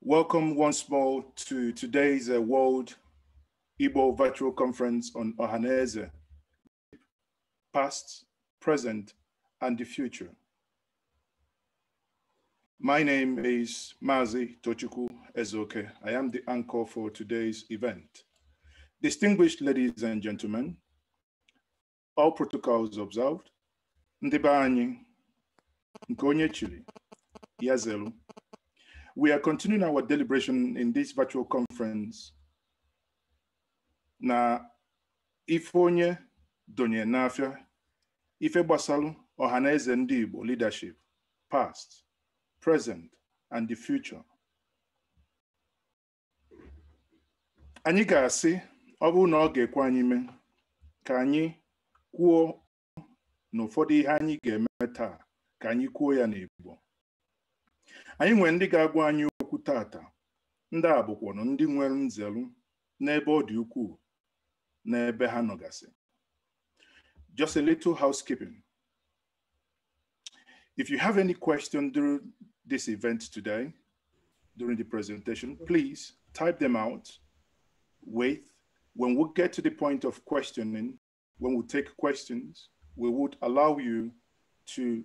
Welcome once more to today's uh, World Igbo Virtual Conference on Ohaneze, past, present, and the future. My name is Mazi Tochuku Ezoke. I am the anchor for today's event. Distinguished ladies and gentlemen, all protocols observed, ndị be anyị, nke we are continuing our deliberation in this virtual conference. Na Ifonye Donye Nafia, Ife Basalu, Ohaneze Ndibo leadership, past, present, and the future. Anyị ga-asị ọ bụrụ na ọ ga-ekwe anyị mee ka anyị kwuo na ihe anyị ga-eme taa ka anyị kwuo ya n'Igbo anyị nwere ndị ga-agwa anyị okwu tata ndị a bụkwanụ ndị nwere nzelu n'ebe ọ dị ukwuu n'ebe ha nọgasị just a little housekeeping if you have any question during this event today during the presentation please type them out wait when we get to the point of questioning when we take questions we would allow you to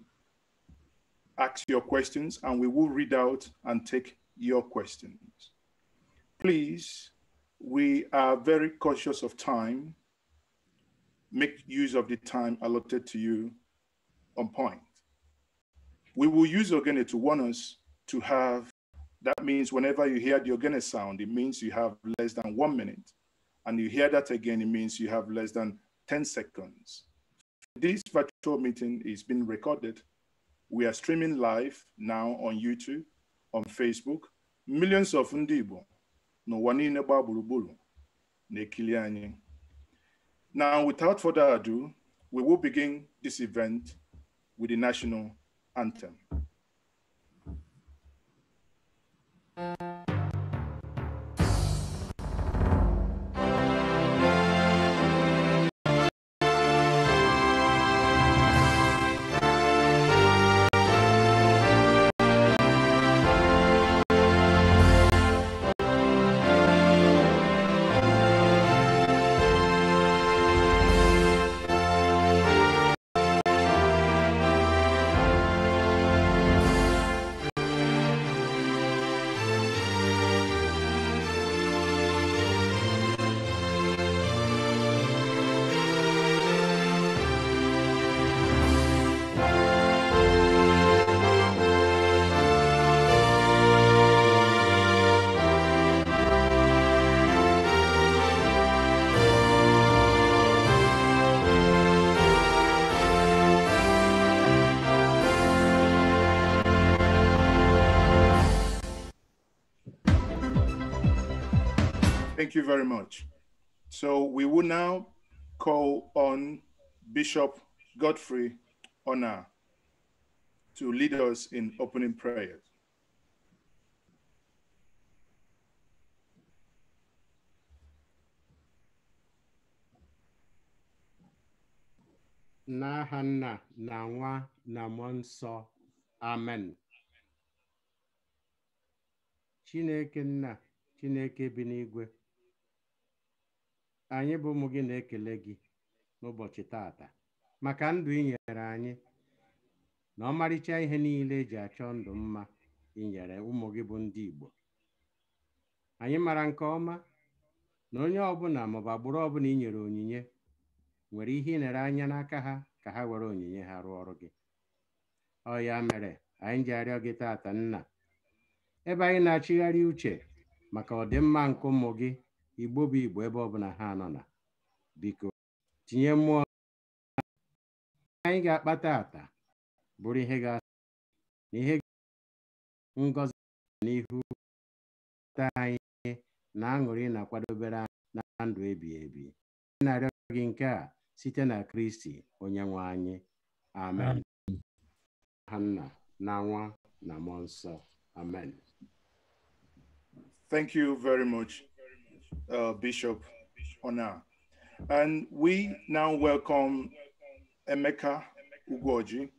ask your questions and we will read out and take your questions. Please, we are very cautious of time. Make use of the time allotted to you on point. We will use Ogene to warn us to have, that means whenever you hear the Ogene sound, it means you have less than one minute. And you hear that again, it means you have less than 10 seconds. This virtual meeting is being recorded we are streaming live now on YouTube, on Facebook. Millions of ndibo, no n'ụwa niile gbaa gburugburu na Now, without further ado, we will begin this event with the national anthem. Thank you very much. So we will now call on Bishop Godfrey Honor to lead us in opening prayers. N'aha nna na nwa na mmụọ amen chineke na, chineke bi anyị bụ ụmụ gị na-ekele gị n'ụbọchị taata maka ndụ ị nyere anyị na ọmarịcha ihe niile eji achọ ndụ mma ị nyere ụmụ gị bụ ndị Igbo anyị mara nke ọma na onye ọbụla maọbụ agbụrụ ọbụla inyere onyinye nwere ihe ị anya n'aka ha ka ha were onyinye ha rụọ ọrụ gị ọ ya mere anyị ji arịọ gị taata nna ebe anyị na-achịgharị uche maka ọdịmma nke ụmụ gị igbo bụ igbo ebe ọbụla ha nọ na biko tinye mmụọ anyị ga-akpata ata bụrụ ihe ga-asị na ihe ngozi n'ihu ta anyị na aṅụrị na-akwadobere na ndụ ebi ebi na-arịọ gị nke a site na kristi onye nwe anyị amen ha nna na nwa na mmụọ nsọ amen uh, Bishop Ona. And we now welcome Emeka Ugoji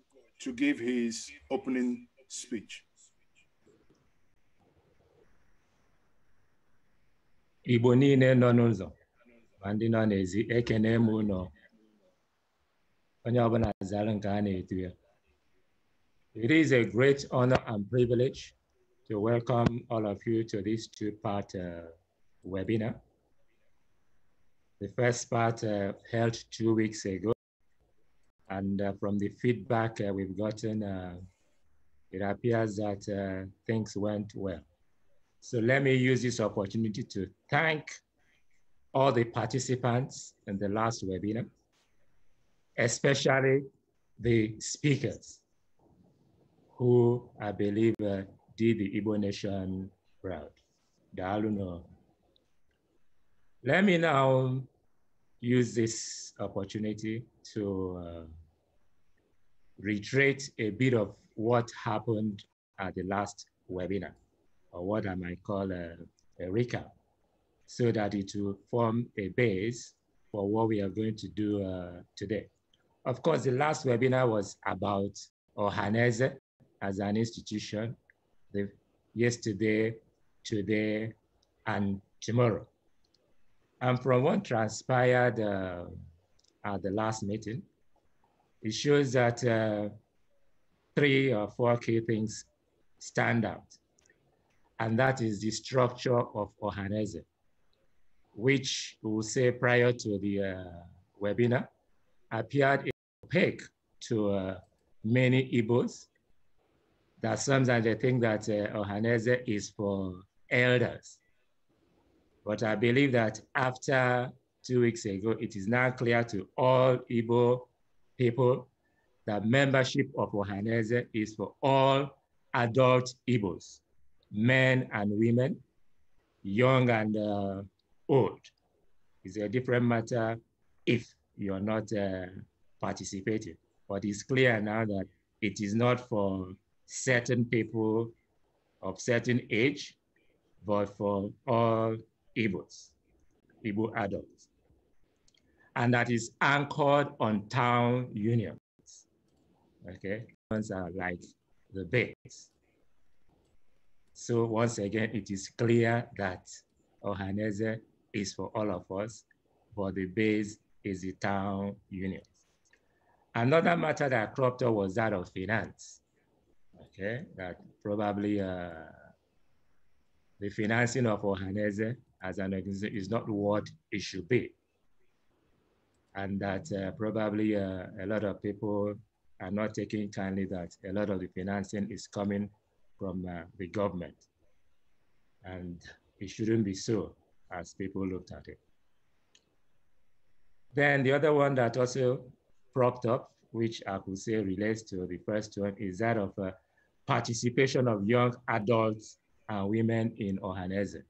to give his opening speech. Igbo niile nọ n'ụzọ ma ndị nọ n'ezi ekene m onye ọbụla zara nke a na-etu ya. It is a great honor and privilege to welcome all of you to this two-part uh, webinar. The first part uh, held two weeks ago. And uh, from the feedback uh, we've gotten, uh, it appears that uh, things went well. So let me use this opportunity to thank all the participants in the last webinar, especially the speakers who I believe uh, did the Igbo Nation proud. Daalu let me now use this opportunity to uh, reiterate a bit of what happened at the last webinar, or what I might call a, a recap, so that it will form a base for what we are going to do uh, today. Of course, the last webinar was about Ohanese as an institution, the, yesterday, today, and tomorrow. And from what transpired uh, at the last meeting, it shows that uh, three or four key things stand out. And that is the structure of Ohanese, which we'll say prior to the uh, webinar, appeared opaque to uh, many Igbos that sometimes they think that uh, Ohanese is for elders. But I believe that after two weeks ago, it is now clear to all Igbo people that membership of Ohaneze is for all adult Igbos, men and women, young and uh, old. It's a different matter if you're not uh, participating. But it's clear now that it is not for certain people of certain age, but for all Igbos, Igbo adults. And that is anchored on town unions. Okay, ones are like the base. So once again, it is clear that Ohaneze is for all of us, but the base is the town union. Another matter that cropped up was that of finance. Okay, that probably uh, the financing of Ohaneze as an organization is not what it should be. And that uh, probably uh, a lot of people are not taking kindly that a lot of the financing is coming from uh, the government. And it shouldn't be so as people looked at it. Then the other one that also propped up, which I could say relates to the first one, is that of uh, participation of young adults and women in Ohanese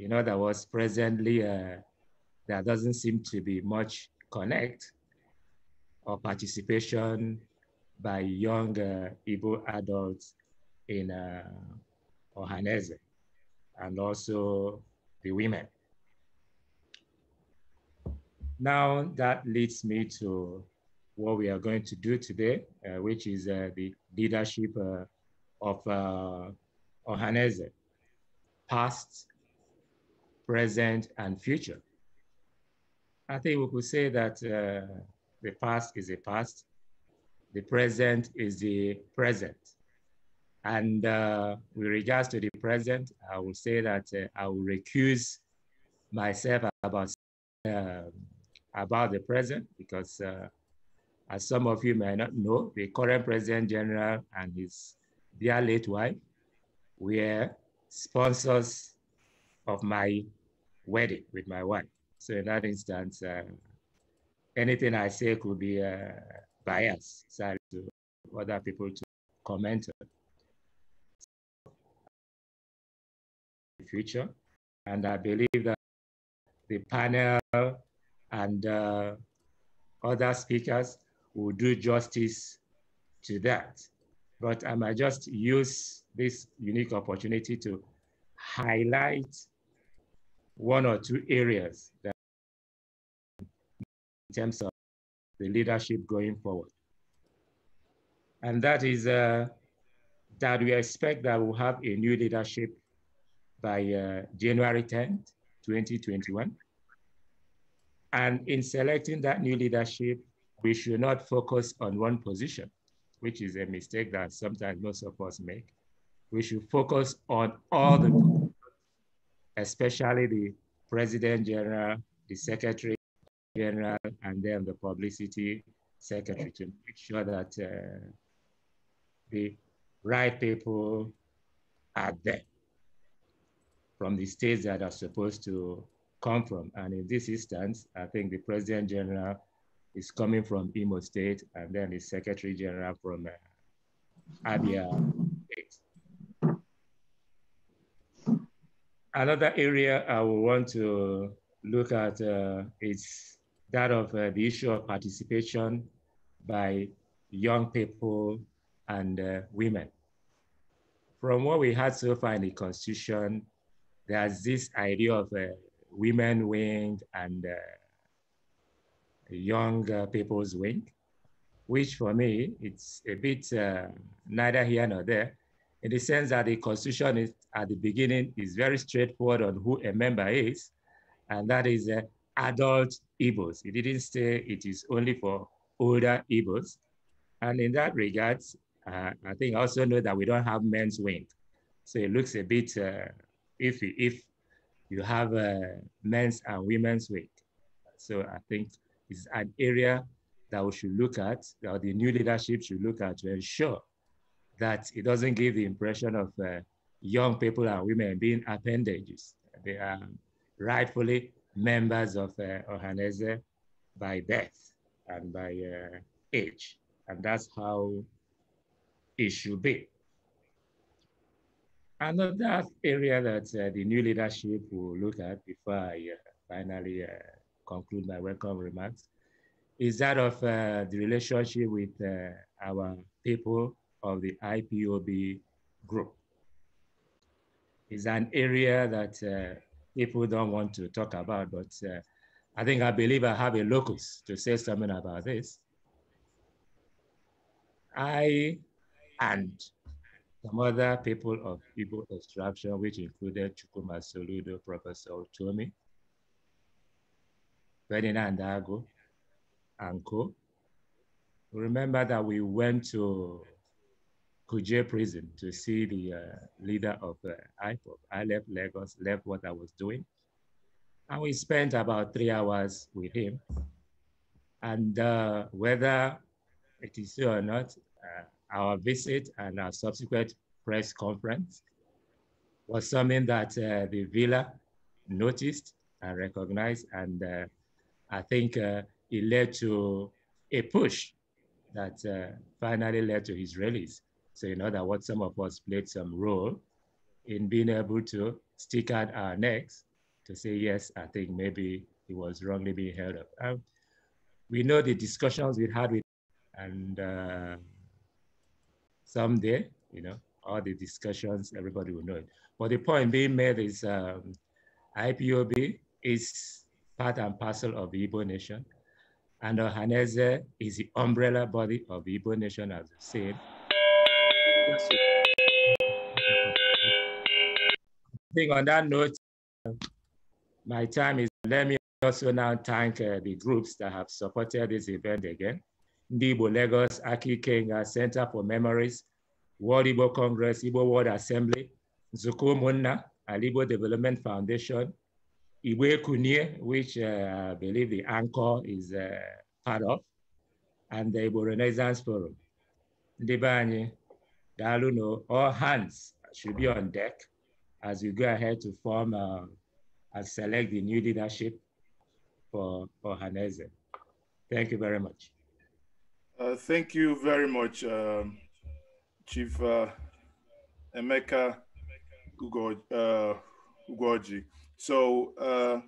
you know, that was presently, uh, there doesn't seem to be much connect or participation by young uh, Igbo adults in uh, Ohanese and also the women. Now that leads me to what we are going to do today, uh, which is uh, the leadership uh, of uh, Ohanese, past, present, and future. I think we could say that uh, the past is the past, the present is the present. And uh, with regards to the present, I will say that uh, I will recuse myself about, uh, about the present because uh, as some of you may not know, the current President General and his dear late wife were sponsors of my wedding with my wife. So in that instance, uh, anything I say could be uh, biased sorry, to other people to comment on. the future, and I believe that the panel and uh, other speakers will do justice to that. But I might just use this unique opportunity to highlight one or two areas that in terms of the leadership going forward. And that is uh, that we expect that we'll have a new leadership by uh, January 10th, 2021. And in selecting that new leadership, we should not focus on one position, which is a mistake that sometimes most of us make. We should focus on all the especially the President General, the Secretary General, and then the Publicity Secretary to make sure that uh, the right people are there from the states that are supposed to come from. And in this instance, I think the President General is coming from Imo State, and then the Secretary General from uh, Abia another area I would want to look at uh, is that of uh, the issue of participation by young people and uh, women. From what we had so far in the constitution, there's this idea of uh, women wing and uh, young uh, people's wing, which for me, it's a bit uh, neither here nor there in the sense that the constitution is, at the beginning is very straightforward on who a member is, and that is uh, adult Igbos. It didn't say it is only for older Igbos. And in that regard, uh, I think also know that we don't have men's wing. So it looks a bit uh, iffy if you have uh, men's and women's wing. So I think it's an area that we should look at, that the new leadership should look at to ensure that it doesn't give the impression of uh, young people and women being appendages. They are rightfully members of uh, Ohanese by birth and by uh, age. And that's how it should be. Another area that uh, the new leadership will look at before I uh, finally uh, conclude my welcome remarks is that of uh, the relationship with our people of the IPOB group. It's an area that uh, people don't want to talk about, but uh, I think I believe I have a locus to say something about this. I and some other people of Igbo extraction, which included Chukuma Soludo, Professor Otomi, Ferdinand Dago, and co. Remember that we went to Kuje prison to see the uh, leader of uh, IPOP. I left Lagos, left what I was doing. And we spent about three hours with him. And uh, whether it is true or not, uh, our visit and our subsequent press conference was something that uh, the villa noticed and recognized. And uh, I think it led to a push that finally led to his release. So in other words, some of us played some role in being able to stick out our necks to say, yes, I think maybe it was wrongly being held up. Um, we know the discussions we had with, and uh, someday, you know, all the discussions, everybody will know it. But the point being made is um, IPOB is part and parcel of the Igbo nation. And Ohaneze is the umbrella body of the Igbo nation, as I said. I think on that note, my time is, let me also now thank uh, the groups that have supported this event again. Ndibo Lagos, Aki Kenga uh, Center for Memories, World Igbo Congress, Igbo World Assembly, Zuko Munna, Alibo Development Foundation, Igwe Kunye, which uh, I believe the anchor is uh, part of, and the Igbo Renaissance Forum. Ndibanye, Daluno, all hands should be on deck as we go ahead to form uh, and select the new leadership for, for Hanese. Thank you very much. Uh, thank you very much, um, Chief uh, Emeka uh, Ugoji. So uh,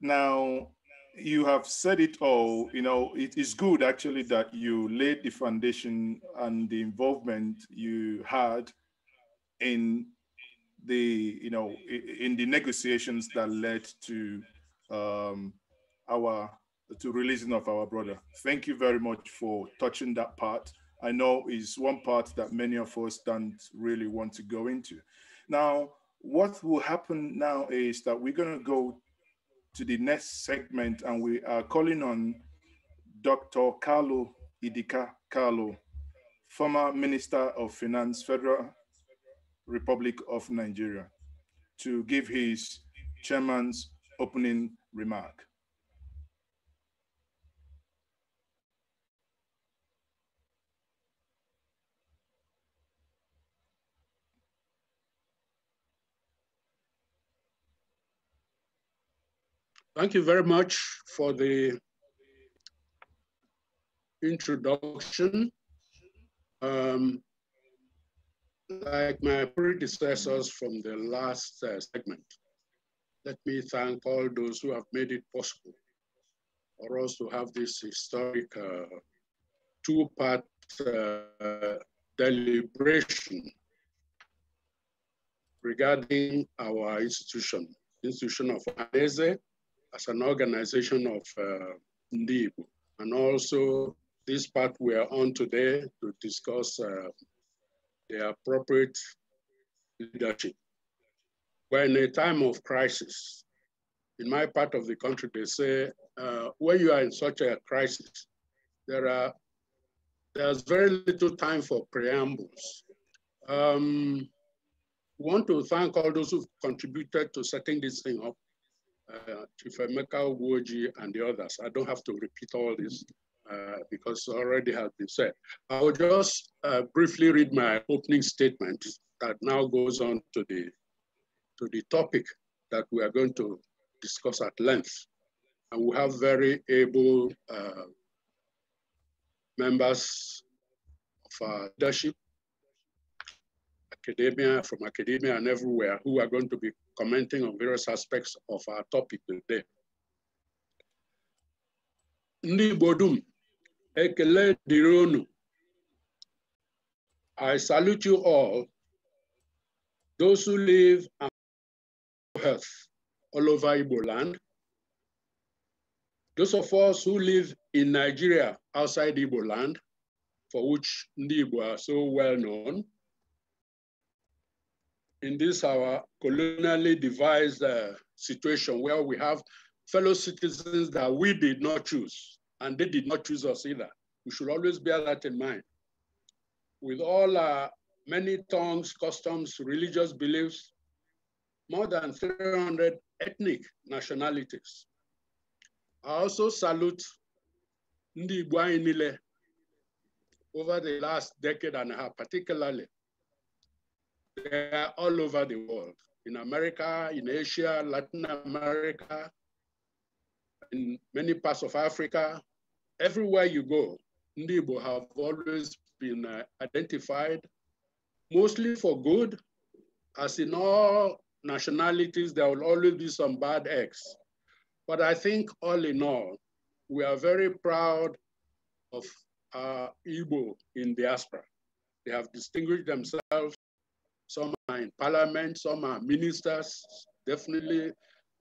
now you have said it all. You know, it is good actually that you laid the foundation and the involvement you had in the you know in the negotiations that led to um, our to releasing of our brother. Thank you very much for touching that part. I know is one part that many of us don't really want to go into. Now, what will happen now is that we're going to go to the next segment, and we are calling on Dr. Carlo Idika Carlo, former Minister of Finance, Federal Republic of Nigeria, to give his chairman's opening remark. Thank you very much for the introduction. Um, like my predecessors from the last uh, segment, let me thank all those who have made it possible for us to have this historic uh, two-part uh, deliberation regarding our institution, institution of Anese, as an organization of uh, And also this part we are on today to discuss uh, the appropriate leadership. We're in a time of crisis. In my part of the country, they say, uh, when you are in such a crisis, there are there's very little time for preambles. Um, want to thank all those who contributed to setting this thing up uh, Chief Emeka Uwoji, and the others. I don't have to repeat all this uh, because already has been said. I will just uh, briefly read my opening statement that now goes on to the, to the topic that we are going to discuss at length. And we have very able uh, members of our leadership, academia, from academia and everywhere, who are going to be commenting on various aspects of our topic today. Ndị Igbo ekele dịrị I salute you all, those who live and health all over Igbo land, those of us who live in Nigeria outside Igbo land, for which Ndị Igbo are so well known, in this our colonially devised uh, situation where we have fellow citizens that we did not choose, and they did not choose us either. We should always bear that in mind. With all our many tongues, customs, religious beliefs, more than 300 ethnic nationalities. I also salute Ndi Nile over the last decade and a half, particularly they are all over the world, in America, in Asia, Latin America, in many parts of Africa. Everywhere you go, Ndị have always been uh, identified, mostly for good, as in all nationalities, there will always be some bad eggs. But I think all in all, we are very proud of our uh, Igbo in diaspora. They have distinguished themselves some are in parliament, some are ministers, definitely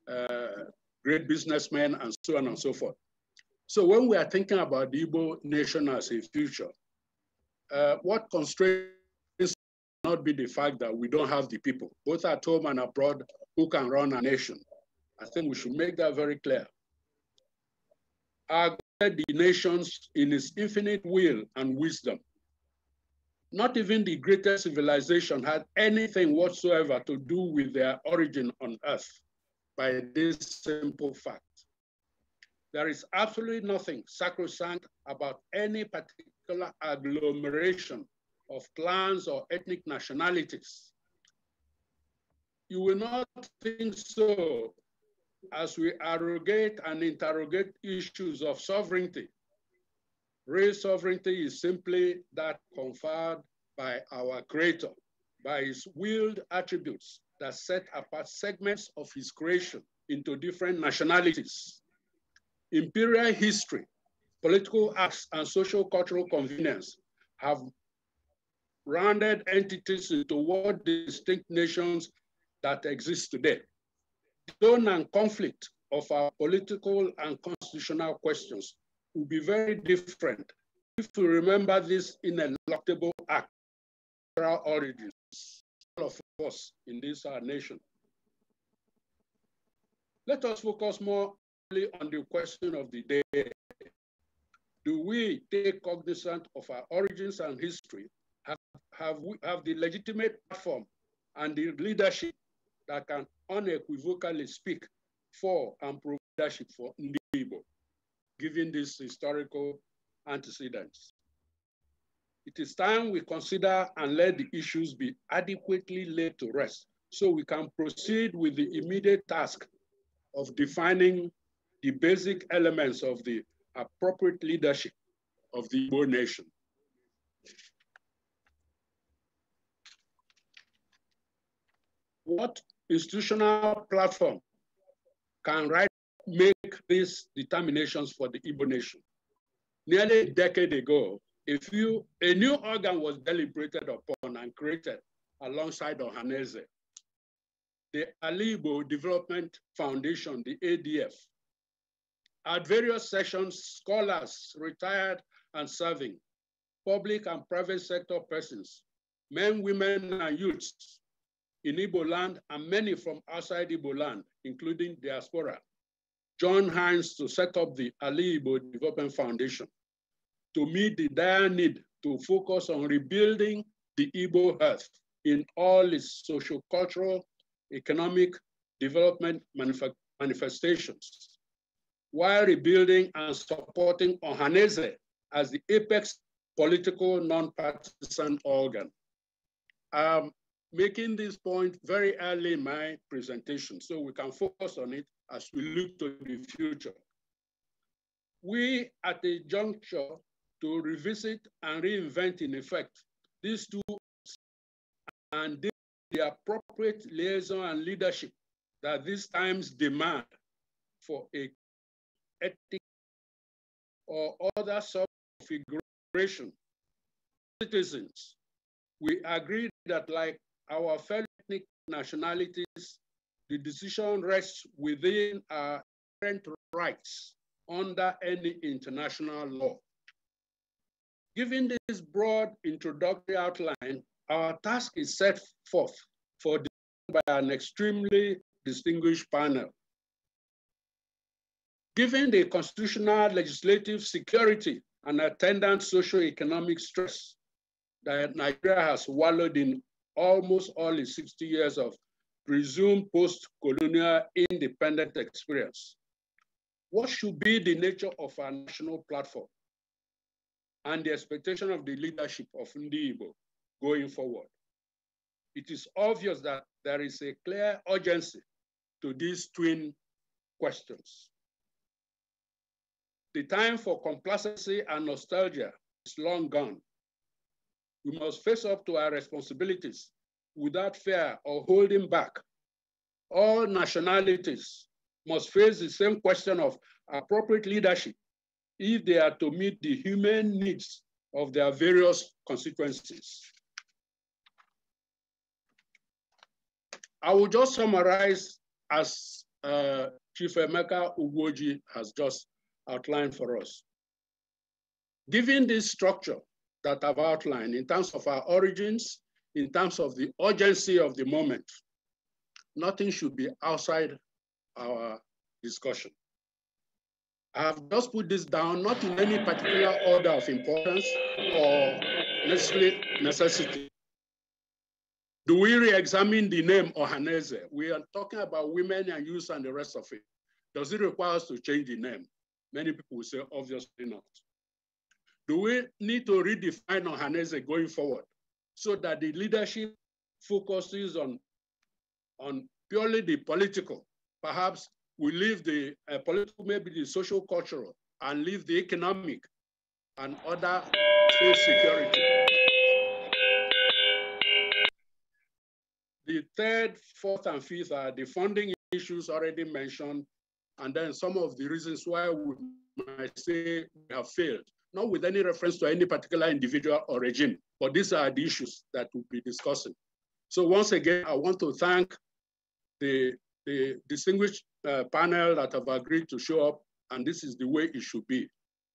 uh, great businessmen, and so on and so forth. So when we are thinking about the Igbo nation as a future, uh, what constraints not be the fact that we don't have the people, both at home and abroad, who can run a nation. I think we should make that very clear. Our the nations in his infinite will and wisdom not even the greatest civilization had anything whatsoever to do with their origin on earth by this simple fact. There is absolutely nothing sacrosanct about any particular agglomeration of clans or ethnic nationalities. You will not think so as we arrogate and interrogate issues of sovereignty Real sovereignty is simply that conferred by our creator, by his willed attributes that set apart segments of his creation into different nationalities. Imperial history, political acts, and social cultural convenience have rounded entities into what distinct nations that exist today. The zone and conflict of our political and constitutional questions will be very different if we remember this ineluctable act our origins, all of us in this our nation. Let us focus more on the question of the day. Do we take cognizance of our origins and history? Have, have we have the legitimate platform and the leadership that can unequivocally speak for and provide leadership for people? given these historical antecedents. It is time we consider and let the issues be adequately laid to rest so we can proceed with the immediate task of defining the basic elements of the appropriate leadership of the Igbo nation. What institutional platform can right make these determinations for the Igbo nation. Nearly a decade ago, a, few, a new organ was deliberated upon and created alongside Ohaneze. The Alibo Development Foundation, the ADF. At various sessions, scholars, retired and serving, public and private sector persons, men, women, and youths in Igbo land, and many from outside Igbo land, including diaspora, joined hands to set up the Ali Ibo Development Foundation to meet the dire need to focus on rebuilding the Igbo health in all its social, cultural, economic development manif manifestations, while rebuilding and supporting Ohaneze as the apex political non-partisan organ. I'm making this point very early in my presentation, so we can focus on it as we look to the future. We at a juncture to revisit and reinvent in effect these two and the appropriate liaison and leadership that these times demand for a ethic or other subconfiguration. Citizens, we agree that like our fellow ethnic nationalities, the decision rests within our current rights under any international law. Given this broad introductory outline, our task is set forth for by an extremely distinguished panel. Given the constitutional, legislative, security, and attendant socio-economic stress that Nigeria has wallowed in almost all its 60 years of presumed post-colonial independent experience. What should be the nature of our national platform and the expectation of the leadership of Ndiibo going forward? It is obvious that there is a clear urgency to these twin questions. The time for complacency and nostalgia is long gone. We must face up to our responsibilities without fear or holding back. All nationalities must face the same question of appropriate leadership if they are to meet the human needs of their various consequences. I will just summarize as uh, Chief Emeka Ugoji has just outlined for us. Given this structure that I've outlined in terms of our origins, in terms of the urgency of the moment, nothing should be outside our discussion. I have just put this down, not in any particular order of importance or necessarily necessity. Do we re-examine the name Ohaneze? We are talking about women and youth and the rest of it. Does it require us to change the name? Many people will say, obviously not. Do we need to redefine Ohaneze going forward? so that the leadership focuses on, on purely the political. Perhaps we leave the uh, political, maybe the social cultural, and leave the economic and other food security. The third, fourth, and fifth are the funding issues already mentioned, and then some of the reasons why we might say we have failed, not with any reference to any particular individual or regime. But these are the issues that we'll be discussing. So once again, I want to thank the, the distinguished uh, panel that have agreed to show up, and this is the way it should be.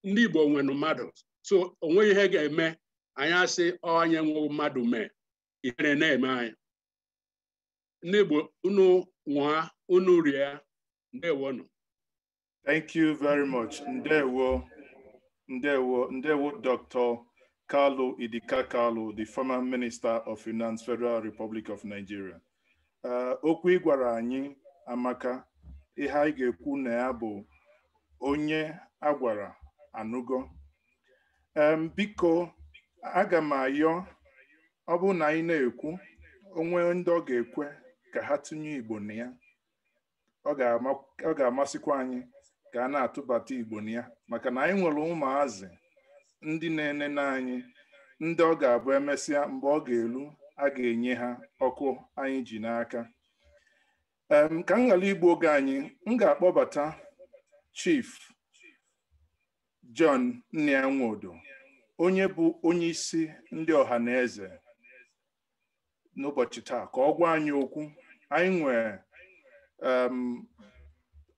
Ndị Igbo nwere mmadụ. So onwe ihe ga-eme, anyị asị onye nwe mmadụ mee, ihere na-eme anyị. Ndị Igbo unu nwa unu rie, ndewonụ. Thank you very much. Ndewo. Ndewo. Ndewo, Dr. Carlo Idika Carlo, the former Minister of Finance, Federal Republic of Nigeria. Uh, okwu ị gwara anyị amaka ihe anyị ga-ekwu na ya bụ onye a gwara anụgo um, biko aga m ayọ ọ na anyị na-ekwu onwe ndị ọ ga-ekwe ka ha tinye Igbo na ya ọ ga-amasịkwa anyị ka a na-atụbata Igbo na ya maka na anyị nwere ụmụazị ndị na ene n'anyị ndị ọ ga-abụ emesịa mgbe ọ ga-elu a ga-enye ha ọkụ anyị ji n'aka ka m ghara igbu oge anyị m ga-akpọbata Chief John Nnianwodo onye bụ onye isi ndị ọha na eze n'ụbọchị taa ka ọ gwa anyị okwu anyị nwee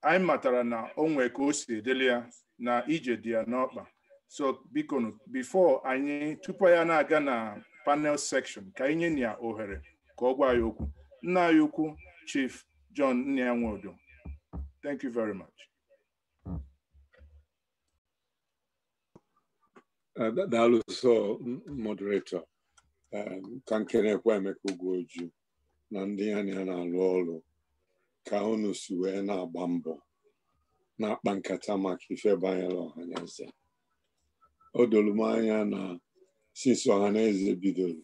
anyị matara na o nwee ka o si edeli ya na ije dị ya n'ọkpa so biko before anyị tupu ya na-aga na panel section ka anyị nye ya ohere ka ọ gwa ya okwu nna anyị ukwu Chief John Nnia Nwodo thank you very much daalụ uh, so moderator um, ka nkenekwa Emeka Ugoju na ndị anya na alụ ọrụ ka unu si wee na-agba mbọ na-akpa nkata maka ife banyere ọhaneze o doro m anya na sinsi ọhaneze bidoro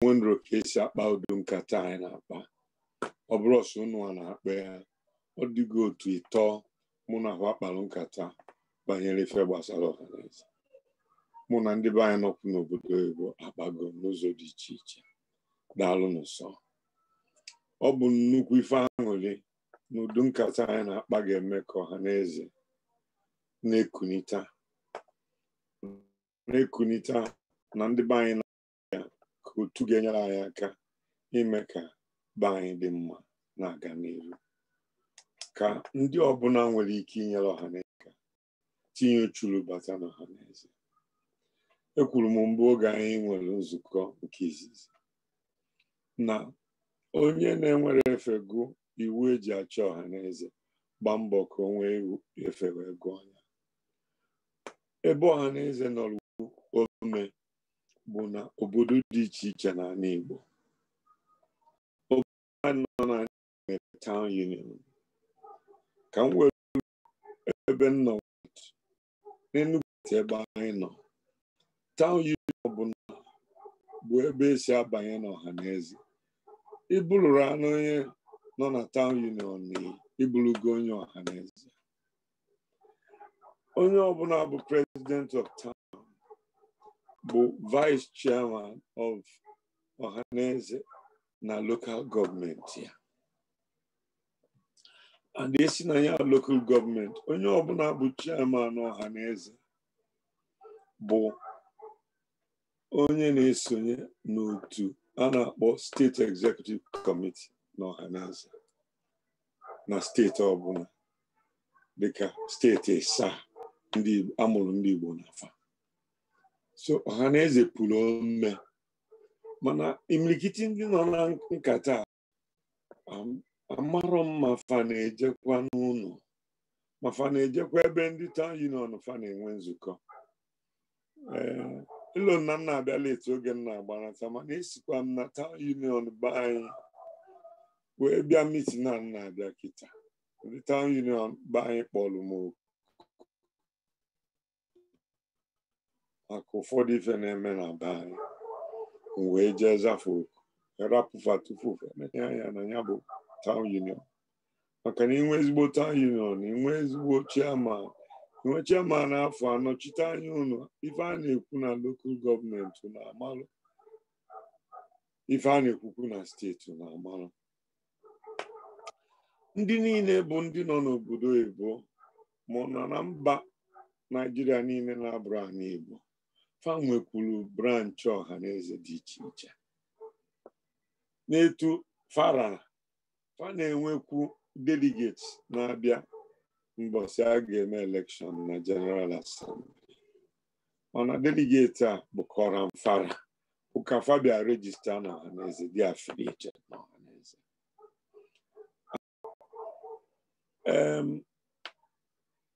nwendro ka esi akpa udo nkata anyị na-akpa ọ bụrụ ọsọ unu a na-akpa ya ọ dịgo otu ịtọ mụ na ahụ akpara nkata banyere ife gbasara ọhaneze mụ na ndị be anyị n'obodo oyibo akpago n'ụzọ dị iche iche daalụ n'ụsọ ọ bụ nnukwu ife aṅụrị na udo nkata anyị na-akpa ga-eme ka eze na-ekunita na-ekunite na ndị be anyị na-aga ka otu ga-enyere anyị aka ime ka be anyị dị mma na-aga n'elu. ka ndị ọbụla nwere ike inyere ọha ọhaneze tinye uchulu bata na ọhaneze ekwuru m mgbe oge anyị nwere nzukọ nke izizi na onye na-enwere efe gụ iwu eji achọ ọha naeze gbaa mbọ ka o nwee efe wee gụọ ya ebe naeze nọrọ ome bụ na obodo dị iche iche n'ala Igbo obodo nọ n'ala nwere town union ka m nwere ebe m nọ n'Enugu ebe anyị nọ town union ọbụla bụ ebe esi abanye n'ọha na eze ịbụlụrụ anụ onye nọ na town union na ịbụlụgo onye ọha na eze onye ọbụla bụ president of town bụ vice chairman of ọhaneze na lokal gọọmenti ya and esi na ya local gọọmenti onye ọbụla bụ chairman ọhaneze bụ onye na-esonye n'otu a na-akpọ steeti executive committee na na steeti ọbụla dịka steeti a amụrụ ndị Igbo na afọ. so ọ na eze pụrụ ome mana imilikiti ndị nọ na nkata amarọ m ma fa na-ejekwa n'ụlọ ma fa na-ejekwa ebe ndị town union fa na-enwe nzukọ ịlụ eh, nna m na-abịa etu oge m na-agbanata mana esikwa m na town union anyị wee bịa mitin na m na-abịa kịta ndị town union be anyị m maka ụfọdụ ife na-eme na be anyị m wee jee zafụ oku e rapụfa tupu ya anya na ya bụ taụn union maka na inwe ezigbo town union inwe ezigbo chairman inwe chairman afọ anọchite anya ụlọ ife a na-ekwu na lokal gọọmenti na-amalụ ife a na-ekwukwu na steeti na-amalụ ndị niile bụ ndị nọ n'obodo ebo mụ na na mba Naijiria niile na-abụrụ anyị Igbo fa nwekwuru branchị eze dị iche iche n'etu fara fa na-enwekwu delegates na-abịa mbọsị a ga-eme elekshọn na general assembly mana deligeti a bụ kọran fara ụka fabia regista na ọhaneze dị affiliated na ọhaneze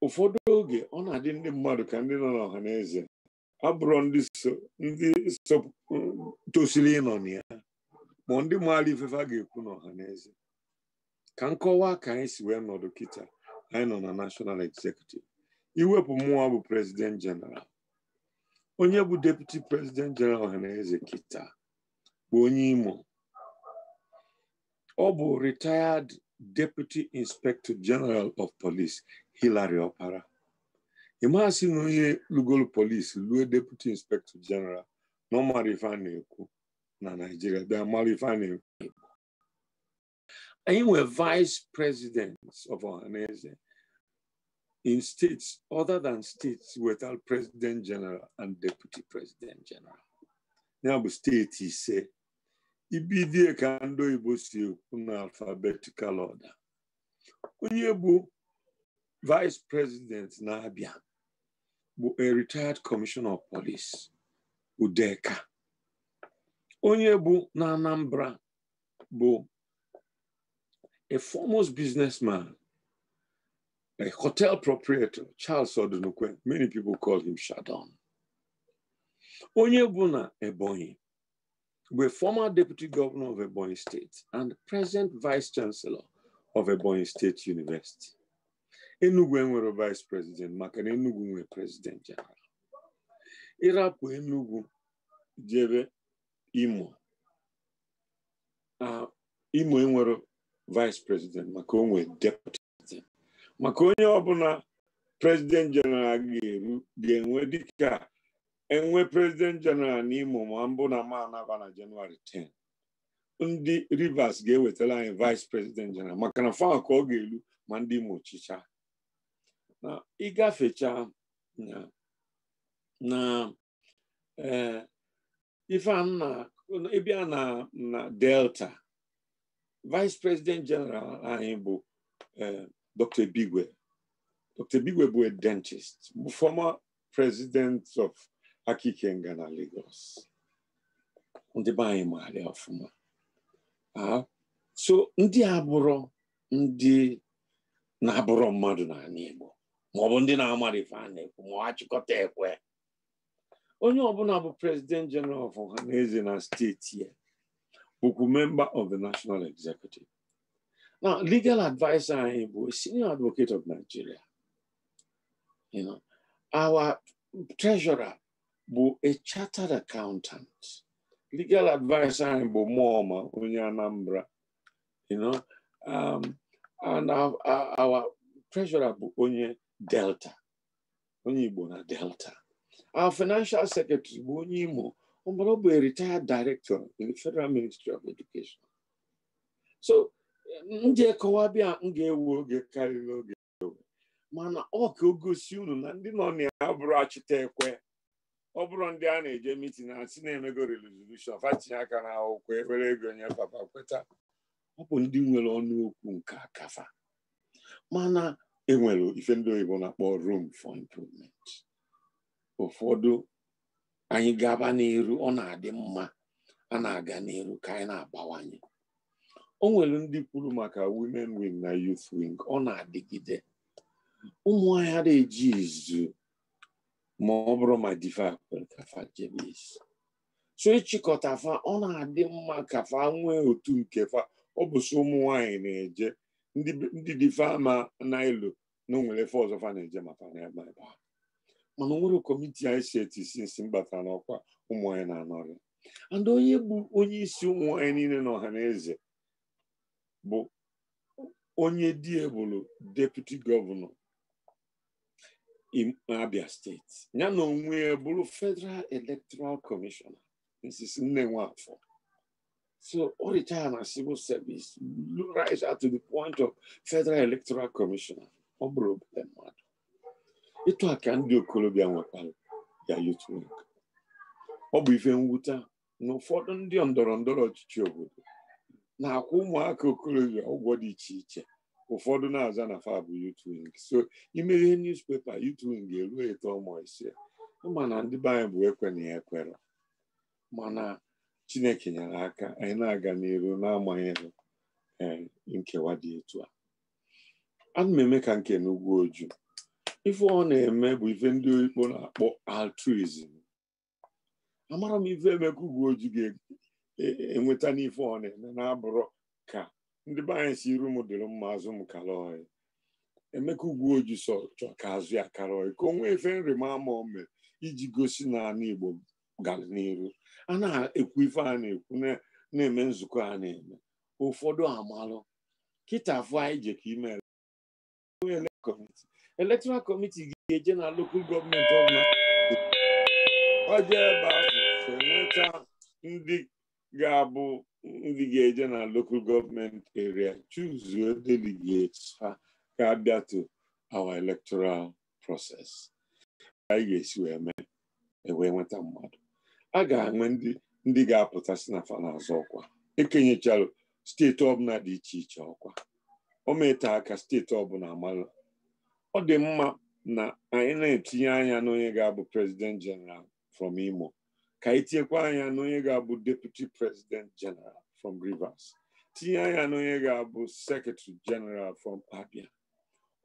ụfọdụ oge ọ na-adị ndị mmadụ ka ndị nọ n'ọhaneze abụrụ ndị um, tosiri ịnọ na ya ma ndị maara ifefe a ga-ekwu n'ọha na eze ka nkọwa ka anyị si wee nọdụ kịta anyị nọ na national executive iwepụ mmụọ bụ president general onye bụ deputy president general ọha na eze kịta bụ onye imo ọ bụ retired deputy inspector general of police Hillary Opara ịmasị na onye lugolu polisi lue deputy inspector general na ọmara ife a na-ekwu na naijiria bịa mara ife a vice presidents of ọhaneze in states other than states without president general and deputy president general ya bụ steeti ise ibidie ka ndị do e ekwu na alfabetical order onye bụ vice president na-abịa a retired commissioner of police Udeka onye bụ na Anambra bụ a foremost businessman a hotel proprietor Charles Odunukwe many people call him Shadon onye bụ na Ebonyi were former deputy governor of Ebonyi State and present vice chancellor of Ebonyi State University. Enugwu enwere vice president maka na Enugwu nwee president general ịrapụ Enugwu jebe Imo ah, Imo enwere vice president maka onwe deputy maka onye ọbụla president general ga-eru ga-enwe dịka enwe president na imo ma mbụ na ma anaba na Jenụwarị 10 ndị Rivers ga-ewetara anyị vice president general maka na fa ka ọ ga-eru ma ndị Imo chicha ịgafecha na na e, na na delta vice president general anyị bụ e, dr bigwe dr bigwe bụ a dentist former president of Akikenga na Lagos ndị be anyị maara ọfụma so ndị abụrụ ndị na-abụrụ mmadụ n'ala Igbo maọbụ ndị na-amara ife na-ekwu ma ha achịkọta ekwe onye ọbụla bụ president general of ọhanaeze na steeti ya bụkwu member of the national executive na legal advisor anyị bụ senior advocate of Nigeria you know, our treasurer bụ a chartered accountant legal advisor anyị bụ mọma onye Anambra you know, um, and our treasurer bụ onye delta onye igbo na delta our financial secretary bụ onye imo ọbụrụ bụ retired director in federal ministry of education so ndị bịa m ga-ewu oge karịrị oge mana ọ ogosi unu na ndị nọ na ya bụrụ achịta ekwe ọ bụrụ ndị a na-eje mitin si na-emego resolushon fatinye aka na akwụkwọ ewere ego nye papa kweta ọ bụ ndị nwere ọnụ okwu nke akafa mana enwere ife ndị oyibo na-akpọ room for improvement ụfọdụ anyị gaba n'iru ọ na-adị mma a na-aga n'iru ka anyị na-abawanye o nwere ndị kwuru maka women wing na youth wing ọ na-adịgide ụmụ anyị na eji izu ma ọ bụrụ ma diva so ịchịkọta fa ọ na-adị mma ka fa nwee otu nke fa ọ bụ ụmụ nwanyị na-eje ndị dife ama n'elu na onwere efe ọzọ fa na-eje maka na ebe ebe a mana onwere kọmiti anyị si etisi nsi ọkwa n'ọkwa ụmụ na-anọrị and onye bụ onye isi ụmụ niile na ọha na eze bụ onye diebulu deputi gọvanọ Abia steeti ya na onwe bụrụ federal electoral commissioner nsisi nne nwafọ. So all the time our civil service rise to the point of Federal Electoral Commission. ọ bụrụ mmadụ ndị okorobịa nwekwara ya ọ bụ ife mwute na ụfọdụ ndị ndọrọ ndọrọ ọchịchị obodo na-akwụ ụmụaka okorobịa ụgwọ dị iche iche ụfọdụ na-aza na fab so ime ihe newspaper youth wing eruo eto ọmụ mana ndị be anyị ekwe na ya ekwere mana chineke nyere aka anyị na-aga n'iru n'amaghị eh, nkewa dị etu a ana m eme ka nke n'ugwu oju ife ọ na-eme bụ ife ndị ikpo na-akpọ altruism amara m ife emeka ugwu oju ga-enweta e, e, n'ife ọ na-eme na-abụrụ ka ndị be anyị si iru m dịrị mma azụ m kara ọhịa emeka ugwu oju so chọ ka azụ ya kara ọhịa ka o nwee ife nrịma ama o mere iji gosi na ala igbo gara n'iru a na-ekwu ife a na-ekwu na-eme nzukọ a na-eme ụfọdụ amalụ kịta afọ anyị je ka ime elektoral kọmiti ga-eje na lokal gọọmenti ọbụla oje ebe ahụ nweta ndị ga-abụ ndị ga-eje na lokal gọọmenti eria chuzuo delegates ha ga-abịa to our electoral process anyị ga-esi wee mee e wee nweta mmadụ a ga-enwe ndị ga-apụta si na fa na ọkwa ekenyecharụ steeti ọbụla dị iche iche ọkwa o meta aka steeti ọbụla amalụ ọ dị mma na anyị na-etinye anya n'onye ga-abụ president general from Imo ka anyị tinyekwa anya n'onye ga-abụ deputy president general from Rivers tinye anya n'onye ga-abụ secretary general from Abia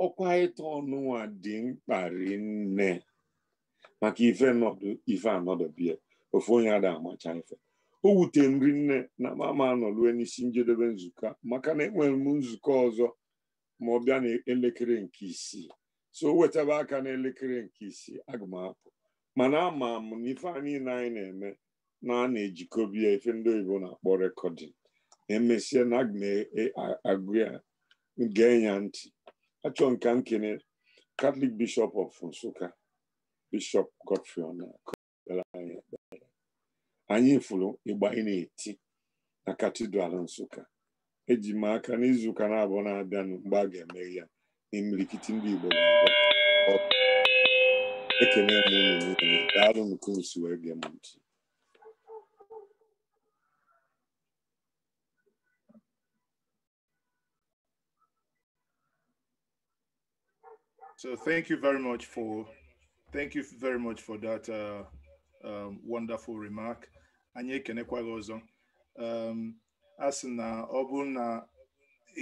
ọkwa ịta ọnụnwa dị mkpa rinne maka ife anọdụ bie ofu onye ada amacha ife o wutere nri nne na mama anọ rue n'isi njedebe nzukọ maka na enwere m nzukọ ọzọ ma ọ bịa n'elekere nke isii so wetaba aka n'elekere nke isii aga m mana ama m na ife a anyị na-eme na a na-ejikọbi ya ife ndị oyibo na-akpọ rekọdịn emesie na aga e, agụ ya gee ya ntị achọ nka nkene katọlik bishọp ọf nsụka bishọp godfrey ọnakụ anyị fụrụ anyị na-eti na katidral nsụka eji m aka n'izu ụka na na-abịanụ mgbe a ga-eme ya n'imirikiti ndị igbo nke wee gee m ntị So thank you very much for thank you very much for that uh, um, wonderful remark. anyị ekenekwa gị ọzọ um, a sị na ọ bụ na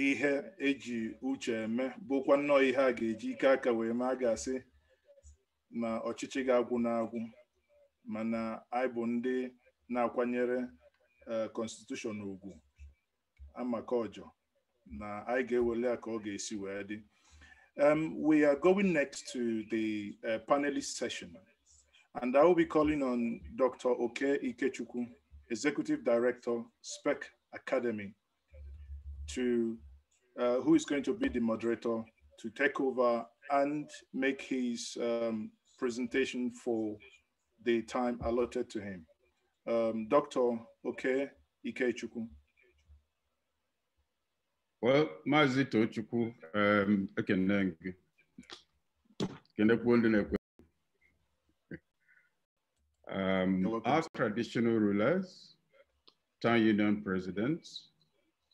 ihe eji uche eme bụkwa nnọọ ihe a ga-eji ike aka wee ma a ga-asị na ọchịchị ga-agwụ na-agwụ mana anyị bụ ndị na-akwanyere kọnstitushọn uh, ugwu amaka ọjọ na anyị ga ewere ya ka ọ ga-esi wee dị um, we are going next to the uh, panelist session And I will be calling on Dr. Oke Ikechukwu, Executive Director, SPEC Academy, to, uh, who is going to be the moderator to take over and make his um, presentation for the time allotted to him. Um, Dr. Oke Ikechukwu. Well, Mazito Chukwu, um, I can um, our traditional rulers, town union presidents,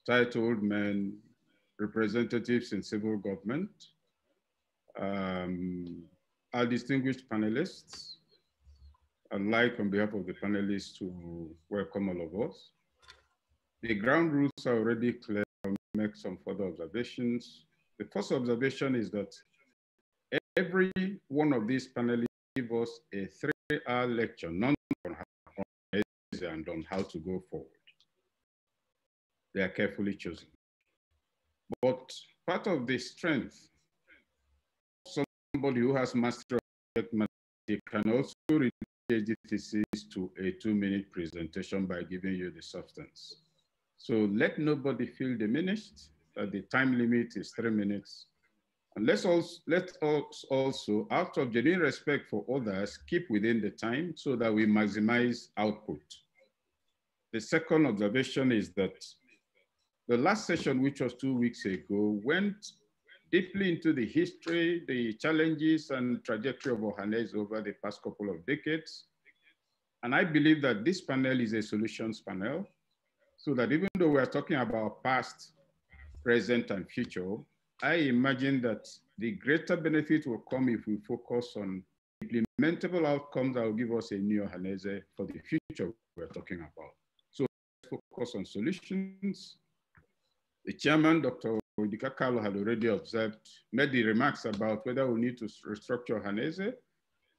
titled men, representatives in civil government, um, our distinguished panelists, I'd like on behalf of the panelists to welcome all of us. The ground rules are already clear. I'll make some further observations. The first observation is that every one of these panelists give us a three our lecture, on how and on how to go forward. They are carefully chosen. But part of the strength of somebody who has mastered mathematics can also reduce the thesis to a two-minute presentation by giving you the substance. So let nobody feel diminished that the time limit is three minutes and let's also, let us also, out of genuine respect for others, keep within the time so that we maximize output. The second observation is that the last session, which was two weeks ago, went deeply into the history, the challenges and trajectory of Ohanes over the past couple of decades. And I believe that this panel is a solutions panel so that even though we are talking about past, present, and future, I imagine that the greater benefit will come if we focus on implementable outcomes that will give us a new Hanese for the future we're talking about. So focus on solutions. The chairman, Dr. Odika Carlo had already observed, made the remarks about whether we need to restructure Hanese,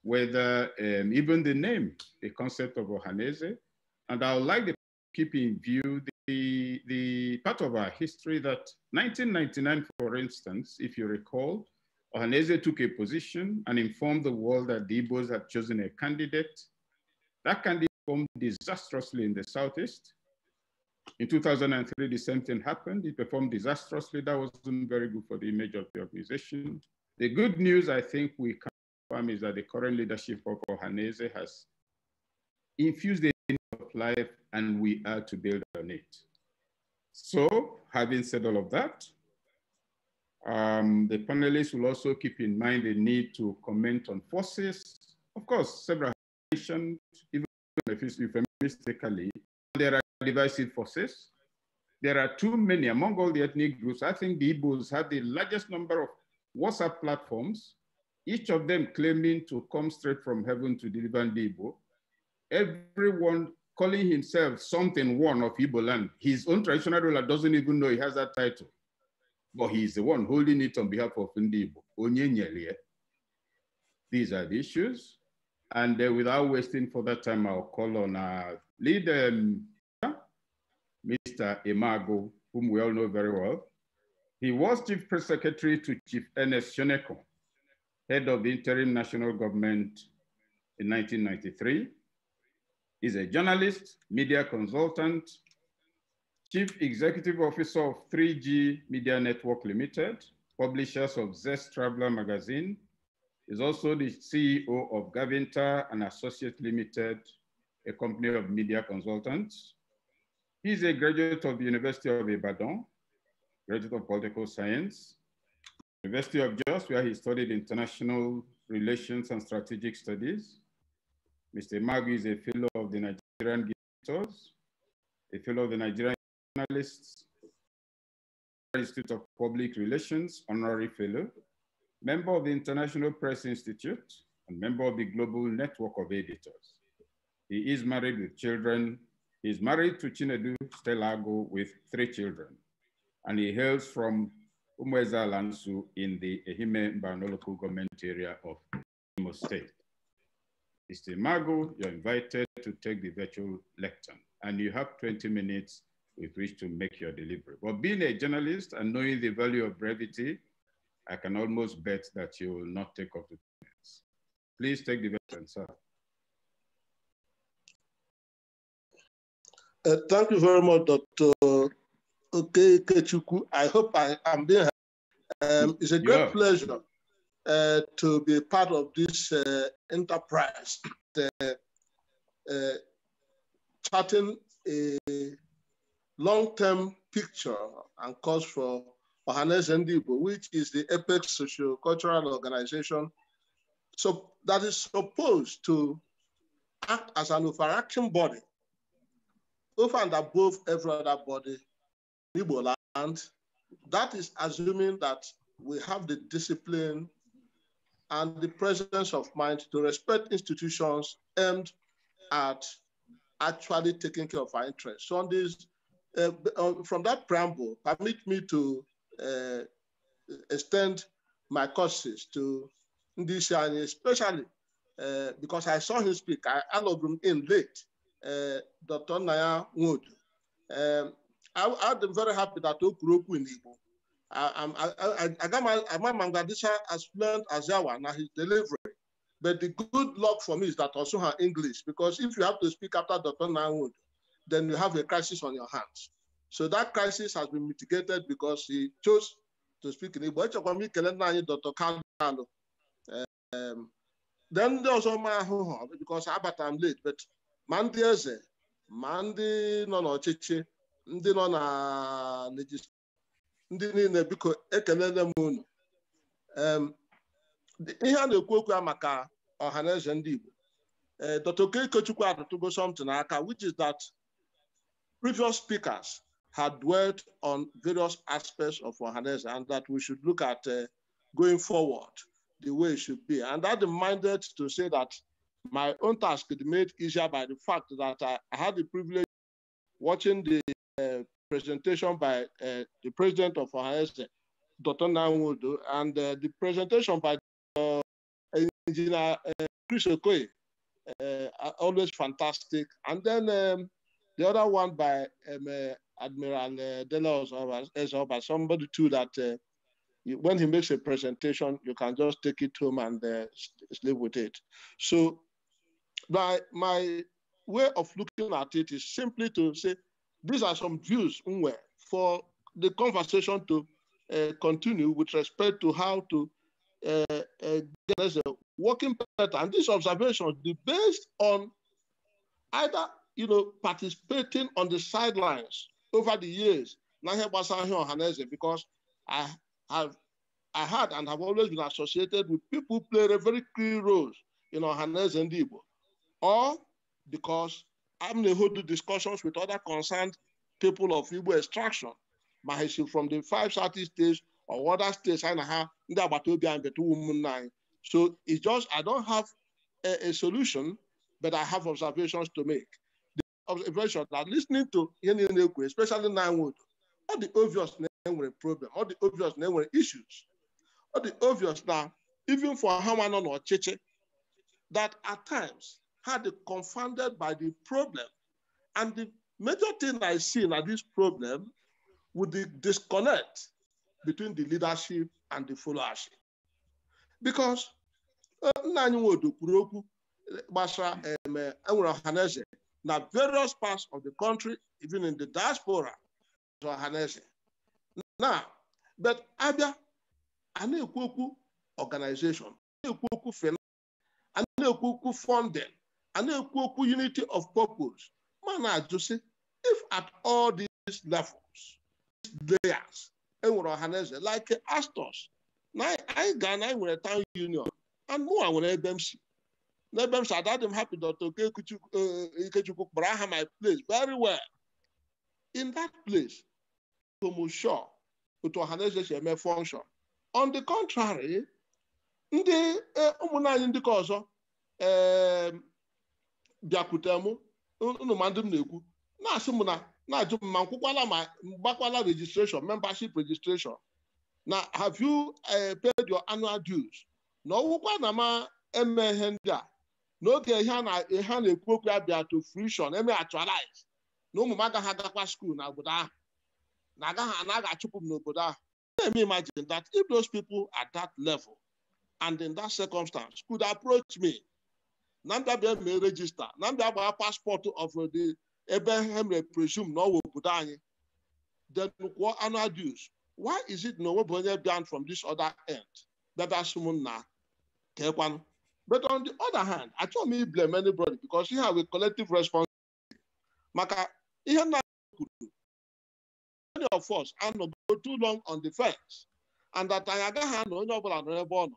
whether um, even the name, the concept of Hanese, and I would like to keep in view the, the part of our history that 1999, for instance, if you recall, Ohaneze took a position and informed the world that the Igbos had chosen a candidate. That candidate performed disastrously in the Southeast. In 2003, the same thing happened. It performed disastrously. That wasn't very good for the image of the organization. The good news I think we can confirm is that the current leadership of Ohaneze has infused the of life and we are to build so having said all of that, um, the panelists will also keep in mind the need to comment on forces. Of course, several mentioned, even if mistakenly, there are divisive forces. There are too many among all the ethnic groups. I think the Igbos have the largest number of WhatsApp platforms, each of them claiming to come straight from heaven to deliver the Igbo. Everyone calling himself something one of Igbo land. His own traditional ruler doesn't even know he has that title, but he is the one holding it on behalf of Ndi These are the issues. And uh, without wasting further time, I'll call on our leader, um, Mr. Imago, whom we all know very well. He was Chief Press Secretary to Chief Ernest Shoneko, head of the interim national government in 1993 is a journalist, media consultant, chief executive officer of 3G Media Network Limited, publishers of Zest Traveler magazine, is also the CEO of Gavinta and Associate Limited, a company of media consultants. He is a graduate of the University of Ibadan, graduate of political science, University of Jos, where he studied international relations and strategic studies. Mr. Magu is a fellow of the Nigerian Gitors, a fellow of the Nigerian Journalists, Institute of Public Relations, honorary fellow, member of the International Press Institute, and member of the Global Network of Editors. He is married with children. He is married to Chinedu Stelago with three children, and he hails from Umweza Lansu in the Ehime Mbanoloku government area of Imo State. Mr. Mago, you're invited to take the virtual lecture and you have 20 minutes with which to make your delivery. But being a journalist and knowing the value of brevity, I can almost bet that you will not take up the minutes. Please take the virtual sir. Uh, thank you very much, Dr. Okay, Kechuku. I hope I am being um, It's a great yeah. pleasure uh, to be part of this uh, enterprise, uh, charting a long-term picture and calls for Ohanes Ndibo, which is the apex social cultural organization so, that is supposed to act as an overarching body over and above every other body in Igbo land. That is assuming that we have the discipline and the presence of mind to respect institutions aimed at actually taking care of our interests. So on this, uh, from that preamble, permit me to uh, extend my courses to Ndishani, especially uh, because I saw him speak. I allowed him in late, uh, Dr. Naya Wood. Um, I, am very happy that Okuroku in Igbo I, my Mangadisha as fluent as Yawa now he's delivering. But the good luck for me is that also her English, because if you have to speak after Dr. Nanwood, then you have a crisis on your hands. So that crisis has been mitigated because he chose to speak in English. Echekwami kelele anyị Dr. Kalu. Um, then ndị ọzọ my ahụ because abata am late, but Mandi ndị eze, ma ndị nọ ndị nọ na ndị niile biko ekelele m unu ihe a na-ekwu okwu ya maka ọha na eze ndị Igbo eh, Dr. Okechukwu adọtụgo something n'aka which is that previous speakers had dwelt on various aspects of ọhaneze and that we should look at uh, going forward the way it should be. And that reminded to say that my own task is made easier by the fact that I, I had the privilege watching the uh, presentation by uh, the president of OHS, Dr. Nanwudu, and uh, the presentation by uh, Engineer uh, Chris Okoye, uh, always fantastic. And then um, the other one by um, uh, Admiral uh, Dela somebody too that when he makes a presentation, you can just take it home and sleep with it. So my, my way of looking at it is simply to say, these are some views for the conversation to uh, continue with respect to how to uh, uh, get a working pattern. And these observations be based on either you know participating on the sidelines over the years. Because I have I had and have always been associated with people who played a very key role in Ohanese and Igbo, or because i having the whole discussions with other concerned people of Igbo extraction ma from the five southeast states or other states I na ha the agbata obi anyị beta ụmụnne anyị so it's just I don't have a, a solution but I have observations to make the observation that listening to ihe niile especially nine nwood all the obvious na problem all the obvious na issues all the obvious now even for Hamanon or Cheche, that at times had confounded by the problem. And the major thing I see in this problem would be disconnect between the leadership and the followership. Because uh, nna anyị nwodo kwuru basha, gbasara eh, enwere ọhaneze various parts of the country, even in the diaspora, ọhaneze. Now, but abịa a na organization, a na finance, funding, a na-ekwu okwu unity of purpose ma na-ajụ sị if at all these levels layers enwere ọhaneze like astos na anyị gaa na anyị nwere town union and mụnwa nwere ebe m si n'ebe m si adadị m happy Dr. Ikechukwu eh, kpọrọ aha my place very well in that place tomusho otu ọhaneze si eme function on the contrary ndị eh, ụmụnna anyị ọzọ eh, bịakwute m unu ndị m na-ekwu na-asị m na na-ajụ m ma nkwụkwala ma gbakwala registration membership registration na have you eh, paid your annual dues na ọwụkwa na ma eme ihe ndị a n'oge ihe a na-ekwu okwu ya bịa to fruition eme actualize na ụmụ m agaghị agakwa skuul na obodo ahụ na agaghị anaghị achụpụ m n'obodo ahụ na-eme imagine that if those people at that level and in that circumstance could approach me na ndị abịa mee rejista na ndị agbaa paspọtụ of the ebe ha mere presume na ọwụ obodo anyị then kwụọ why is it na onwebụ onye from this other end bịabịa sị m nna kekwanụ but on the other hand achọghị m iblem anybody because ihe a wee collective responsibility maka ihe nna kwuru many of us anọgo too long on the fence and that anyị agaghị anọ onye ọbụla nọ n'ebe ọ nọ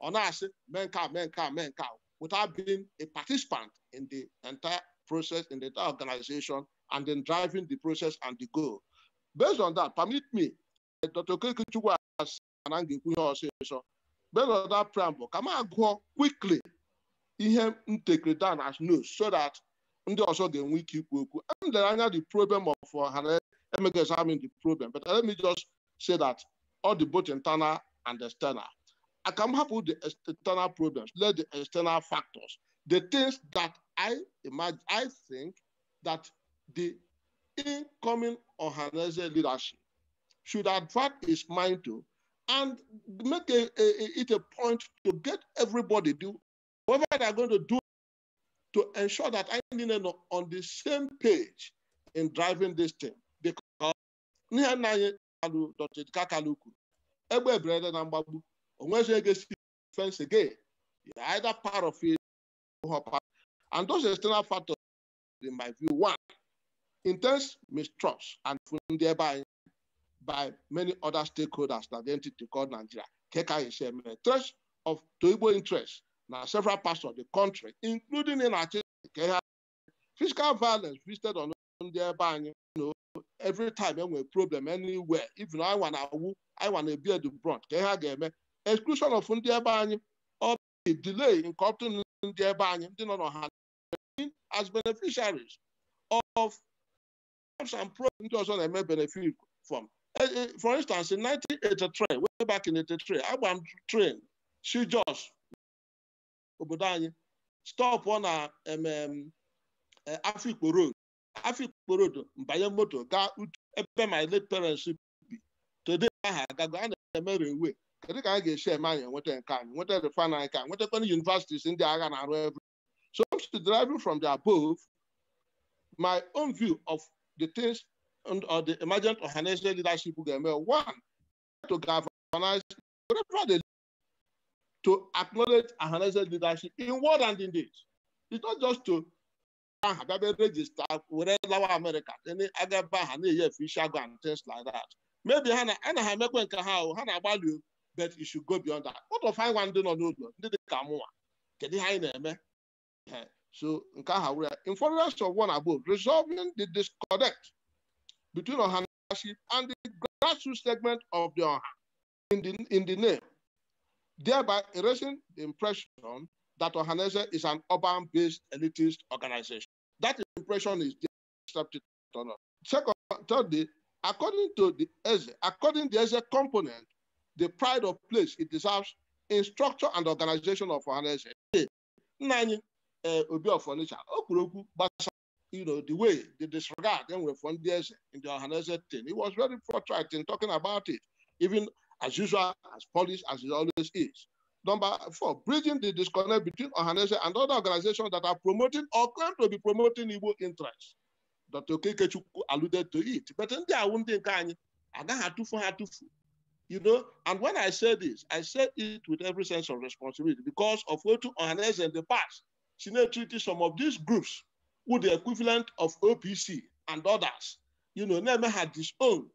ọ na-asị mee nke a mee nke a mee nke a without being a participant in the entire process, in the entire organization, and then driving the process and the goal. Based on that, permit me, Dr. Kekichukwu has so based on that preamble, can I go quickly in take the down as news so that ndị ọzọ ga-enwe ike ikwu okwu elere anya the problem of uh, ha emeghị examine the problem but let me just say that all the both internal and external I come up with the external problems, let the external factors, the things that I imagine, I think that the incoming Ohanese leadership should attract its mind to and make a, a, it a point to get everybody do whatever they're going to do to ensure that I am on the same page in driving this thing. Because once you get defense again, you're either part of it or part. And those external factors, in my view, one, intense mistrust and thereby by many other stakeholders that the entity called Nigeria. Keka is a threat of Toibo interests. Now, several parts of the country, including in Nigeria, physical violence visited on thereby, you know, every time we problem anywhere, even I want to, I want to bear the brunt. Keka game, exclusion of ndị ebe anyị ọ bụ delay nke ọtụtụ ndị ebe anyị ndị nọ n'ọha as beneficiaries of jobs and pro ndị ọzọ na-eme benefit from e, e, for instance in 1983 way back in 83 agba m train si Jos obodo anyị stop na e, Afikpo road Afikpo road mbanye moto gaa ebe my late parents bi today aha agago a na-eme railway kedu ka anyị ga-esi eme anyị enweta nke anyị nweta refan anyị ka nwetakwana universities ndị agha na-arụ ebe so to deriving from the above my own view of the things and the emergent organizational leadership ga-eme one to galvanize whatever they to acknowledge organizational leadership in word and in deed it's not just to aha dabere regista were lawa America ndị agaba ha na-eyi efe and things like that maybe ha na ha emekwe nke ha ha na-agbalị but it should go beyond that what of anyị nwa ndị nọ n'ụlọ ndị dị ka mụnwa kedu ihe anyị na-eme so nke aha wụrụ ya in furtherance of one above resolving the disconnect between ọhanaship and the grassroots segment of the ọha in the, in the name thereby erasing the impression that Ohanese is an urban-based elitist organization. That impression is accepted Second, thirdly, according to the ESE, according to the ESE component the pride of place it deserves in structure and organization of finance. Eh, Nna Obi of Onitsha o kwuru you know, the way the disregard enwere with ndị in the Ohanaeze thing. He was very forthright in talking about it, even as usual, as polished as it always is. Number four, bridging the disconnect between Ohanese and other organizations that are promoting or claim to be promoting evil interests. Dr. Okekechukwu alluded to it. But ndị ahụ ndị I anyị agaghị for ha atụfu you know, and when I say this, I say it with every sense of responsibility because of what to harness in the past. She now treated some of these groups with the equivalent of OPC and others, you know, never had this own,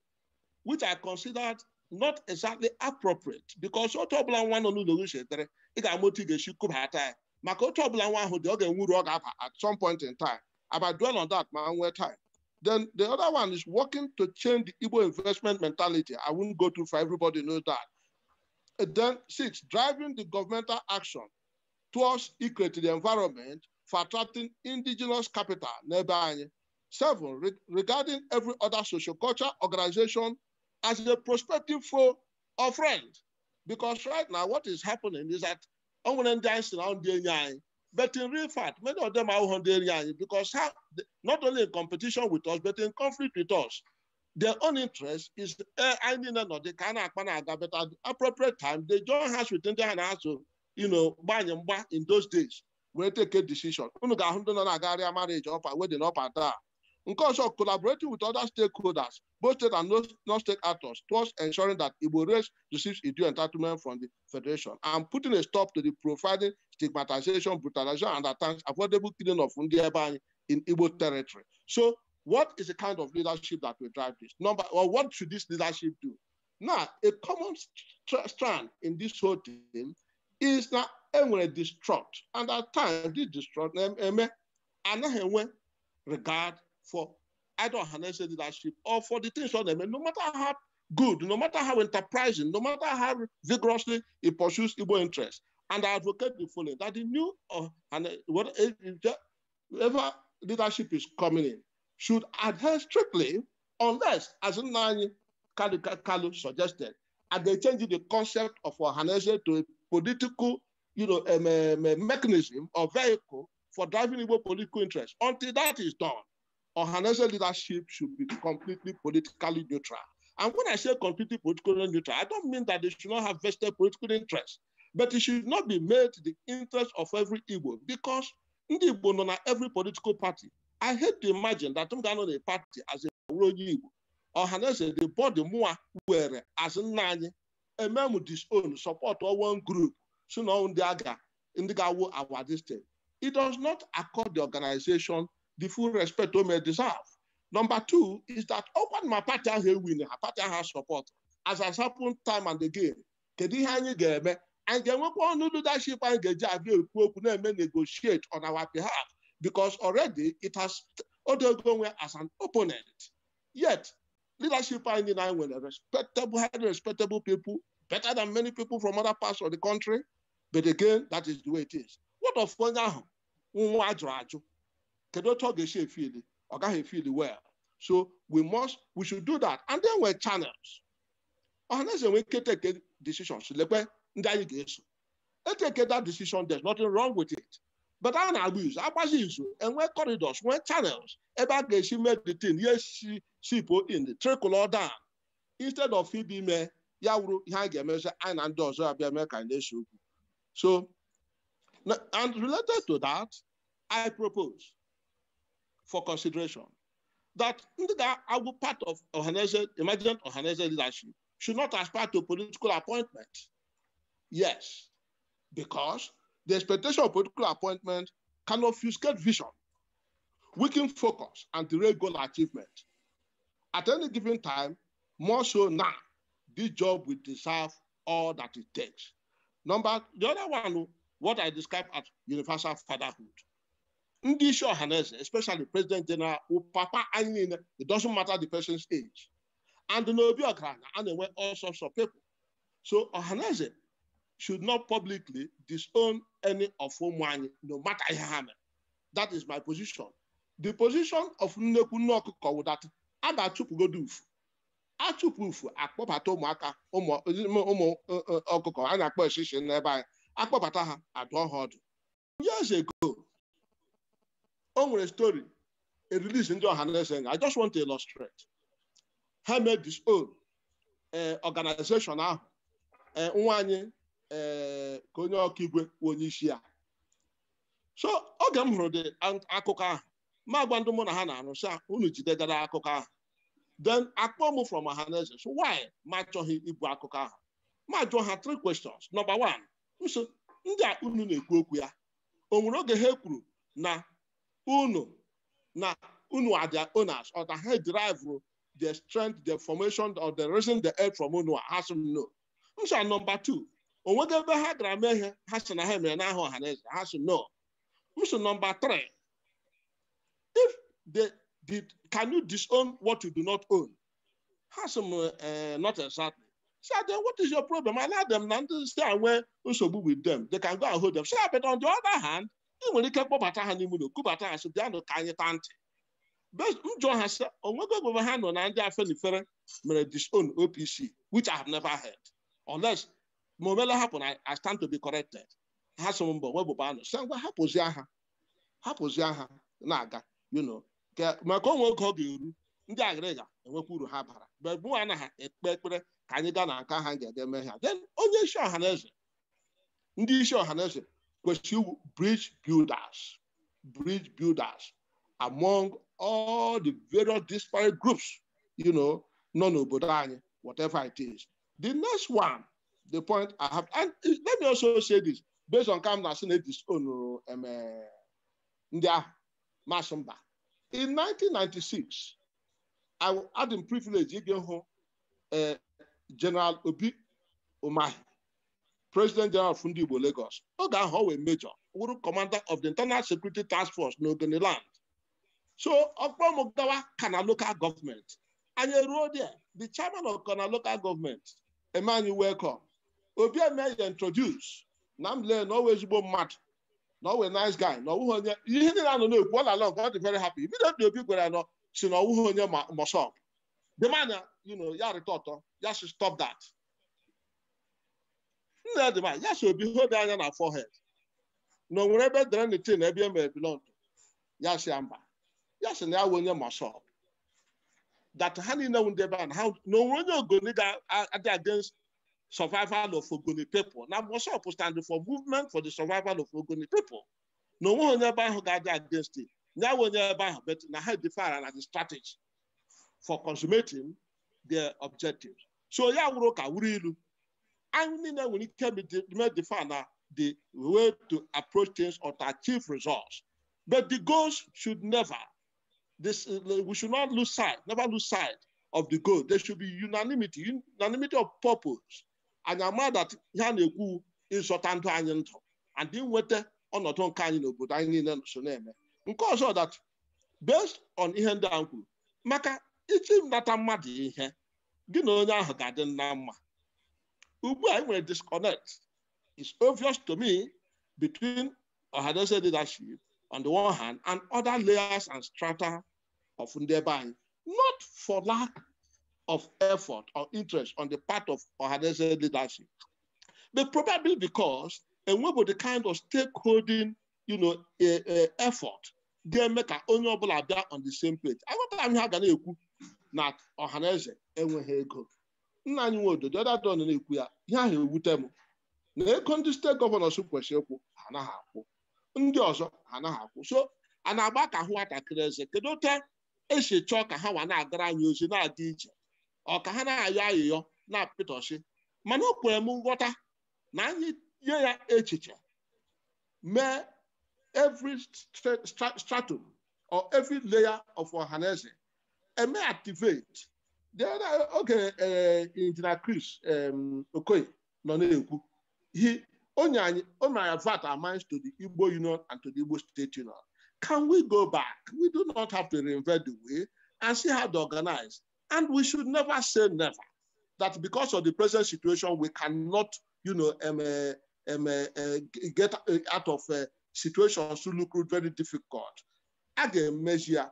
which I considered not exactly appropriate because what ọbụla nwa nọ n'ụlọ gị chetere ị ga-ama otu ị ga-esi kubata ya maka otu ọbụla nwa ahụ dị ọ ga-enwuru at some point in time about dwell on that ma nwee time then the other one is working to change the Igbo investment mentality. I would not go too far, everybody knows that. And then six, driving the governmental action towards equating the environment for attracting indigenous capital nearby. Seven, re regarding every other social culture organization as a prospective foe or friend. Because right now what is happening is that on one end, but in real fact, many of them are Hungarian because how, not only in competition with us, but in conflict with us. Their own interest is eh, I uh, not they can but at appropriate time, they join hands with India and also, you know, and in those days, we take a decision. Marriage up, wedding up Nke ọzọ, collaborating with other stakeholders, both state and non-state actors, towards ensuring that Igbo race receives due entitlement from the Federation and putting a stop to the providing stigmatization, brutalization, and attacks, affordable killing of Ndiebany in Igbo territory. So what is the kind of leadership that will drive this? Number, or what should this leadership do? Now, a common strand in this whole thing is that everyone distraught, and at times this distraught, anaghị enwe regard for either harnessed leadership or for the things on them. And no matter how good, no matter how enterprising, no matter how vigorously it pursues Igbo interests. And I advocate the following that the new uh, and uh, whatever eh, eh, leadership is coming in should adhere strictly, unless, as Nani Kalu, Kalu suggested, and they change the concept of Ohanese to a political you know, um, um, mechanism or vehicle for driving Igbo political interests. Until that is done, or financial leadership should be completely politically neutral. And when I say completely politically neutral, I don't mean that they should not have vested political interests, but it should not be made the interest of every Igbo because ndị Igbo nọ every political party. I hate to imagine that m ga-anọ party as a onye Igbo ọhaneze the body more were as a man, with m disown support one group so the ndị a the ndi will ga-awụ this thing. It does not accord the organization the full respect Ome deserve. Number two is that open my party has a winner, party has support, as has happened time and again. Kedu ihe anyi and ga-eme? Anyị ga-enwekwa ọnụ leadership anyị ga-eji abịa negotiate on our behalf because already it has undergone as an opponent. Yet, leadership anyị the right, respectable, highly respectable people, better than many people from other parts of the country. But again, that is the way it is. What of now? kedu otu ọ ga-esi efili ọ gaghị efili well so we must we should do that and then we're channels ọhaneze nwere ike teke decision, lekwe ndị anyị ga-eso eteke that decision there's nothing wrong with it but a na-agba izu agbazi izu enwe corridors nwee channels ebe a ga-esi mee the thing ya si sipo in the or down instead of ibi me, ya wuru ihe anyị ga-emezi anyị na ndị ọzọ abịa mee ka na okwu so and related to that I propose for consideration that that our part of Ohanese, emergent Ohanese leadership should not aspire to political appointment. Yes, because the expectation of political appointment can obfuscate vision, weaken focus, and derail goal achievement. At any given time, more so now, this job will deserve all that it takes. Number, the other one, what I described as universal fatherhood ndị isi especially president general papa anyị it doesn't matter the person's age and the ọgaranya and na-enwe all sorts of people so ọhaneze should not publicly disown any of ụmụ anyị no matter ihe that is my position the position of nnekwu nne ọkụkọ wụdat a ga-achụpụgodo ufu achụpụ ufu akpọbata ụmụaka ụmụ ọkụkọ a na-akpọ eshishi n'ebe anyị akpọbata ha years ago o nwere story a release ndị ọha na eze I just want to illustrate ha made this own eh, organization ahụ eh, nwa anyị eh, ka onye ọka onye isi ya so oge m hụrụ dị akụkọ ahụ ma gwa ndị mụ na ha na-arụ sị unu jidegara akụkọ ahụ then akpọ m from ọhaneze so why ma achọghị ibu akụkọ ahụ ma jụọ ha three questions number one nso ndị a unu na-ekwu okwu ya o nwere oge ha kwuru na unu na unu are their owners or the head driver, the strength the formation or the reason the help from unu has sị know. no m number two or ebe ha gara mee ihe ha sị na ha mere n'aha ọha ha sị no m number three if the did can you disown what you do not own ha sị m not exactly So ah, then what is your problem? I let them not to we should be with them. They can go and hold them. So, ah, but on the other hand, enwere ike kpọbata ha n'ime ụlọ kubata ha si bịanụ ka anyị taa ntị njọ ha sị onwego ogbebe ha nọ na ndị afenifere mere disown OPC which I have never heard unless ma omele hapụ na I stand to be corrected ha so mbọ webụba anụ sị ngwa hapụzi ha hapụzi ha na-aga you maka onwe oge ọ ga-eru ndị agịrịga enwekwa uru ha bara bebu anaghị ekpe ekpere ka anyị gaa na nka ha ga-ede ha onye isi ọha na eze ndị isi ọha na eze you bridge builders, bridge builders among all the various disparate groups, you know, non-Obodani, whatever it is. The next one, the point I have, and let me also say this, based on Kamna Senate's own um, uh, In 1996, I had the privilege to go uh, General Obi Omahi, President General Fundi Igbo Lagos oge ahụ major wụrụ commander of the internal security task force n'Ogoniland so ọkpọrọ m gawa kana local government and anyị ruo there the chairman of kana local government Emmanuel, welcome obi eme introduce na m lee na ọwa ezigbo mmadụ na nice guy na ọwụghị onye ihe niile anọ na-ekwu ọ lala nke ọ dị very happy immediately people, I know. So now ọwụghị onye mọsọp The manya you know y'all ya rịta ọtọ ya should stop that nnedịma ya so obihobi anya na forehead na onwere ebe dere nitin ebe e mere bilọndụ ya si ya mba ya sị na ya wee onye mashọp that ha niile nwu ndị ebe a na onwere onye ogoni ga-adị against survival of ogoni people na mashọp stand for movement for the survival of ogoni people na onweghị onye ebe ahụ ga-adị against it ya wee onye ebe ahụ bet na ha defara na the strategy for consummating their objectives so ya wụrụ ka wuru ilu that we can be defined na the way to approach things or to achieve results. But the goals should never, this, we should not lose sight, never lose sight of the goal. There should be unanimity, unanimity of purpose. And I'm mad that ya na-ekwu ịzọta ndụ anyị ndụ and inweta ọnọdụ nke anyị n'obodo anyị niile so na because of that based on ihe ndị maka kwuru maka that I'm mad gị na onye ahụ ga-adị na mma ugbu a disconnect It's obvious to me between Ohanaeze leadership on the one hand and other layers and strata of Ndebai, not for lack of effort or interest on the part of Ohanaeze leadership, but probably because and about the kind of stakeholding you know, a, a effort They make an honourable ọbụla on the same page. Aghọtara m ihe a ga na not na Ohanaeze enweghị ego nna anyị nwe ododo dadon na-ekwu ya ihe ahụ ewute m na ego ndị steeti gọvanọs kwesịrị ịkwụ ha anaghị akwụ ndị ọzọ ha anaghị akwụ so a na-agba ka ahụ nwatakịrị eze kedu ote esi chọọ ka ha nwa na-agara anyị ozi na-adị iche ọ ka ha na-ayọ ayịyọ na-apịtọsị mana o kwere m nghọta na anyị nye ya echiche mee every stratum or every layer of ọhaneze eme activate Okay, oge eh, injinia Chris okay no he only only, anyị o mere to the Igbo Union and to the Igbo State Union can we go back we do not have to reinvent the wheel and see how to organize and we should never say never that because of the present situation we cannot you know um, um, uh, get out of uh, situations to look very difficult Again, measure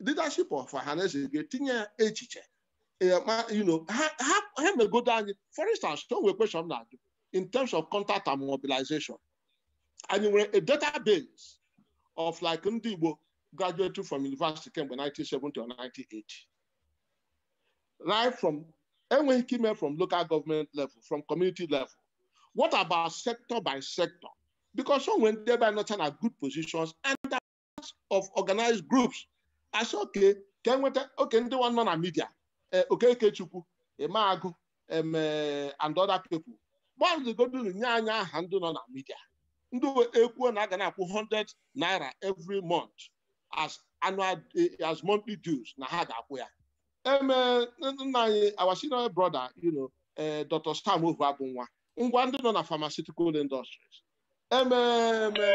leadership of Ohanaeze is getting a echiche Eh, you know, have ha, ha may go down. For instance, don't we question that in terms of contact and mobilization. And we were a database of like Ndibo graduating from university came in 1970 or 1980. Right from, and when he came from local government level, from community level, what about sector by sector? Because some went there by not in a good positions and of organized groups. I said, okay, can we okay, they want non media. Eh, okekechukwu eme eh, and other people godigoduru nye anya aha ndị nọ na midia ndị ekwuo na aga na-akwụ 100 naira every month as eh, as monthly dues na ha ga-akwụ ya emee nna anyị our senior brother you know Dr. abụ nwa ngwa ndị nọ na pharmaceutical industries emeeme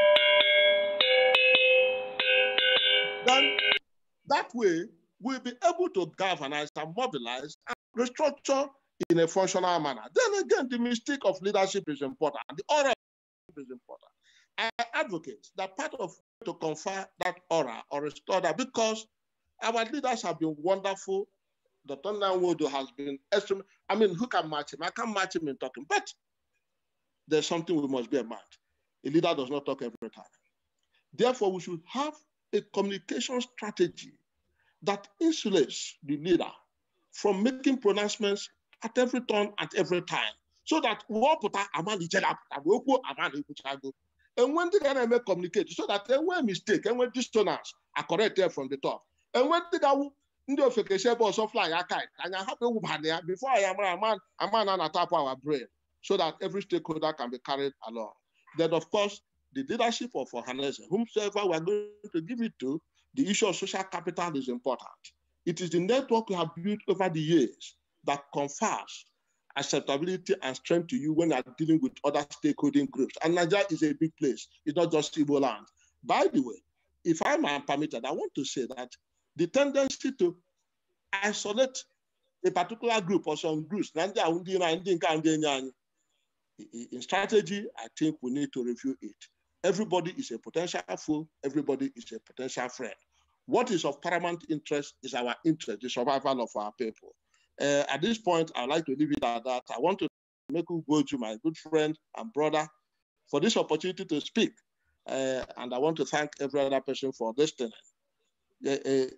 that way will be able to galvanize and mobilize and restructure in a functional manner. Then again, the mystique of leadership is important. The aura is important. I advocate that part of to confer that aura or restore that because our leaders have been wonderful. Dr. Nwodo has been extremely, I mean, who can match him? I can't match him in talking, but there's something we must bear in mind. A leader does not talk every time. Therefore, we should have a communication strategy that insulates the ah, leader from making pronouncements at every turn, at every time, so that wapụta amalitere apụta wee kwuo amalikwuchago enwe ndị ga na communicate so that were mistake enwee dissonance corrected from the top And when they ga-awụ ndị ofekesi ebe ọsọ flag And I have ewubana ya before I am ama ama na na-atapụ our brain so that every stakeholder can be carried along. Then of course the leadership of Ohaneze, whomsoever we are going to give it to, the issue of social capital is important. It is the network you have built over the years that confers acceptability and strength to you when you are dealing with other stakeholding groups. And Nigeria is a big place. It's not just Igbo land. By the way, if I'm permitted, I want to say that the tendency to isolate a particular group or some groups, in strategy, I think we need to review it. Everybody is a potential foe, everybody is a potential friend. What is of paramount interest is our interest, the survival of our people. Uh, at this point, I'd like to leave it at that. I want to make you go to my good friend and brother for this opportunity to speak. Uh, and I want to thank every other person for listening. Thank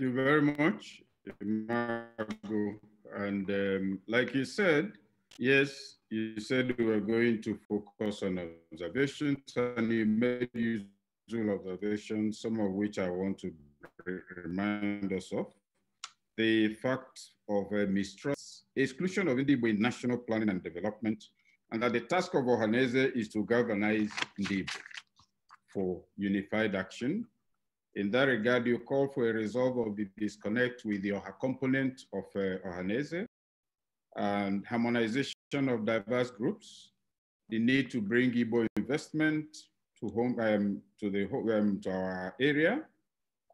you very much, Margo. And um, like you said, Yes, you said we were going to focus on observations, and you made usual observations, some of which I want to remind us of. The fact of uh, mistrust, exclusion of Indibo in national planning and development, and that the task of Ohaneze is to galvanize Ndibo for unified action. In that regard, you call for a resolve of the disconnect with the component of uh, Ohaneze, and harmonization of diverse groups, the need to bring Igbo investment to home um, to the um, to our area,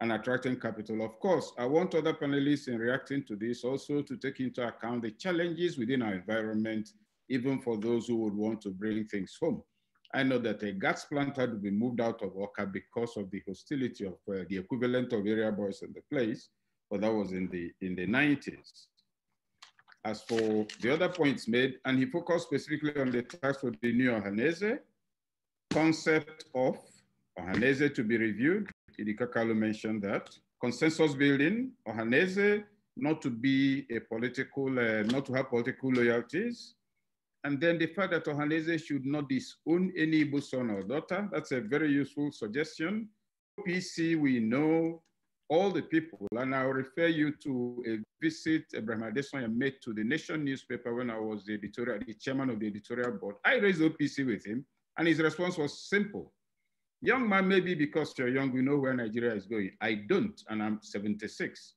and attracting capital. Of course, I want other panelists in reacting to this also to take into account the challenges within our environment, even for those who would want to bring things home. I know that a gas plant had to be moved out of Oka because of the hostility of uh, the equivalent of area boys in the place, but that was in the in the 90s as for the other points made, and he focused specifically on the task for the new Ohanese, concept of Ohanese to be reviewed. Idikakalu mentioned that. Consensus building, Ohanese not to be a political, uh, not to have political loyalties. And then the fact that Ohanese should not disown any Igbo son or daughter, that's a very useful suggestion. PC, we know all the people. And I'll refer you to a visit Abraham Adesanya made to the Nation newspaper when I was the editorial, the chairman of the editorial board. I raised OPC with him, and his response was simple. Young man, maybe because you're young, you know where Nigeria is going. I don't, and I'm 76.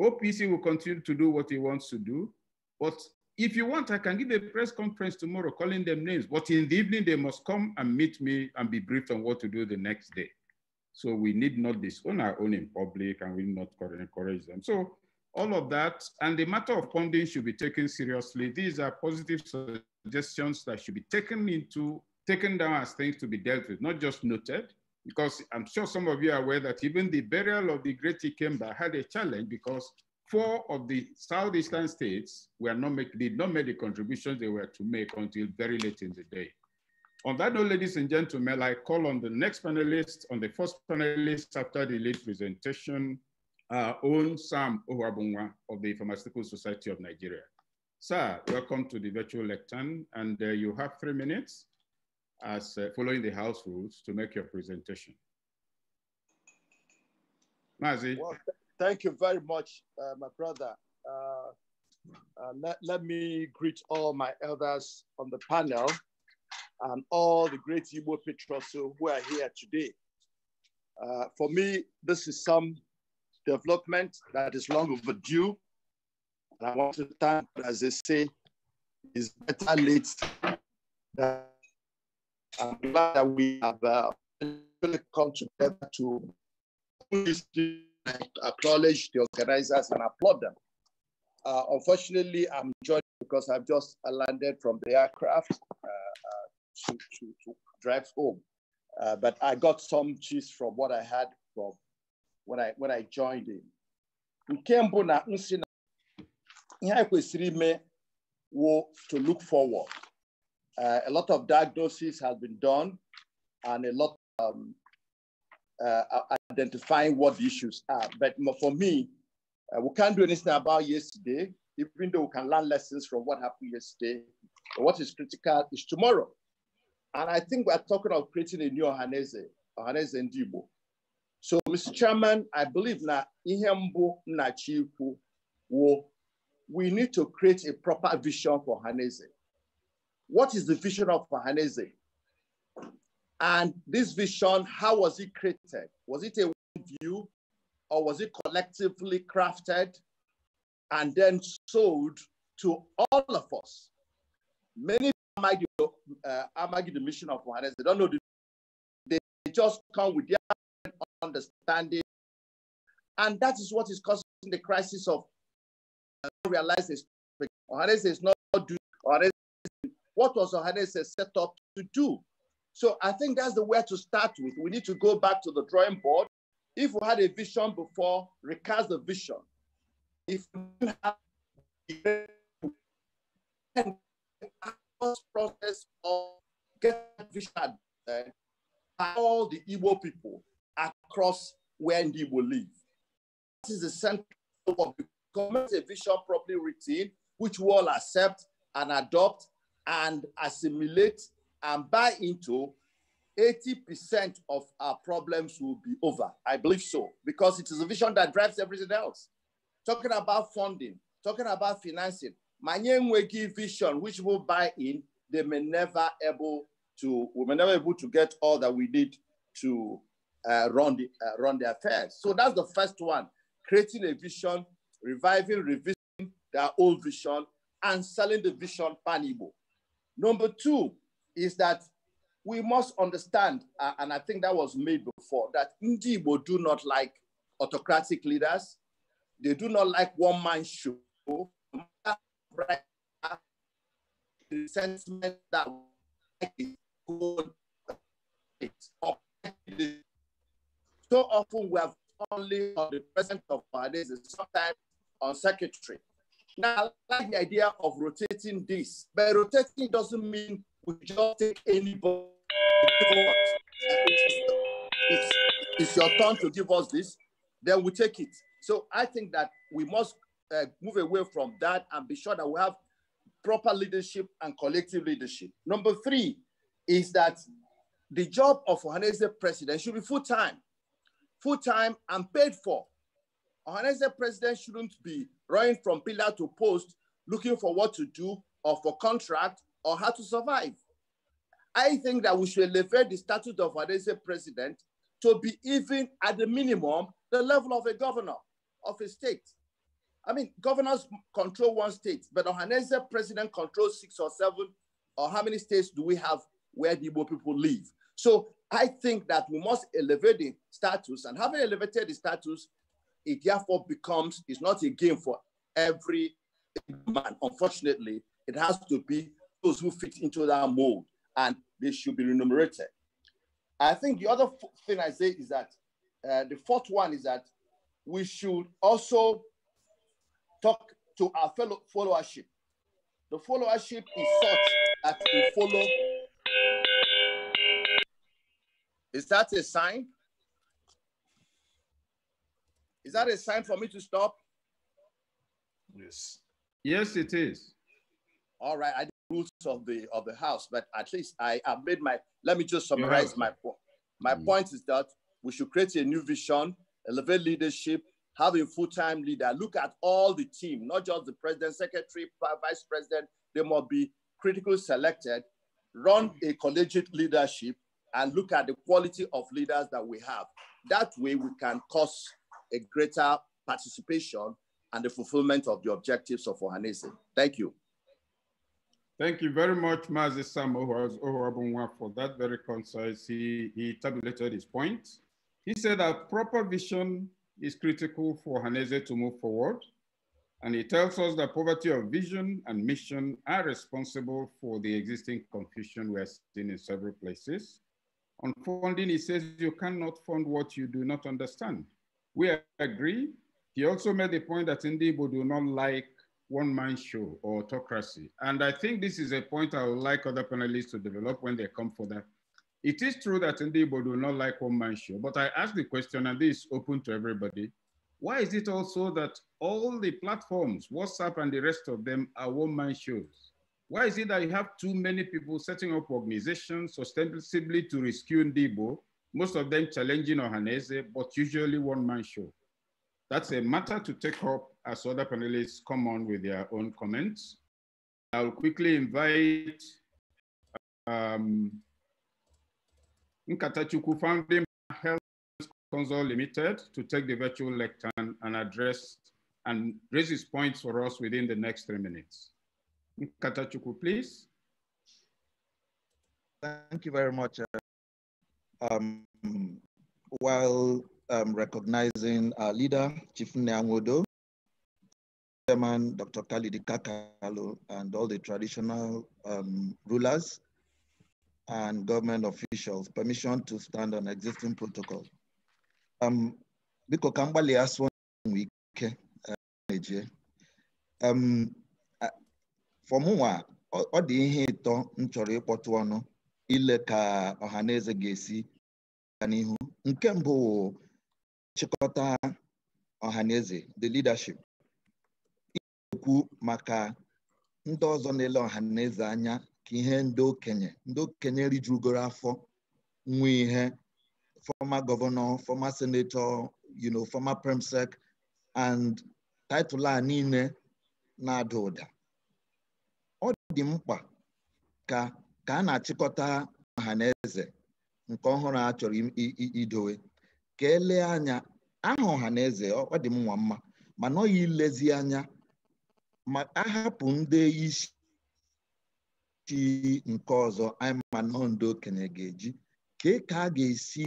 OPC will continue to do what he wants to do, but if you want, I can give a press conference tomorrow calling them names, but in the evening, they must come and meet me and be briefed on what to do the next day. So we need not disown our own in public and we need not encourage them. So all of that, and the matter of funding should be taken seriously. These are positive suggestions that should be taken into, taken down as things to be dealt with, not just noted, because I'm sure some of you are aware that even the burial of the great Ikemba had a challenge because four of the southeastern states were not make, did not make the contributions they were to make until very late in the day. On that note, ladies and gentlemen, I call on the next panelist, on the first panelist after the late presentation, our own Sam Owabunwa of the Pharmaceutical Society of Nigeria. Sir, welcome to the virtual lectern, and uh, you have three minutes as uh, following the house rules to make your presentation. Mazi. Well, th thank you very much, uh, my brother. Uh, uh, let me greet all my elders on the panel and all the great Igbo patriots who are here today. Uh, for me, this is some development that is long overdue. And I want to thank, as they say, is better late than I'm glad that we have uh, come together to acknowledge the organizers and applaud them. Uh, unfortunately, I'm joined because I've just landed from the aircraft. Uh, uh to, to, to drive home. Uh, but I got some cheese from what I had from when I, when I joined in. Nke mbụ to look forward. Uh, a lot of diagnosis has been done and a lot um, uh, identifying what the issues are. But for me, uh, we can't do anything about yesterday, even though we can learn lessons from what happened yesterday. But what is critical is tomorrow. And I think we're talking of creating a new Ohaneze, Ohaneze Ndibo. So, Mr. Chairman, I believe na Ihembo Nachiku we need to create a proper vision for Hanese. What is the vision of Hanese? And this vision, how was it created? Was it a one view or was it collectively crafted and then sold to all of us? Many argue, uh, argue the mission of Muhammad. They don't know the, they just come with their understanding. And that is what is causing the crisis of uh, realize this. Ohanes is not doing what was Ohanes set up to do? So I think that's the way to start with. We need to go back to the drawing board. If we had a vision before, recast the vision. If have process of vision eh, by all the Igbo people across where the Igbo live. That is the central of becoming a vision properly written, which we all accept and adopt and assimilate and buy into, 80% of our problems will be over. I believe so, because it is a vision that drives everything else. Talking about funding, talking about financing, manye enweghị vision which will buy in, they may never able to, we may never able to get all that we need to uh, run, the, uh, run the affairs. So that's the first one, creating a vision, reviving, revisiting their old vision, and selling the vision panibo. Number two is that we must understand, uh, and I think that was made before, that Ndibo do not like autocratic leaders. They do not like one-man show right resentment that is good. So often we have only on the present of our days, sometimes on secretary. Now, I like the idea of rotating this, but rotating doesn't mean we just take anybody. It's, it's your turn to give us this, then we take it. So I think that we must uh, move away from that and be sure that we have proper leadership and collective leadership. Number three is that the job of Ohanese president should be full time, full time and paid for. Ohanese president shouldn't be running from pillar to post looking for what to do or for contract or how to survive. I think that we should elevate the status of Ohanese president to be even at the minimum the level of a governor of a state. I mean, governors control one state, but Ohaneze president controls six or seven, or how many states do we have where the Igbo people live? So I think that we must elevate the status, and having elevated the status, it therefore becomes, it's not a game for every man. Unfortunately, it has to be those who fit into that mold, and they should be remunerated. I think the other thing I say is that uh, the fourth one is that we should also talk to our fellow followership. The followership is such that we follow. Is that a sign? Is that a sign for me to stop? Yes. Yes, it is. All right. I rules of the of the house, but at least I have made my. Let me just summarize my point. My mm point is that we should create a new vision, elevate leadership, have a full-time leader. Look at all the team, not just the president, secretary, vice president. They must be critically selected, run a collegiate leadership, and look at the quality of leaders that we have. That way we can cause a greater participation and the fulfillment of the objectives of Ohanese. Thank you. Thank you very much, Mazi Sam Ohorabunwa, for that very concise. He, he tabulated his point. He said a proper vision is critical for Haneze to move forward. And it tells us that poverty of vision and mission are responsible for the existing confusion we are seeing in several places. On funding, he says you cannot fund what you do not understand. We agree. He also made the point that Ndibo do not like one-man show or autocracy. And I think this is a point I would like other panelists to develop when they come for that it is true that Ndibo do not like one man show, but I ask the question, and this is open to everybody. Why is it also that all the platforms, WhatsApp and the rest of them, are one man shows? Why is it that you have too many people setting up organizations ostensibly to rescue Ndibo, most of them challenging Ohanese, but usually one man show? That's a matter to take up as other panelists come on with their own comments. I'll quickly invite um, Nkatachukwu founding Health Council Limited to take the virtual lectern and address and raise his points for us within the next three minutes. Nkatachuku, please. Thank you very much. Uh, um, while um, recognizing our leader, Chief Neangodo, Chairman Dr. Kalidi Kakalo, and all the traditional um, rulers and government officials permission to stand on existing protocol. Um, biko ka m gbalịa sụọ ike na-eje um, um, fọmụnwa ọ dị ihe ịtọ m chọrọ ịkpọtụ ọnụ ile ka ọhaneze ga-esi gaa n'ihu nke mbụ nchịkọta ọhaneze the leadership ikwu maka ndị ọzọ na-ele anya ka ihe ndị okenye ndị okenye rijurugoro afọ nwe ihe former gọvanọ former senator you know former premsec and title a niile na-ada ụda ọ dị mkpa ka ka a na-achịkọta ọha na eze nke ọhụrụ a chọrọ idowe ka elee anya aha ọha na eze ọ dị m nwa mma mana ọ yi anya ma ahapụ ndị isi chi nke ọzọ I'm okenye ga-eji ka a ga-esi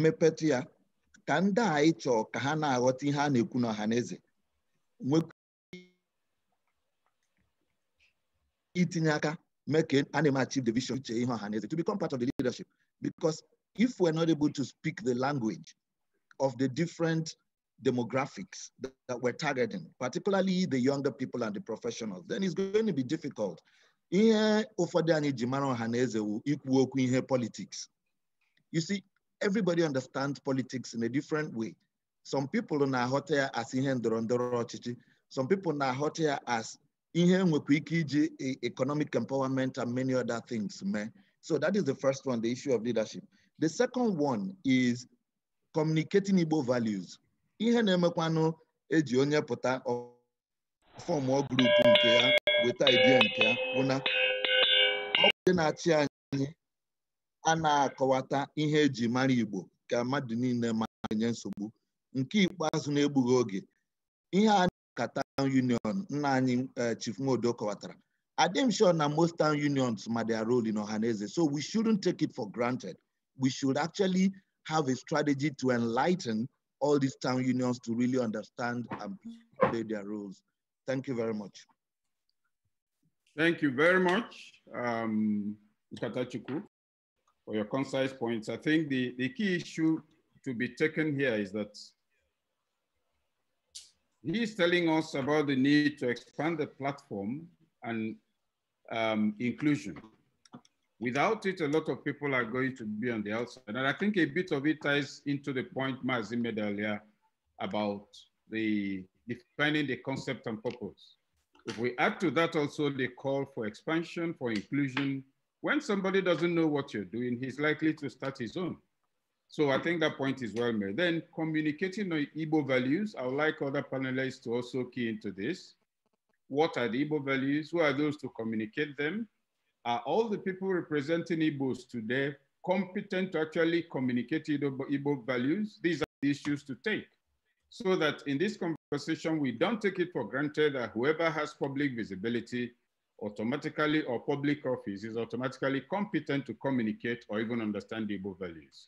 mepetụ ya ka ndị anyị chọọ ka ha na-aghọta ihe a na-ekwu n'ọha na eze itinye aka mee ka a na uche ihe ọha to become part of the leadership because if we're not able to speak the language of the different demographics that, we're targeting, particularly the younger people and the professionals, then it's going to be difficult ihe ụfọdụ anyị ji mara ọha na eze wu ikwu okwu ihe politics you see everybody understands politics in a different way some people na-aghọta ya as ihe ndọrọ ndọrọ ọchịchị some people na-aghọta ya as ihe nwekwa ike iji economic empowerment and many other things mee so that is the first one the issue of leadership the second one is communicating Igbo values ihe na-emekwanụ eji onye pụta fọm grup nke ya weta idea nke ya na na-achị anyị a na-akọwata ihe eji mara Igbo ka mmadụ niile nsogbu nke ikpeazụ na-egbughị oge ihe a Union nna anyị eh, Chief Nwodo kọwatara adịm sure na most town unions ma their role in Ohaneze so we shouldn't take it for granted we should actually have a strategy to enlighten all these town unions to really understand and play their roles. Thank you very much. Thank you very much, Mr. Um, for your concise points. I think the, the key issue to be taken here is that he's telling us about the need to expand the platform and um, inclusion. Without it, a lot of people are going to be on the outside. And I think a bit of it ties into the point Mazi made earlier about the defining the concept and purpose. If we add to that also the call for expansion, for inclusion, when somebody doesn't know what you're doing, he's likely to start his own. So I think that point is well made. Then communicating the Igbo values, I would like other panelists to also key into this. What are the Igbo values? Who are those to communicate them? Are all the people representing Igbos today competent to actually communicate Ebo Igbo values? These are the issues to take so that in this conversation, we don't take it for granted that whoever has public visibility automatically or public office is automatically competent to communicate or even understand Igbo values.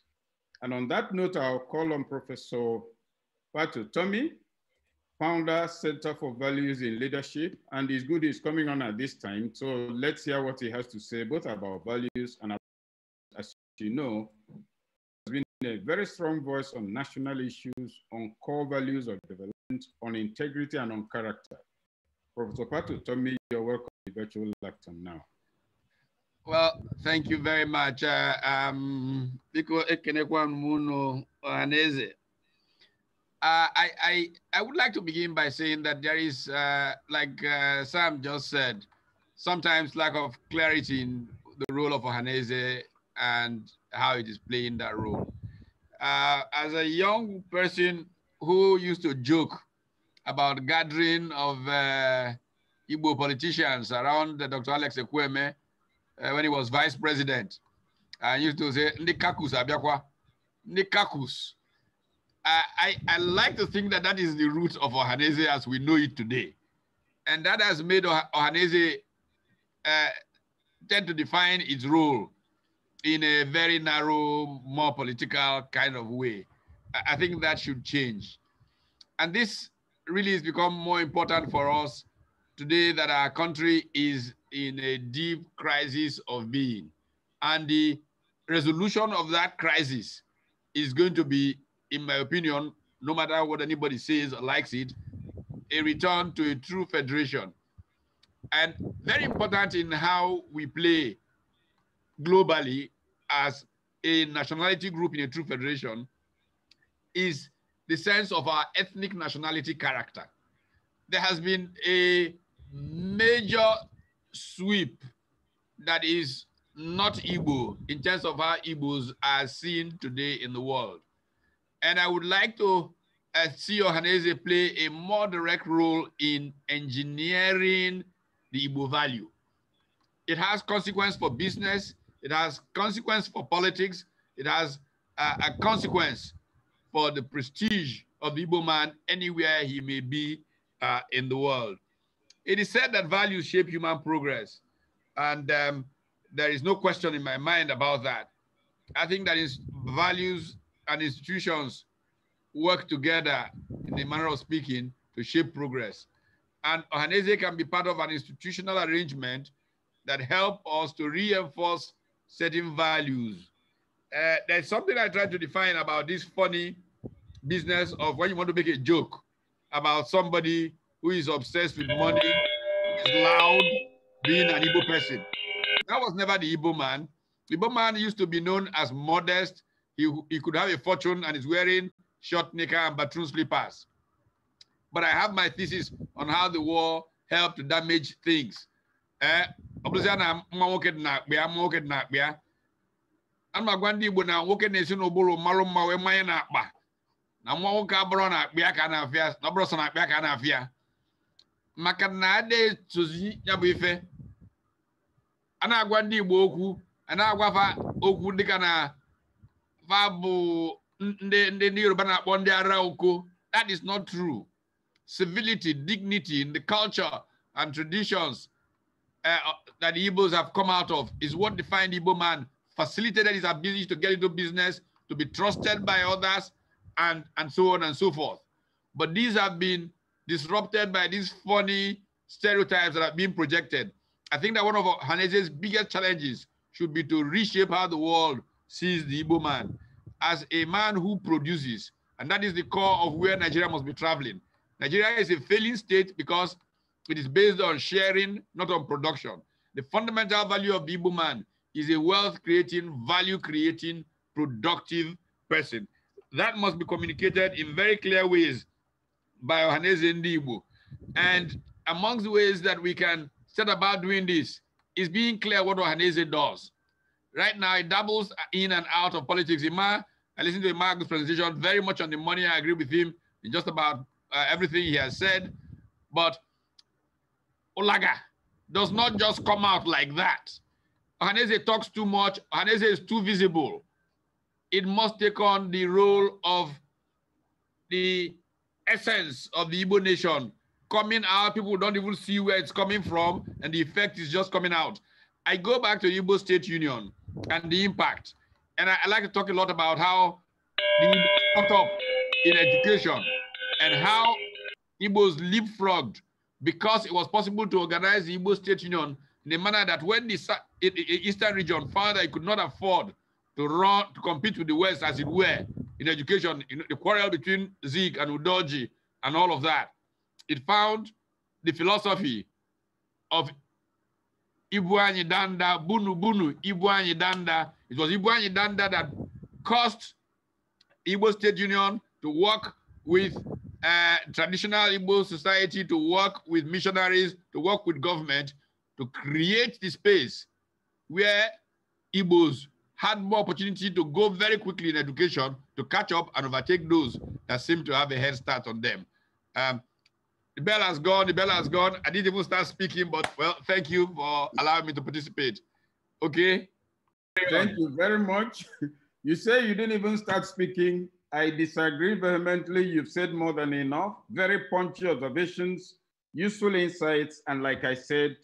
And on that note, I'll call on Professor Patu Tommy, founder, Center for Values in Leadership, and his good is coming on at this time. So let's hear what he has to say, both about values and as you know, been a very strong voice on national issues, on core values of development, on integrity, and on character. Professor Patu tell you're welcome to the virtual lecture now. Well, thank you very much. Uh, um, uh, I, I, I would like to begin by saying that there is, uh, like uh, Sam just said, sometimes lack of clarity in the role of Ohaneze and how it is playing that role. Uh, as a young person who used to joke about gathering of uh, Igbo politicians around uh, Dr. Alex Ekweme uh, when he was vice president, I used to say, Nikakus Abiakwa, Nikakus. I, I, like to think that that is the root of Ohanese as we know it today. And that has made Ohanese uh, tend to define its role in a very narrow, more political kind of way. I think that should change. And this really has become more important for us today that our country is in a deep crisis of being. And the resolution of that crisis is going to be, in my opinion, no matter what anybody says or likes it, a return to a true federation. And very important in how we play globally as a nationality group in a true federation is the sense of our ethnic nationality character. There has been a major sweep that is not Igbo in terms of how Igbos are seen today in the world. And I would like to uh, see Ohaneze play a more direct role in engineering the Igbo value. It has consequence for business, it has consequence for politics. It has a, uh, a consequence for the prestige of the Igbo man anywhere he may be uh, in the world. It is said that values shape human progress. And um, there is no question in my mind about that. I think that is values and institutions work together in the manner of speaking to shape progress. And Ohanese can be part of an institutional arrangement that help us to reinforce certain values. Uh, there's something I try to define about this funny business of when you want to make a joke about somebody who is obsessed with money, is loud, being an Igbo person. That was never the Igbo man. The Igbo man used to be known as modest. He, he could have a fortune and is wearing short knicker and baton slippers. But I have my thesis on how the war helped damage things. Uh, ọ bụrụzia na mma nwoke dị na akpịa mma nwoke dị na akpịa a na-agwa ndị Igbo na nwoke na-esi n'ụbụrụ mmalụ mma wee mmanya na-akpa na nwa nwoke abụrụ na akpịa ka a na-afịa na ọ sọ na akpịa ka a na-afịa maka na adịtozi ya bụ ife a na-agwa ndị Igbo okwu a na-agwa fa okwu dịka na fa bụ ndị ndị Yoruba na-akpọ ndị ara oko that is not true civility dignity the culture and traditions Uh, uh, that the Igbos have come out of is what defined Igbo man, facilitated his ability to get into business, to be trusted by others, and, and so on and so forth. But these have been disrupted by these funny stereotypes that have been projected. I think that one of Hanese's biggest challenges should be to reshape how the world sees the Igbo man as a man who produces. And that is the core of where Nigeria must be traveling. Nigeria is a failing state because it is based on sharing, not on production. The fundamental value of the Igbo man is a wealth-creating, value-creating, productive person. That must be communicated in very clear ways by Ohaneze Ndibu. And amongst the ways that we can set about doing this is being clear what Ohaneze does. Right now, it doubles in and out of politics. Ima, I listened to Ima's presentation very much on the money. I agree with him in just about uh, everything he has said. But Olaga does not just come out like that. Ohaneze talks too much. Ohaneze is too visible. It must take on the role of the essence of the Igbo nation coming out. People don't even see where it's coming from, and the effect is just coming out. I go back to Igbo State Union and the impact. And I, I like to talk a lot about how the caught up in education and how Igbos leapfrogged because it was possible to organize the Igbo State Union in a manner that when the Eastern region found that it could not afford to run to compete with the West, as it were, in education, in the quarrel between Zeke and Udoji and all of that, it found the philosophy of Ibuanyi Danda, Bunu Bunu, Ibuanyi Danda. It was Ibuanyi Danda that caused Igbo State Union to work with uh, traditional Igbo society to work with missionaries, to work with government, to create the space where Igbos had more opportunity to go very quickly in education to catch up and overtake those that seem to have a head start on them. Um, the bell has gone, the bell has gone. I didn't even start speaking, but well, thank you for allowing me to participate. Okay? Thank you very much. You say you didn't even start speaking, I disagree vehemently. You've said more than enough. Very punchy observations, useful insights, and like I said,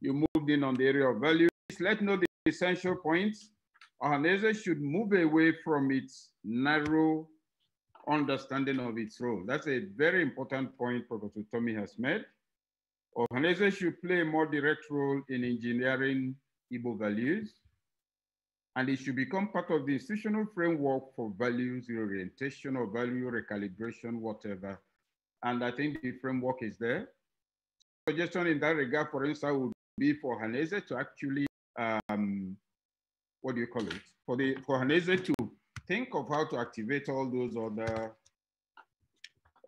you moved in on the area of values. Let know the essential points. Ohanese should move away from its narrow understanding of its role. That's a very important point Professor Tommy has made. Ohanese should play a more direct role in engineering Igbo values and it should become part of the institutional framework for values orientation or value recalibration, whatever. And I think the framework is there. Suggestion in that regard, for instance, would be for Hanese to actually, um, what do you call it? For, the, for Hanese to think of how to activate all those other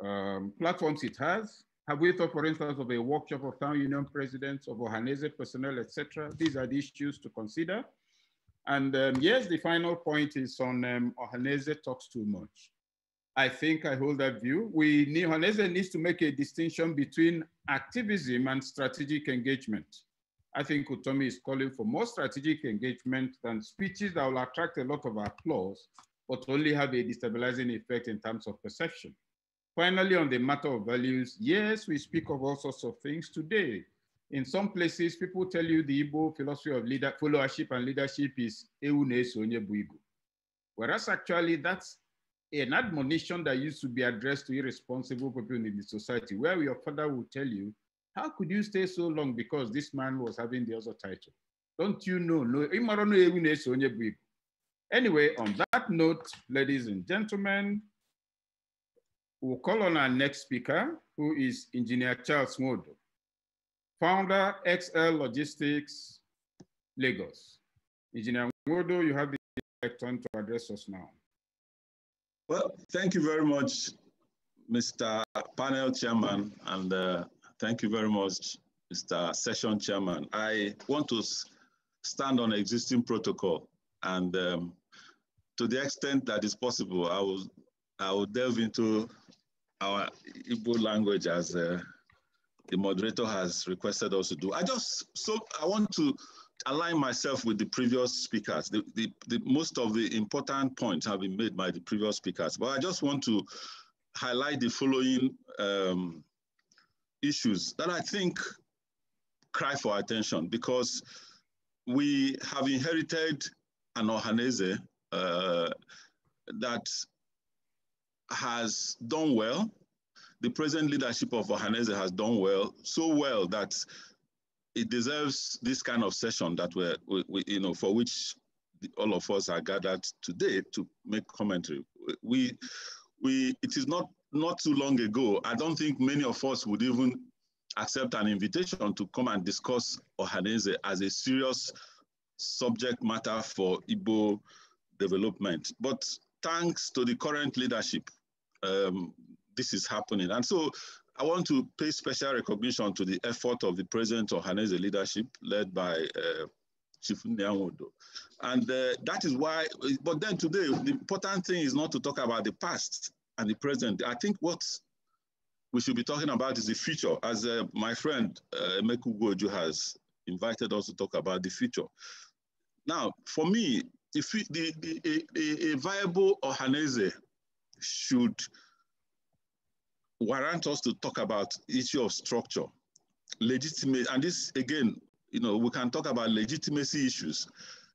um, platforms it has. Have we thought, for instance, of a workshop of town union presidents, of Hanese personnel, etc.? These are the issues to consider. And um, yes, the final point is on um, Ohaneze talks too much. I think I hold that view. We Ohaneze needs to make a distinction between activism and strategic engagement. I think Utomi is calling for more strategic engagement than speeches that will attract a lot of applause, but only have a destabilizing effect in terms of perception. Finally, on the matter of values, yes, we speak of all sorts of things today, in some places, people tell you the Igbo philosophy of leader, followership and leadership is Ewu Whereas actually, that's an admonition that used to be addressed to irresponsible people in the society, where your father will tell you, How could you stay so long because this man was having the other title? Don't you know? No, Anyway, on that note, ladies and gentlemen, we'll call on our next speaker, who is Engineer Charles Modo founder XL Logistics Lagos. Engineer Wodo, you have the turn to address us now. Well, thank you very much, Mr. Panel Chairman, and uh, thank you very much, Mr. Session Chairman. I want to stand on existing protocol, and um, to the extent that is possible, I will I will delve into our Igbo language as uh, the moderator has requested us to do. I just, so I want to align myself with the previous speakers. The, the, the, most of the important points have been made by the previous speakers, but I just want to highlight the following um, issues that I think cry for attention because we have inherited an Ohanese uh, that has done well the present leadership of Ohanese has done well, so well that it deserves this kind of session that we're, we, we, you know, for which the, all of us are gathered today to make commentary. We, we, it is not not too long ago. I don't think many of us would even accept an invitation to come and discuss Ohanese as a serious subject matter for Igbo development. But thanks to the current leadership, um, this is happening. And so I want to pay special recognition to the effort of the President of Hanese leadership led by uh, Chief Nyamodo. And uh, that is why, but then today, the important thing is not to talk about the past and the present. I think what we should be talking about is the future, as uh, my friend uh, Meku Goju has invited us to talk about the future. Now, for me, if the, the, a, a viable Ohanese should warrant us to talk about issue of structure, legitimate, and this again, you know, we can talk about legitimacy issues.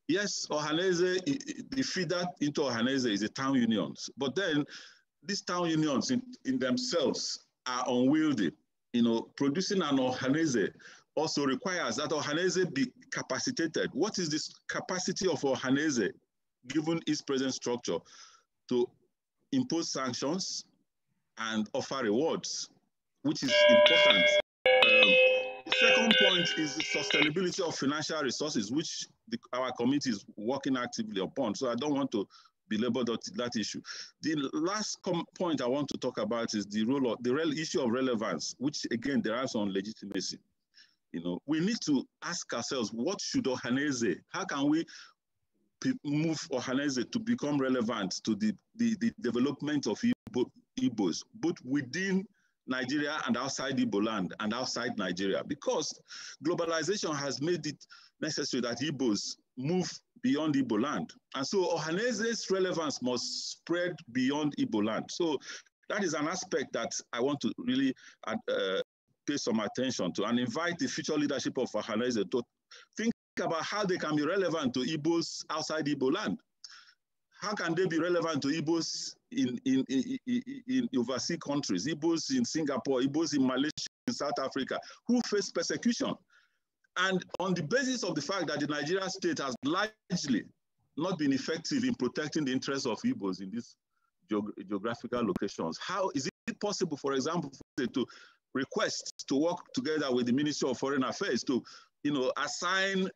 Yes, Ohaneze, the feeder into Ohaneze is the town unions, but then these town unions in, in themselves are unwieldy. You know, producing an Ohaneze also requires that Ohaneze be capacitated. What is this capacity of Ohaneze, given its present structure, to impose sanctions, and offer rewards, which is important. Um, second point is the sustainability of financial resources, which the, our committee is working actively upon. So I don't want to belabor that, that issue. The last point I want to talk about is the role of the real issue of relevance, which again derives on legitimacy. You know, we need to ask ourselves, what should Ohaneze, how can we move Ohaneze to become relevant to the, the, the development of Igbo Igbos, both within Nigeria and outside Igbo land and outside Nigeria, because globalization has made it necessary that Igbos move beyond Igbo land. And so Ohanese's relevance must spread beyond Igbo land. So that is an aspect that I want to really uh, pay some attention to and invite the future leadership of Ohanese to think about how they can be relevant to Igbos outside Igbo land. How can they be relevant to Igbos in, in, in, in overseas countries, Igbos in Singapore, Igbos in Malaysia, in South Africa, who face persecution. And on the basis of the fact that the Nigerian state has largely not been effective in protecting the interests of Igbos in these geog geographical locations, how is it possible, for example, to request to work together with the Ministry of Foreign Affairs to you know, assign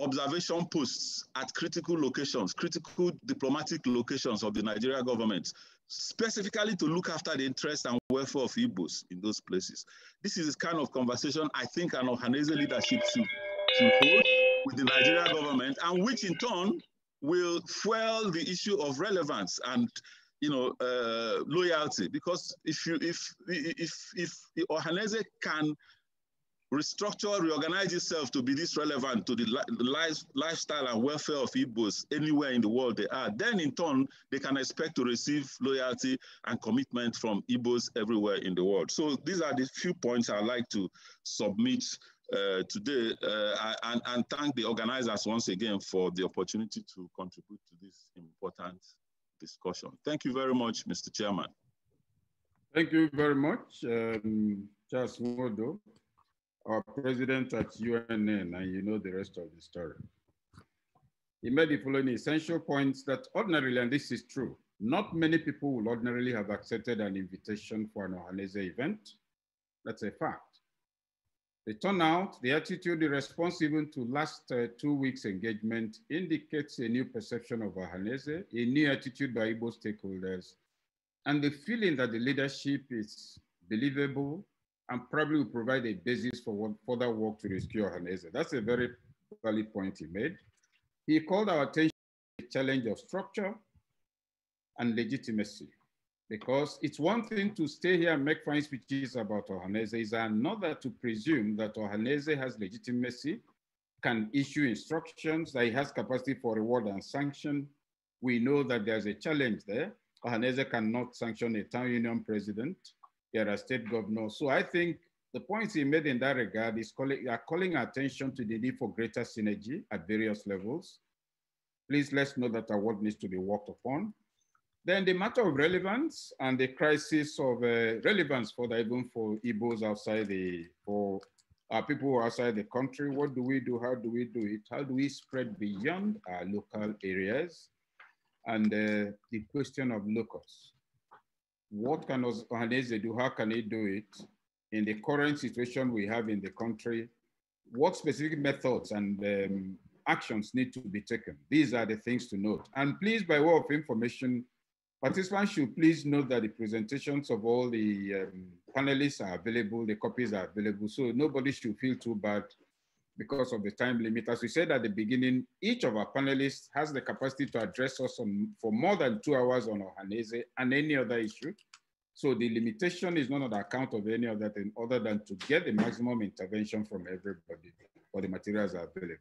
observation posts at critical locations, critical diplomatic locations of the Nigeria government, specifically to look after the interests and welfare of Igbos in those places. This is the kind of conversation I think an Ohanese leadership should, should hold with the Nigeria government, and which in turn will fuel the issue of relevance and you know uh, loyalty. Because if you if if if, if Ohanese can restructure, reorganize itself to be this relevant to the life, lifestyle and welfare of Igbos anywhere in the world they are, then in turn, they can expect to receive loyalty and commitment from Igbos everywhere in the world. So these are the few points I'd like to submit uh, today uh, and, and thank the organizers once again for the opportunity to contribute to this important discussion. Thank you very much, Mr. Chairman. Thank you very much, um, Charles Mordo our president at UNN, and you know the rest of the story. He made the following essential points that ordinarily, and this is true, not many people will ordinarily have accepted an invitation for an Ohanese event. That's a fact. The turnout, the attitude, the response even to last uh, two weeks engagement indicates a new perception of Ohanese, a new attitude by Igbo stakeholders, and the feeling that the leadership is believable, and probably will provide a basis for further work to rescue Ohaneze. That's a very valid point he made. He called our attention to the challenge of structure and legitimacy, because it's one thing to stay here and make fine speeches about Ohaneze, it's another to presume that Ohaneze has legitimacy, can issue instructions, that he has capacity for reward and sanction. We know that there's a challenge there. Ohaneze cannot sanction a town union president you're a state governor. So I think the points he made in that regard is calling, are calling attention to the need for greater synergy at various levels. Please let's know that our work needs to be worked upon. Then the matter of relevance and the crisis of uh, relevance for the even for Igbos outside the, for people outside the country. What do we do? How do we do it? How do we spread beyond our local areas? And uh, the question of locals what can organizations do? How can he do it in the current situation we have in the country? What specific methods and um, actions need to be taken? These are the things to note. And please, by way of information, participants should please note that the presentations of all the um, panelists are available, the copies are available, so nobody should feel too bad because of the time limit. As we said at the beginning, each of our panelists has the capacity to address us on, for more than two hours on Ohanese and any other issue. So the limitation is not on account of any other thing other than to get the maximum intervention from everybody All the materials available.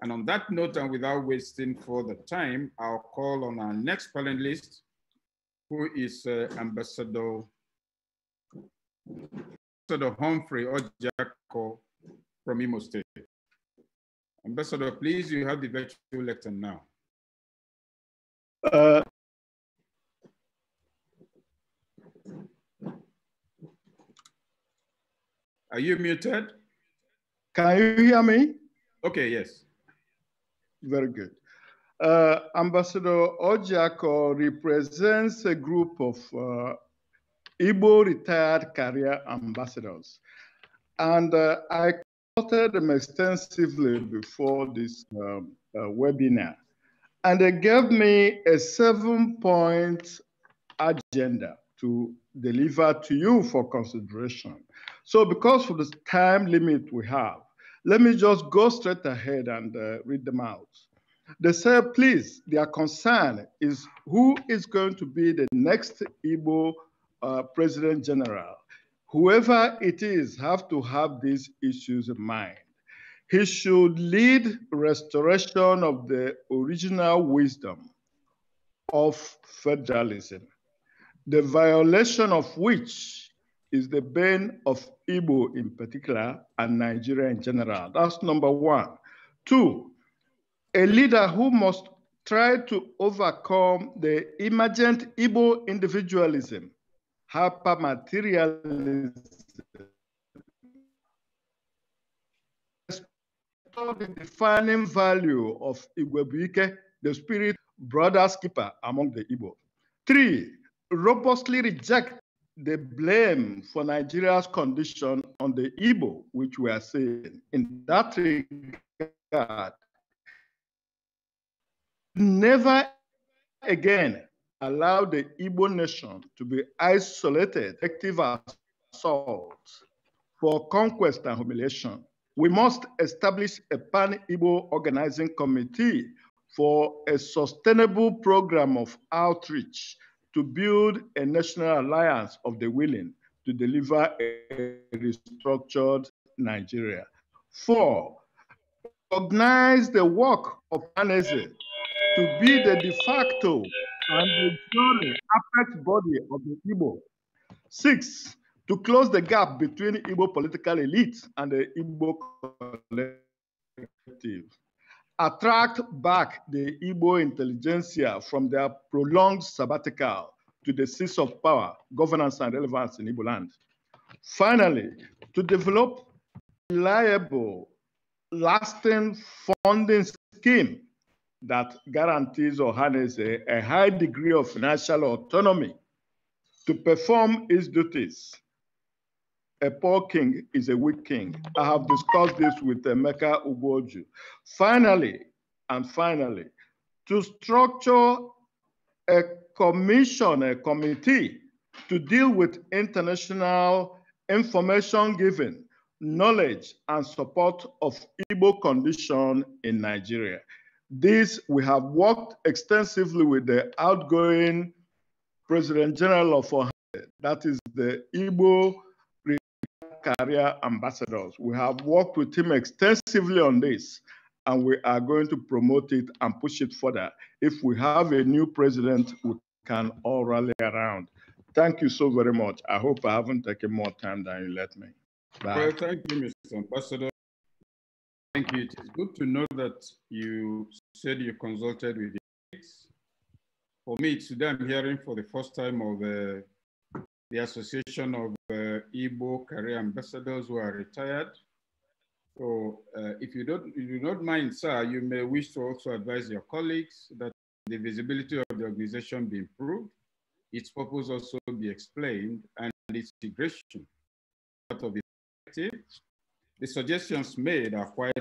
And on that note, and without wasting further time, I'll call on our next panelist, who is uh, Ambassador, Ambassador Humphrey Ojako, from Imo State. Ambassador, please, you have the virtual lecture now. Uh, Are you muted? Can you hear me? Okay, yes. Very good. Uh, Ambassador Ojako represents a group of uh, Igbo retired career ambassadors. And uh, I supported them extensively before this um, uh, webinar. And they gave me a seven point agenda to deliver to you for consideration. So because of the time limit we have, let me just go straight ahead and uh, read them out. They said, please, their concern is who is going to be the next Igbo uh, President General whoever it is have to have these issues in mind. He should lead restoration of the original wisdom of federalism, the violation of which is the bane of Igbo in particular and Nigeria in general. That's number one. Two, a leader who must try to overcome the emergent Igbo individualism hypermaterialism. The defining value of Igwebuike, the spirit brothers keeper among the Igbo. Three, robustly reject the blame for Nigeria's condition on the Igbo, which we are seeing. In that regard, never again Allow the Igbo nation to be isolated, active assault for conquest and humiliation. We must establish a pan-Igbo organizing committee for a sustainable program of outreach to build a national alliance of the willing to deliver a restructured Nigeria. Four, recognize the work of Anese to be the de facto and the enduring apex body of the Igbo. Six, to close the gap between Igbo political elite and the Igbo collective. Attract back the Igbo intelligentsia from their prolonged sabbatical to the seats of power, governance, and relevance in Igbo land. Finally, to develop reliable, lasting funding scheme that guarantees or harnesses a, a high degree of financial autonomy to perform its duties. A poor king is a weak king. I have discussed this with Emeka Ugoju. Finally, and finally, to structure a commission, a committee to deal with international information giving, knowledge, and support of Igbo condition in Nigeria. This, we have worked extensively with the outgoing President General of Ohio, that is the Igbo career ambassadors. We have worked with him extensively on this, and we are going to promote it and push it further. If we have a new president, we can all rally around. Thank you so very much. I hope I haven't taken more time than you let me. Bye. Well, thank you, Mr. Ambassador. Thank you. It is good to know that you said you consulted with the For me, today I'm hearing for the first time of uh, the Association of uh, Igbo Career Ambassadors who are retired. So uh, if you don't, if you don't mind, sir, you may wish to also advise your colleagues that the visibility of the organization be improved, its purpose also be explained, and its integration part of the the suggestions made are quite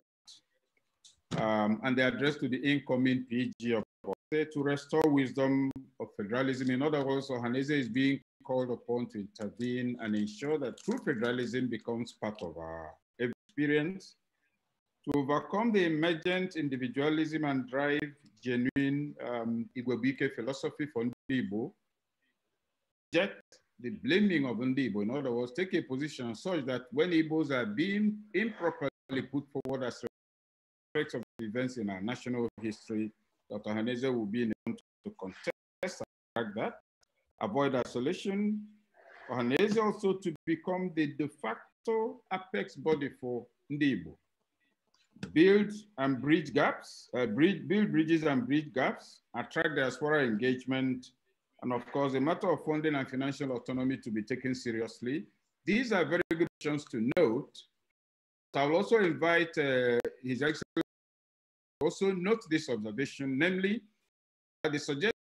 um, and they address addressed to the incoming PG of Ohanaeze eh, to restore wisdom of federalism. In other words, Ohanaeze is being called upon to intervene and ensure that true federalism becomes part of our experience to overcome the emergent individualism and drive genuine um, Igwebike philosophy for Ndibo, reject the blaming of Ndibo. In other words, take a position such that when Igbos are being improperly put forward as of events in our national history, Dr. Haneze will be in to contest like that, avoid isolation, Haneze also to become the de facto apex body for Ndibo. Build and bridge gaps, uh, bridge, build bridges and bridge gaps, attract diaspora engagement, and of course, the matter of funding and financial autonomy to be taken seriously. These are very good questions to note. I'll also invite uh, His Excellency also note this observation, namely, that the suggestions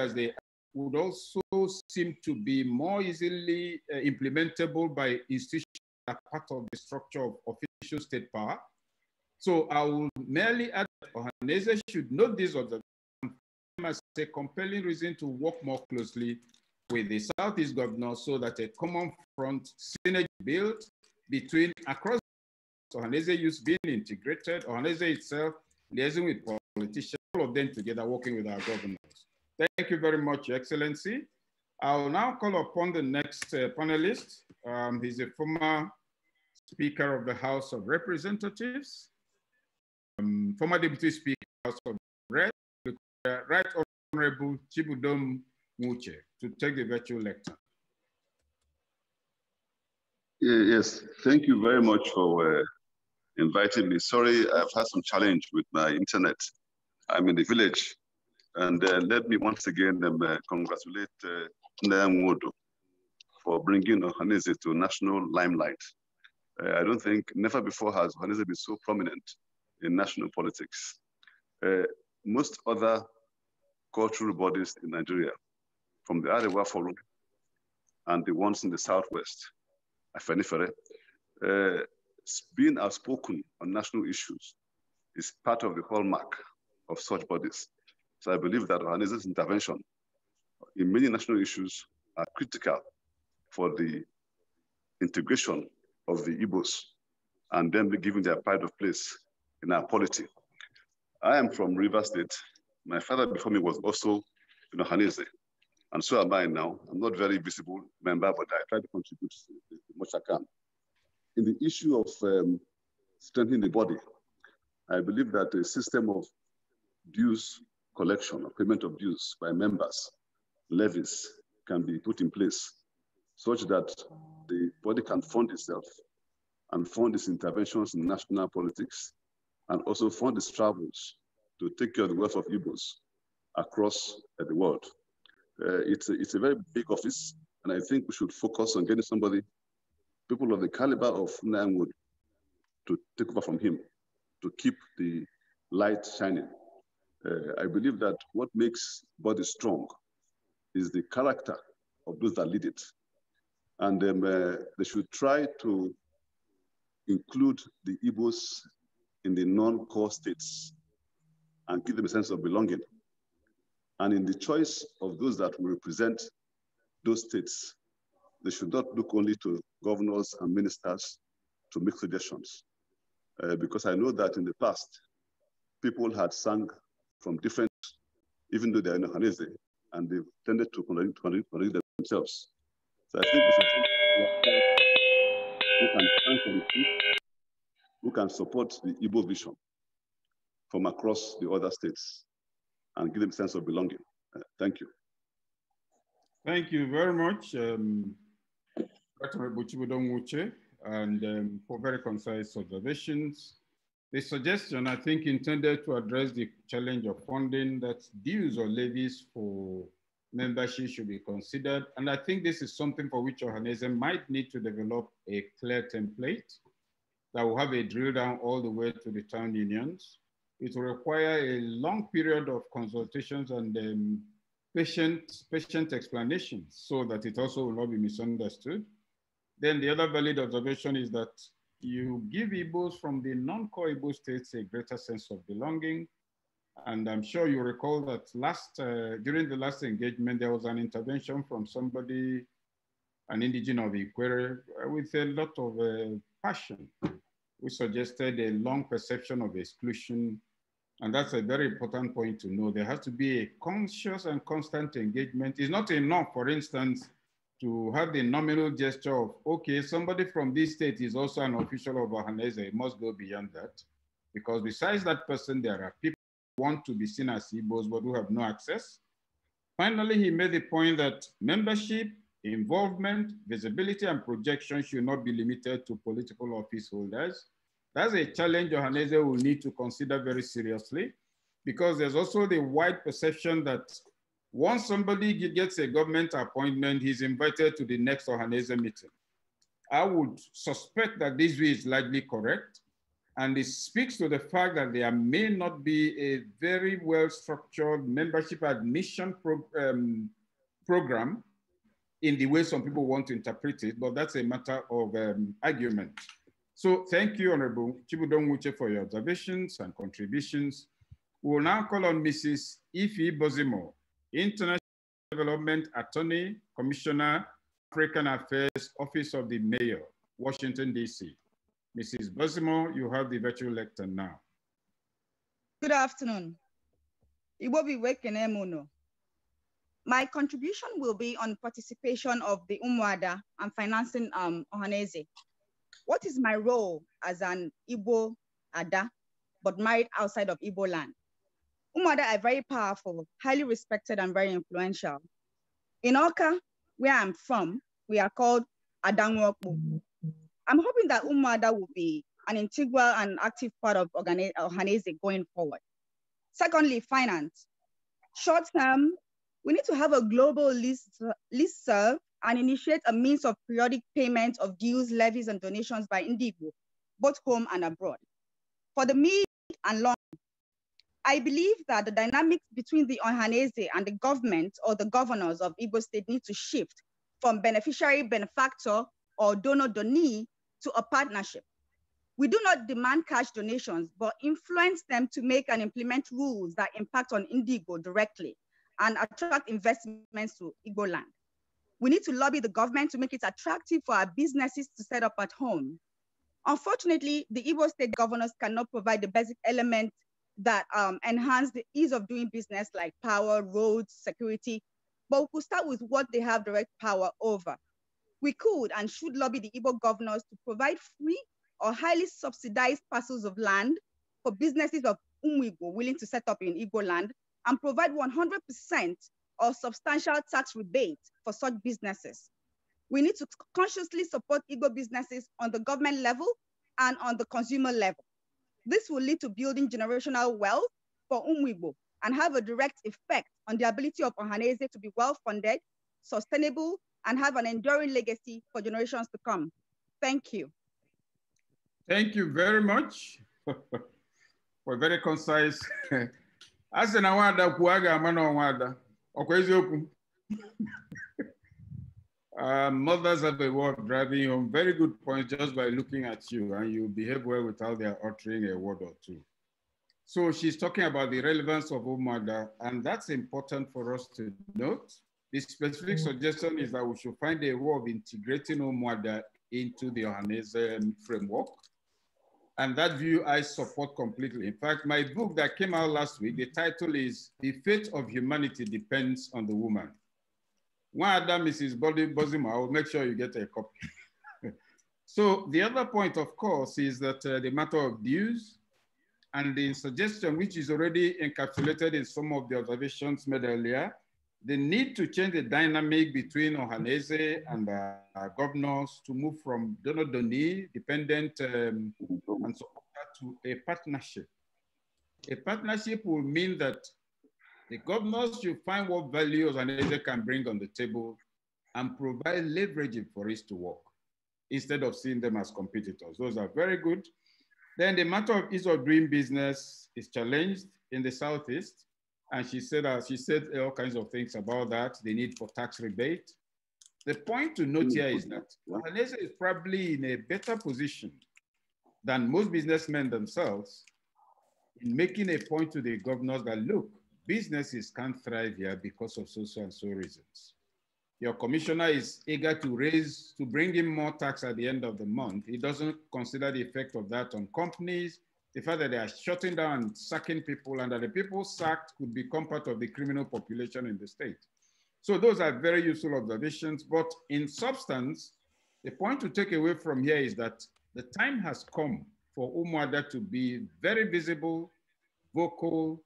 as they would also seem to be more easily uh, implementable by institutions that are part of the structure of official state power. So I will merely add that organizations should note these observations as a compelling reason to work more closely with the Southeast governors so that a common front synergy built between across Ohanese youth being integrated, Ohanese itself liaising with politicians, all of them together working with our governors. Thank you very much, Excellency. I'll now call upon the next uh, panelist. Um, he's a former Speaker of the House of Representatives, um, former Deputy Speaker of the House of Reps, Right Honorable Chibudom Muche, to take the virtual lecture. Yes, thank you very much for uh, inviting me. Sorry, I've had some challenge with my internet. I'm in the village. And uh, let me once again um, uh, congratulate uh, Ndayam Wodo for bringing Ohanese to national limelight. Uh, I don't think, never before has Ohanese been so prominent in national politics. Uh, most other cultural bodies in Nigeria, from the Arewa Forum and the ones in the Southwest, Afenifere, uh, being outspoken on national issues is part of the hallmark of such bodies. So I believe that Ohanese's intervention in many national issues are critical for the integration of the Igbos and them giving their pride of place in our polity. I am from River State. My father before me was also in Ohanese, and so am I now. I'm not very visible member, but I try to contribute as much as I can in the issue of um, strengthening the body, I believe that a system of dues collection or payment of dues by members, levies, can be put in place such that the body can fund itself and fund its interventions in national politics and also fund its travels to take care of the wealth of Igbos across uh, the world. Uh, it's, a, it's a very big office, and I think we should focus on getting somebody people of the caliber of Nangud to take over from him, to keep the light shining. Uh, I believe that what makes body strong is the character of those that lead it. And um, uh, they should try to include the Igbos in the non-core states and give them a sense of belonging. And in the choice of those that will represent those states, they should not look only to governors and ministers to make suggestions. Uh, because I know that in the past, people had sung from different, even though they're in Ohanese, and they've tended to contradict themselves. So I think it's important who can support the Igbo vision from across the other states and give them a sense of belonging. Uh, thank you. Thank you very much. Um... Dr. and um, for very concise observations. The suggestion, I think, intended to address the challenge of funding that dues or levies for membership should be considered. And I think this is something for which organization might need to develop a clear template that will have a drill down all the way to the town unions. It will require a long period of consultations and um, patient, patient explanations so that it also will not be misunderstood. Then the other valid observation is that you give Igbos from the non-core Igbo states a greater sense of belonging. And I'm sure you recall that last uh, during the last engagement, there was an intervention from somebody, an indigenous of Iquere, uh, with a lot of uh, passion, We suggested a long perception of exclusion. And that's a very important point to know. There has to be a conscious and constant engagement. It's not enough, for instance, to have the nominal gesture of, okay, somebody from this state is also an official of Ohanese, it must go beyond that. Because besides that person, there are people who want to be seen as Igbos but who have no access. Finally, he made the point that membership, involvement, visibility, and projection should not be limited to political office holders. That's a challenge Ohanese will need to consider very seriously because there's also the wide perception that once somebody gets a government appointment, he's invited to the next Ohanese meeting. I would suspect that this view is likely correct, and it speaks to the fact that there may not be a very well-structured membership admission um, program in the way some people want to interpret it, but that's a matter of um, argument. So thank you, Honorable Chibudon Wuche, for your observations and contributions. We will now call on Mrs. Ifi Bozimo International Development Attorney, Commissioner, African Affairs, Office of the Mayor, Washington, D.C. Mrs. Bosimo, you have the virtual lecture now. Good afternoon. working, Wekenemuno. My contribution will be on participation of the Umwada and financing um, Ohaneze. What is my role as an Igbo Ada, but married outside of Igbo land? Umada are very powerful, highly respected, and very influential. In Oka, where I'm from, we are called Adangwokbu. I'm hoping that Umada will be an integral and active part of Ohanese going forward. Secondly, finance. Short term, we need to have a global list, list serve and initiate a means of periodic payment of dues, levies, and donations by Indigo, both home and abroad. For the mid and long I believe that the dynamics between the Ohanese and the government or the governors of Igbo state need to shift from beneficiary, benefactor, or donor donee to a partnership. We do not demand cash donations, but influence them to make and implement rules that impact on Indigo directly and attract investments to Igbo land. We need to lobby the government to make it attractive for our businesses to set up at home. Unfortunately, the Igbo state governors cannot provide the basic elements that um, enhance the ease of doing business like power, roads, security. But we could start with what they have direct power over. We could and should lobby the Igbo governors to provide free or highly subsidized parcels of land for businesses of Umwigo willing to set up in Igbo land and provide 100% or substantial tax rebate for such businesses. We need to consciously support Igbo businesses on the government level and on the consumer level. This will lead to building generational wealth for Umwibo and have a direct effect on the ability of Ohanese to be well-funded, sustainable, and have an enduring legacy for generations to come. Thank you. Thank you very much for very concise. Asị na nwada kwuo a ga uh, mothers have a way of driving home very good points just by looking at you, and you behave well without their uttering a word or two. So she's talking about the relevance of Umaga, and that's important for us to note. The specific mm. suggestion is that we should find a way of integrating Umaga into the Ohanese framework. And that view I support completely. In fact, my book that came out last week, the title is The Fate of Humanity Depends on the Woman. One other Mrs. Body Bozima, I'll make sure you get a copy. so the other point, of course, is that uh, the matter of dues and the suggestion, which is already encapsulated in some of the observations made earlier, the need to change the dynamic between Ohanese and uh, governors to move from donor-donee, dependent um, and on to a partnership. A partnership will mean that the governors should find what values an agent can bring on the table and provide leverage for it to work instead of seeing them as competitors. Those are very good. Then the matter of ease of doing business is challenged in the Southeast. And she said, uh, she said all kinds of things about that, the need for tax rebate. The point to note here is that Malaysia is probably in a better position than most businessmen themselves in making a point to the governors that look, businesses can't thrive here because of social and so reasons. Your commissioner is eager to raise, to bring in more tax at the end of the month. He doesn't consider the effect of that on companies, the fact that they are shutting down and sacking people and that the people sacked could become part of the criminal population in the state. So those are very useful observations, but in substance, the point to take away from here is that the time has come for Umwada to be very visible, vocal,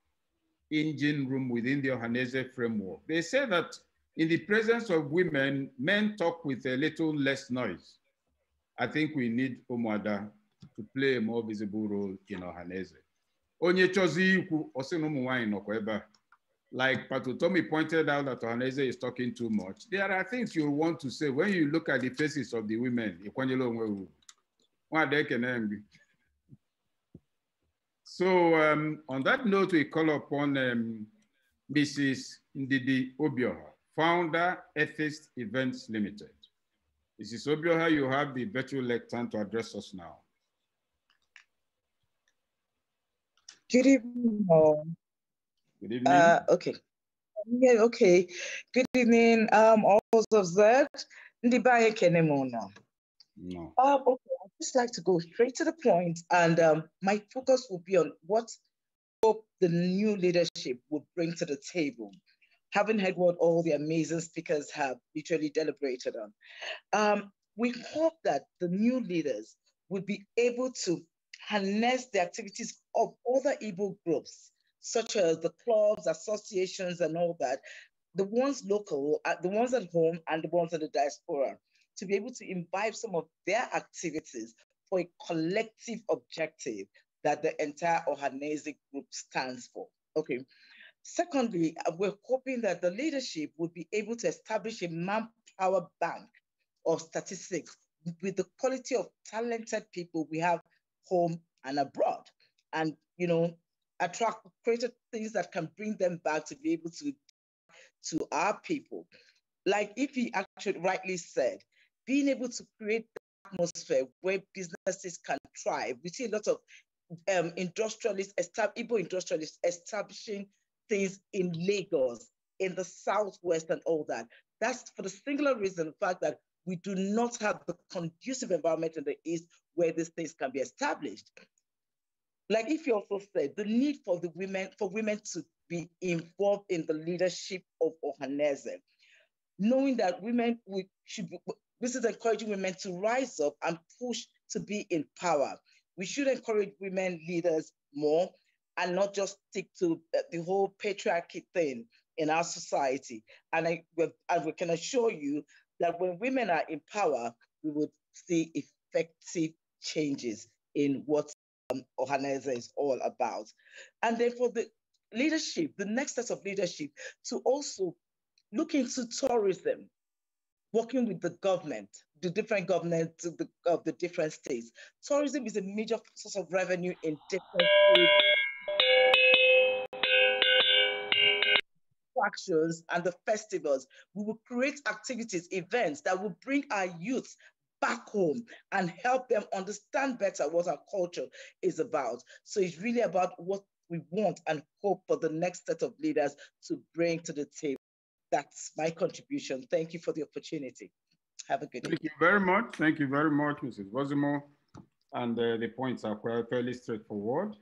engine room within the Ohanese framework. They say that in the presence of women, men talk with a little less noise. I think we need Omuada to play a more visible role in Ohanese. Onye chozi ikwu, osi na Like Patutomi pointed out that Ohanese is talking too much. There are things you want to say when you look at the faces of the women. Why they can't so um, on that note, we call upon um, Mrs. Ndidi Obioha, founder, Ethist Events Limited. Mrs. Obioha, you have the virtual lectern to address us now. Good evening. Good evening. Uh, okay. Yeah, okay. Good evening, um, all those observed. Ndibaye Kenemono. No. Um, okay just like to go straight to the point, and um, my focus will be on what hope the new leadership will bring to the table. Having heard what all the amazing speakers have literally deliberated on, um, we hope that the new leaders will be able to harness the activities of other Igbo groups, such as the clubs, associations, and all that, the ones local, uh, the ones at home, and the ones in the diaspora to be able to imbibe some of their activities for a collective objective that the entire Ohanese group stands for. Okay. Secondly, we're hoping that the leadership would be able to establish a manpower bank of statistics with the quality of talented people we have home and abroad. And, you know, attract greater things that can bring them back to be able to to our people. Like if he actually rightly said, being able to create the atmosphere where businesses can thrive. We see a lot of um, industrialists, estab- Igbo industrialists establishing things in Lagos, in the Southwest, and all that. That's for the singular reason, the fact that we do not have the conducive environment in the East where these things can be established. Like if you also said, the need for the women, for women to be involved in the leadership of Ohanese, knowing that women should be, this is encouraging women to rise up and push to be in power. We should encourage women leaders more and not just stick to uh, the whole patriarchy thing in our society. And, I, and we can assure you that when women are in power, we would see effective changes in what um, Ohaneze is all about. And then for the leadership, the next set of leadership, to also look into tourism working with the government, the different governments of the, of the different states. Tourism is a major source of revenue in different attractions and the festivals. We will create activities, events that will bring our youth back home and help them understand better what our culture is about. So it's really about what we want and hope for the next set of leaders to bring to the table that's my contribution. Thank you for the opportunity. Have a good Thank day. you very much. Thank you very much, Mrs. Bozimo. And uh, the points are quite fairly straightforward.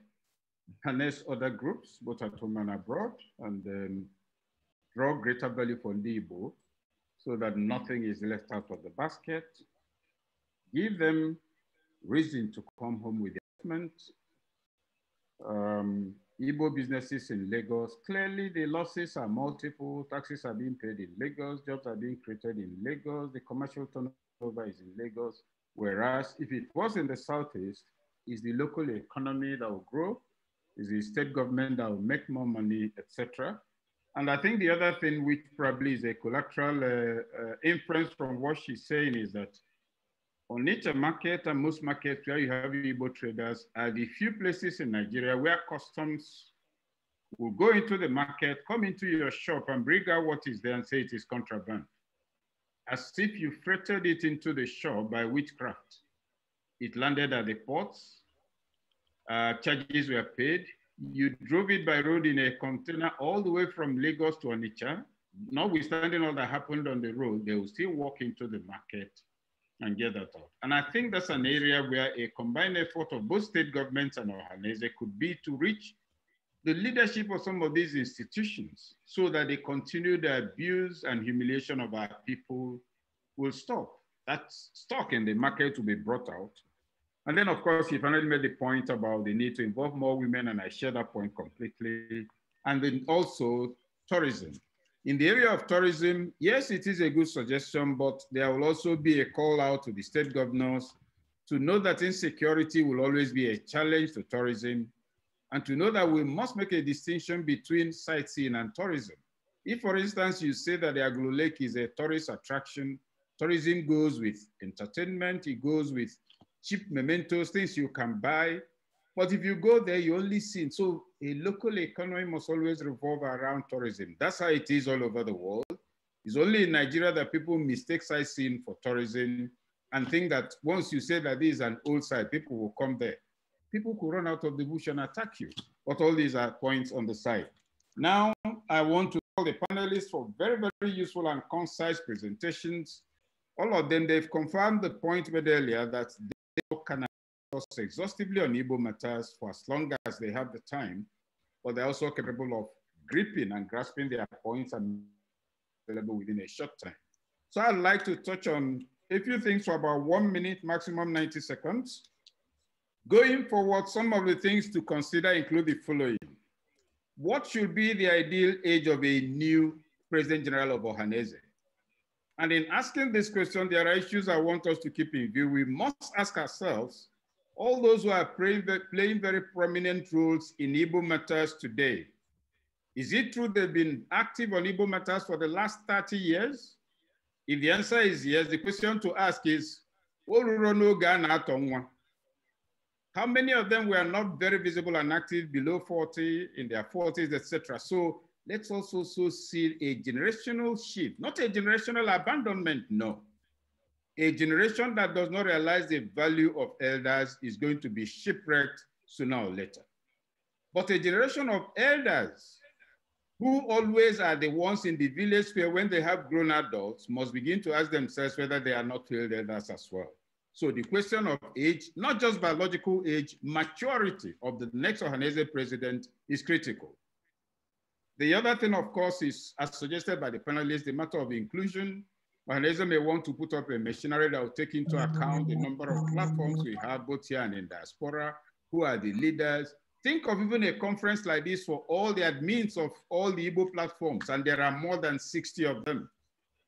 Harness other groups, both at home and abroad, and then um, draw greater value for Libo so that nothing is left out of the basket. Give them reason to come home with the investment. Um, Igbo businesses in Lagos. Clearly, the losses are multiple. Taxes are being paid in Lagos. Jobs are being created in Lagos. The commercial turnover is in Lagos. Whereas if it was in the Southeast, is the local economy that will grow, is the state government that will make more money, etc. And I think the other thing, which probably is a collateral uh, uh, inference from what she's saying, is that on to market and most markets where you have Igbo traders are the few places in Nigeria where customs will go into the market, come into your shop and bring out what is there and say it is contraband. As if you freighted it into the shop by witchcraft. It landed at the ports, uh, charges were paid. You drove it by road in a container all the way from Lagos to Onitsha. Notwithstanding all that happened on the road, they will still walk into the market and get that out. And I think that's an area where a combined effort of both state governments and Ohanese could be to reach the leadership of some of these institutions so that they continue the abuse and humiliation of our people will stop. That stock in the market will be brought out. And then, of course, he finally made the point about the need to involve more women, and I share that point completely. And then also tourism. In the area of tourism, yes, it is a good suggestion, but there will also be a call out to the state governors to know that insecurity will always be a challenge to tourism and to know that we must make a distinction between sightseeing and tourism. If, for instance, you say that the Aglo Lake is a tourist attraction, tourism goes with entertainment, it goes with cheap mementos, things you can buy. But if you go there, you only see. So a local economy must always revolve around tourism. That's how it is all over the world. It's only in Nigeria that people mistake sightseeing for tourism and think that once you say that this is an old site, people will come there. People could run out of the bush and attack you. But all these are points on the side. Now, I want to call the panelists for very, very useful and concise presentations. All of them, they've confirmed the point made earlier that exhaustively on Igbo matters for as long as they have the time, but they're also capable of gripping and grasping their points and available within a short time. So I'd like to touch on a few things for about one minute, maximum 90 seconds. Going forward, some of the things to consider include the following. What should be the ideal age of a new President General of Ohanese? And in asking this question, there are issues I want us to keep in view. We must ask ourselves all those who are playing, very prominent roles in Igbo matters today, is it true they've been active on Igbo matters for the last 30 years? If the answer is yes, the question to ask is, how many of them were not very visible and active below 40, in their 40s, etc.? So let's also so see a generational shift, not a generational abandonment, no, a generation that does not realize the value of elders is going to be shipwrecked sooner or later. But a generation of elders who always are the ones in the village where when they have grown adults must begin to ask themselves whether they are not failed elders as well. So the question of age, not just biological age, maturity of the next Ohanese president is critical. The other thing, of course, is as suggested by the panelists, the matter of inclusion, Organizer may want to put up a machinery that will take into mm-hmm. account the number of platforms we have both here and in diaspora, who are the leaders. Think of even a conference like this for all the admins of all the Igbo platforms, and there are more than 60 of them.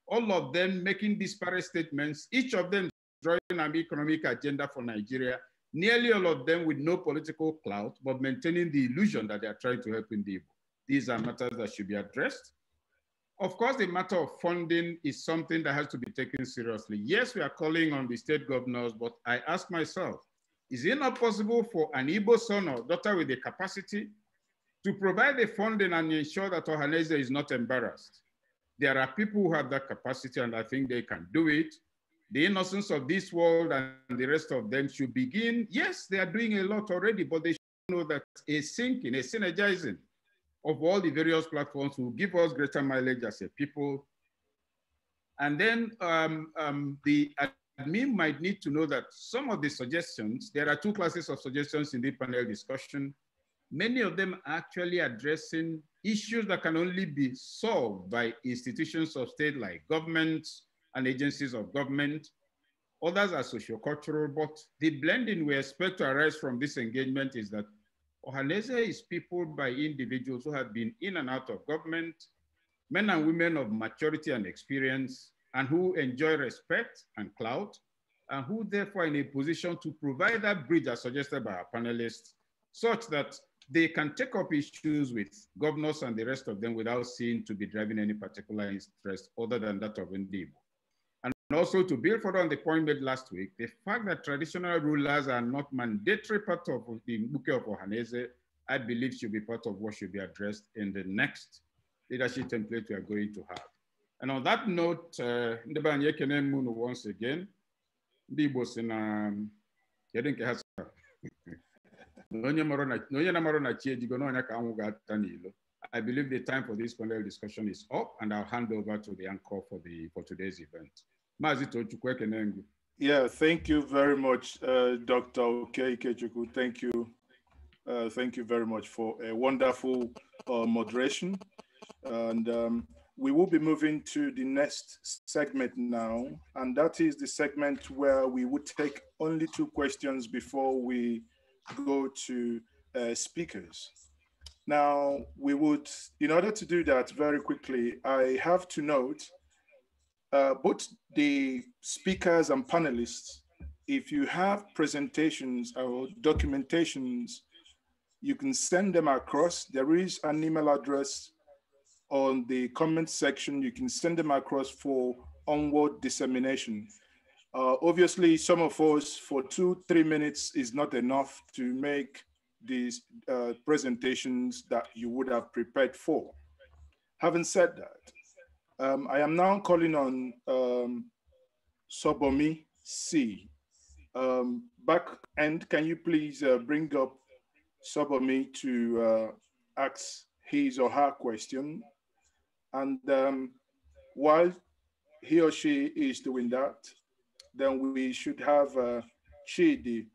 All of them making disparate statements, each of them drawing an economic agenda for Nigeria, nearly all of them with no political clout, but maintaining the illusion that they are trying to help in the Igbo. These are matters that should be addressed. Of course, the matter of funding is something that has to be taken seriously. Yes, we are calling on the state governors, but I ask myself, is it not possible for an Igbo son or daughter with the capacity to provide the funding and ensure that Ohaneze is not embarrassed? There are people who have that capacity and I think they can do it. The innocence of this world and the rest of them should begin. Yes, they are doing a lot already, but they should know that a sinking, a synergizing, of all the various platforms will give us greater mileage as a people. And then um, um, the admin might need to know that some of the suggestions, there are two classes of suggestions in the panel discussion. Many of them are actually addressing issues that can only be solved by institutions of state like governments and agencies of government. Others are sociocultural, but the blending we expect to arise from this engagement is that Ohanese is peopled by individuals who have been in and out of government, men and women of maturity and experience, and who enjoy respect and clout, and who therefore are in a position to provide that bridge as suggested by our panelists, such that they can take up issues with governors and the rest of them without seeming to be driving any particular interest other than that of Ndibo. And also to build further on the point made last week, the fact that traditional rulers are not mandatory part of the Mbuke of Ohanese, I believe should be part of what should be addressed in the next leadership template we are going to have. And on that note, uh, Ndebanye uh, once again, Igbo si na kedu um, nke ha sara onye na I believe the time for this panel discussion is up, and I'll hand over to the anchor for, the, for today's event. Yeah, thank you very much, uh, Dr. Oke Ikechukwu. Thank you. Uh, thank you very much for a wonderful uh, moderation. And um, we will be moving to the next segment now. And that is the segment where we would take only two questions before we go to uh, speakers. Now, we would, in order to do that very quickly, I have to note uh, both the speakers and panelists, if you have presentations or documentations, you can send them across. There is an email address on the comment section. You can send them across for onward dissemination. Uh, obviously, some of us for two, three minutes is not enough to make these uh, presentations that you would have prepared for. Having said that, um, I am now calling on um, Sobomi C. Um, back end, can you please uh, bring up Sobomi to uh, ask his or her question? And um, while he or she is doing that, then we should have uh, Chidi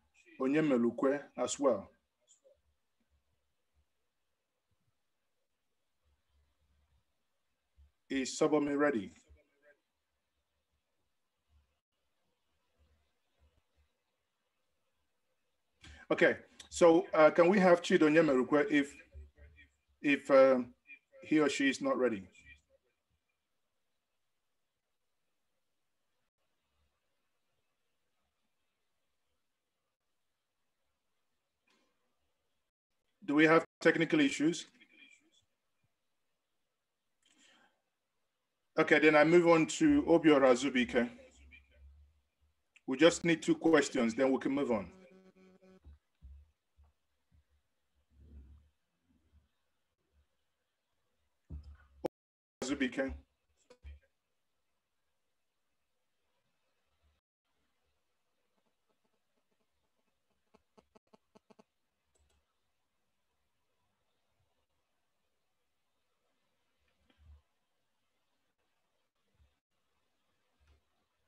Onyemelukwe as well. Is Sobome ready? Okay, so uh, can we have Chido Nyemerukwe if, if uh, he or she is not ready? Do we have technical issues? Okay, then I move on to Obiora Zubike. We just need two questions, then we can move on. Zubike.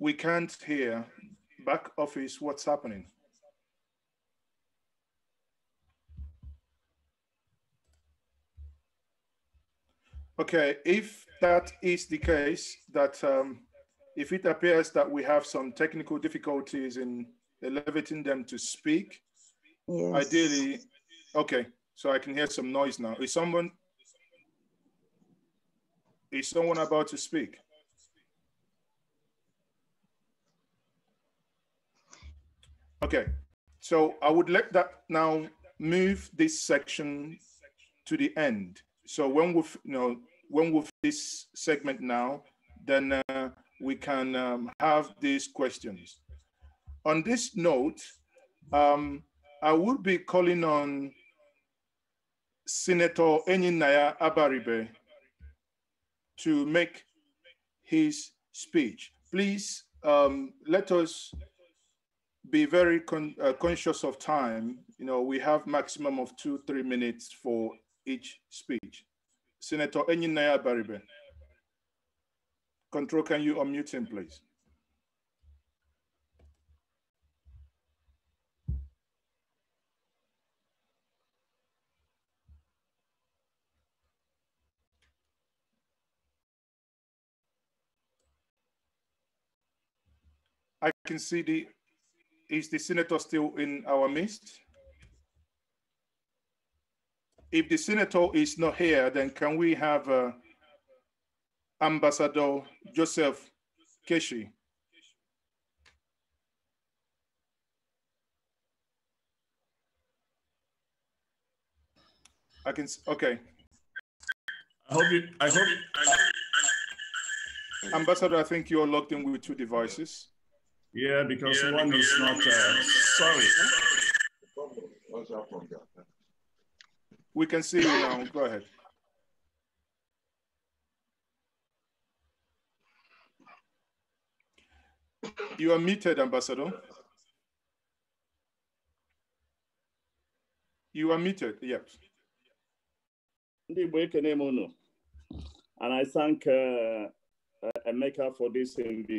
We can't hear back office what's happening. Okay, if that is the case, that um, if it appears that we have some technical difficulties in elevating them to speak, yes. ideally, okay, so I can hear some noise now. Is someone, is someone about to speak? Okay, so I would let that now move this section to the end. So when we've, you know, when we've this segment now, then uh, we can um, have these questions. On this note, um, I would be calling on Senator Enyinaya Abaribe to make his speech. Please um, let us be very con uh, conscious of time. You know, we have maximum of two, three minutes for each speech. Senator Enyinaya Baribe. Control, can you unmute him, please? I can see the is the senator still in our midst? If the senator is not here, then can we have uh, Ambassador Joseph Keshi? I can, okay. I hope you, I hope, uh, Ambassador, I think you're logged in with two devices. Yeah, because yeah, one is uh, not uh, sorry. We can see you now. Go ahead. You are muted, Ambassador. You are muted, yes. And I thank uh, Emeka uh, for this invitation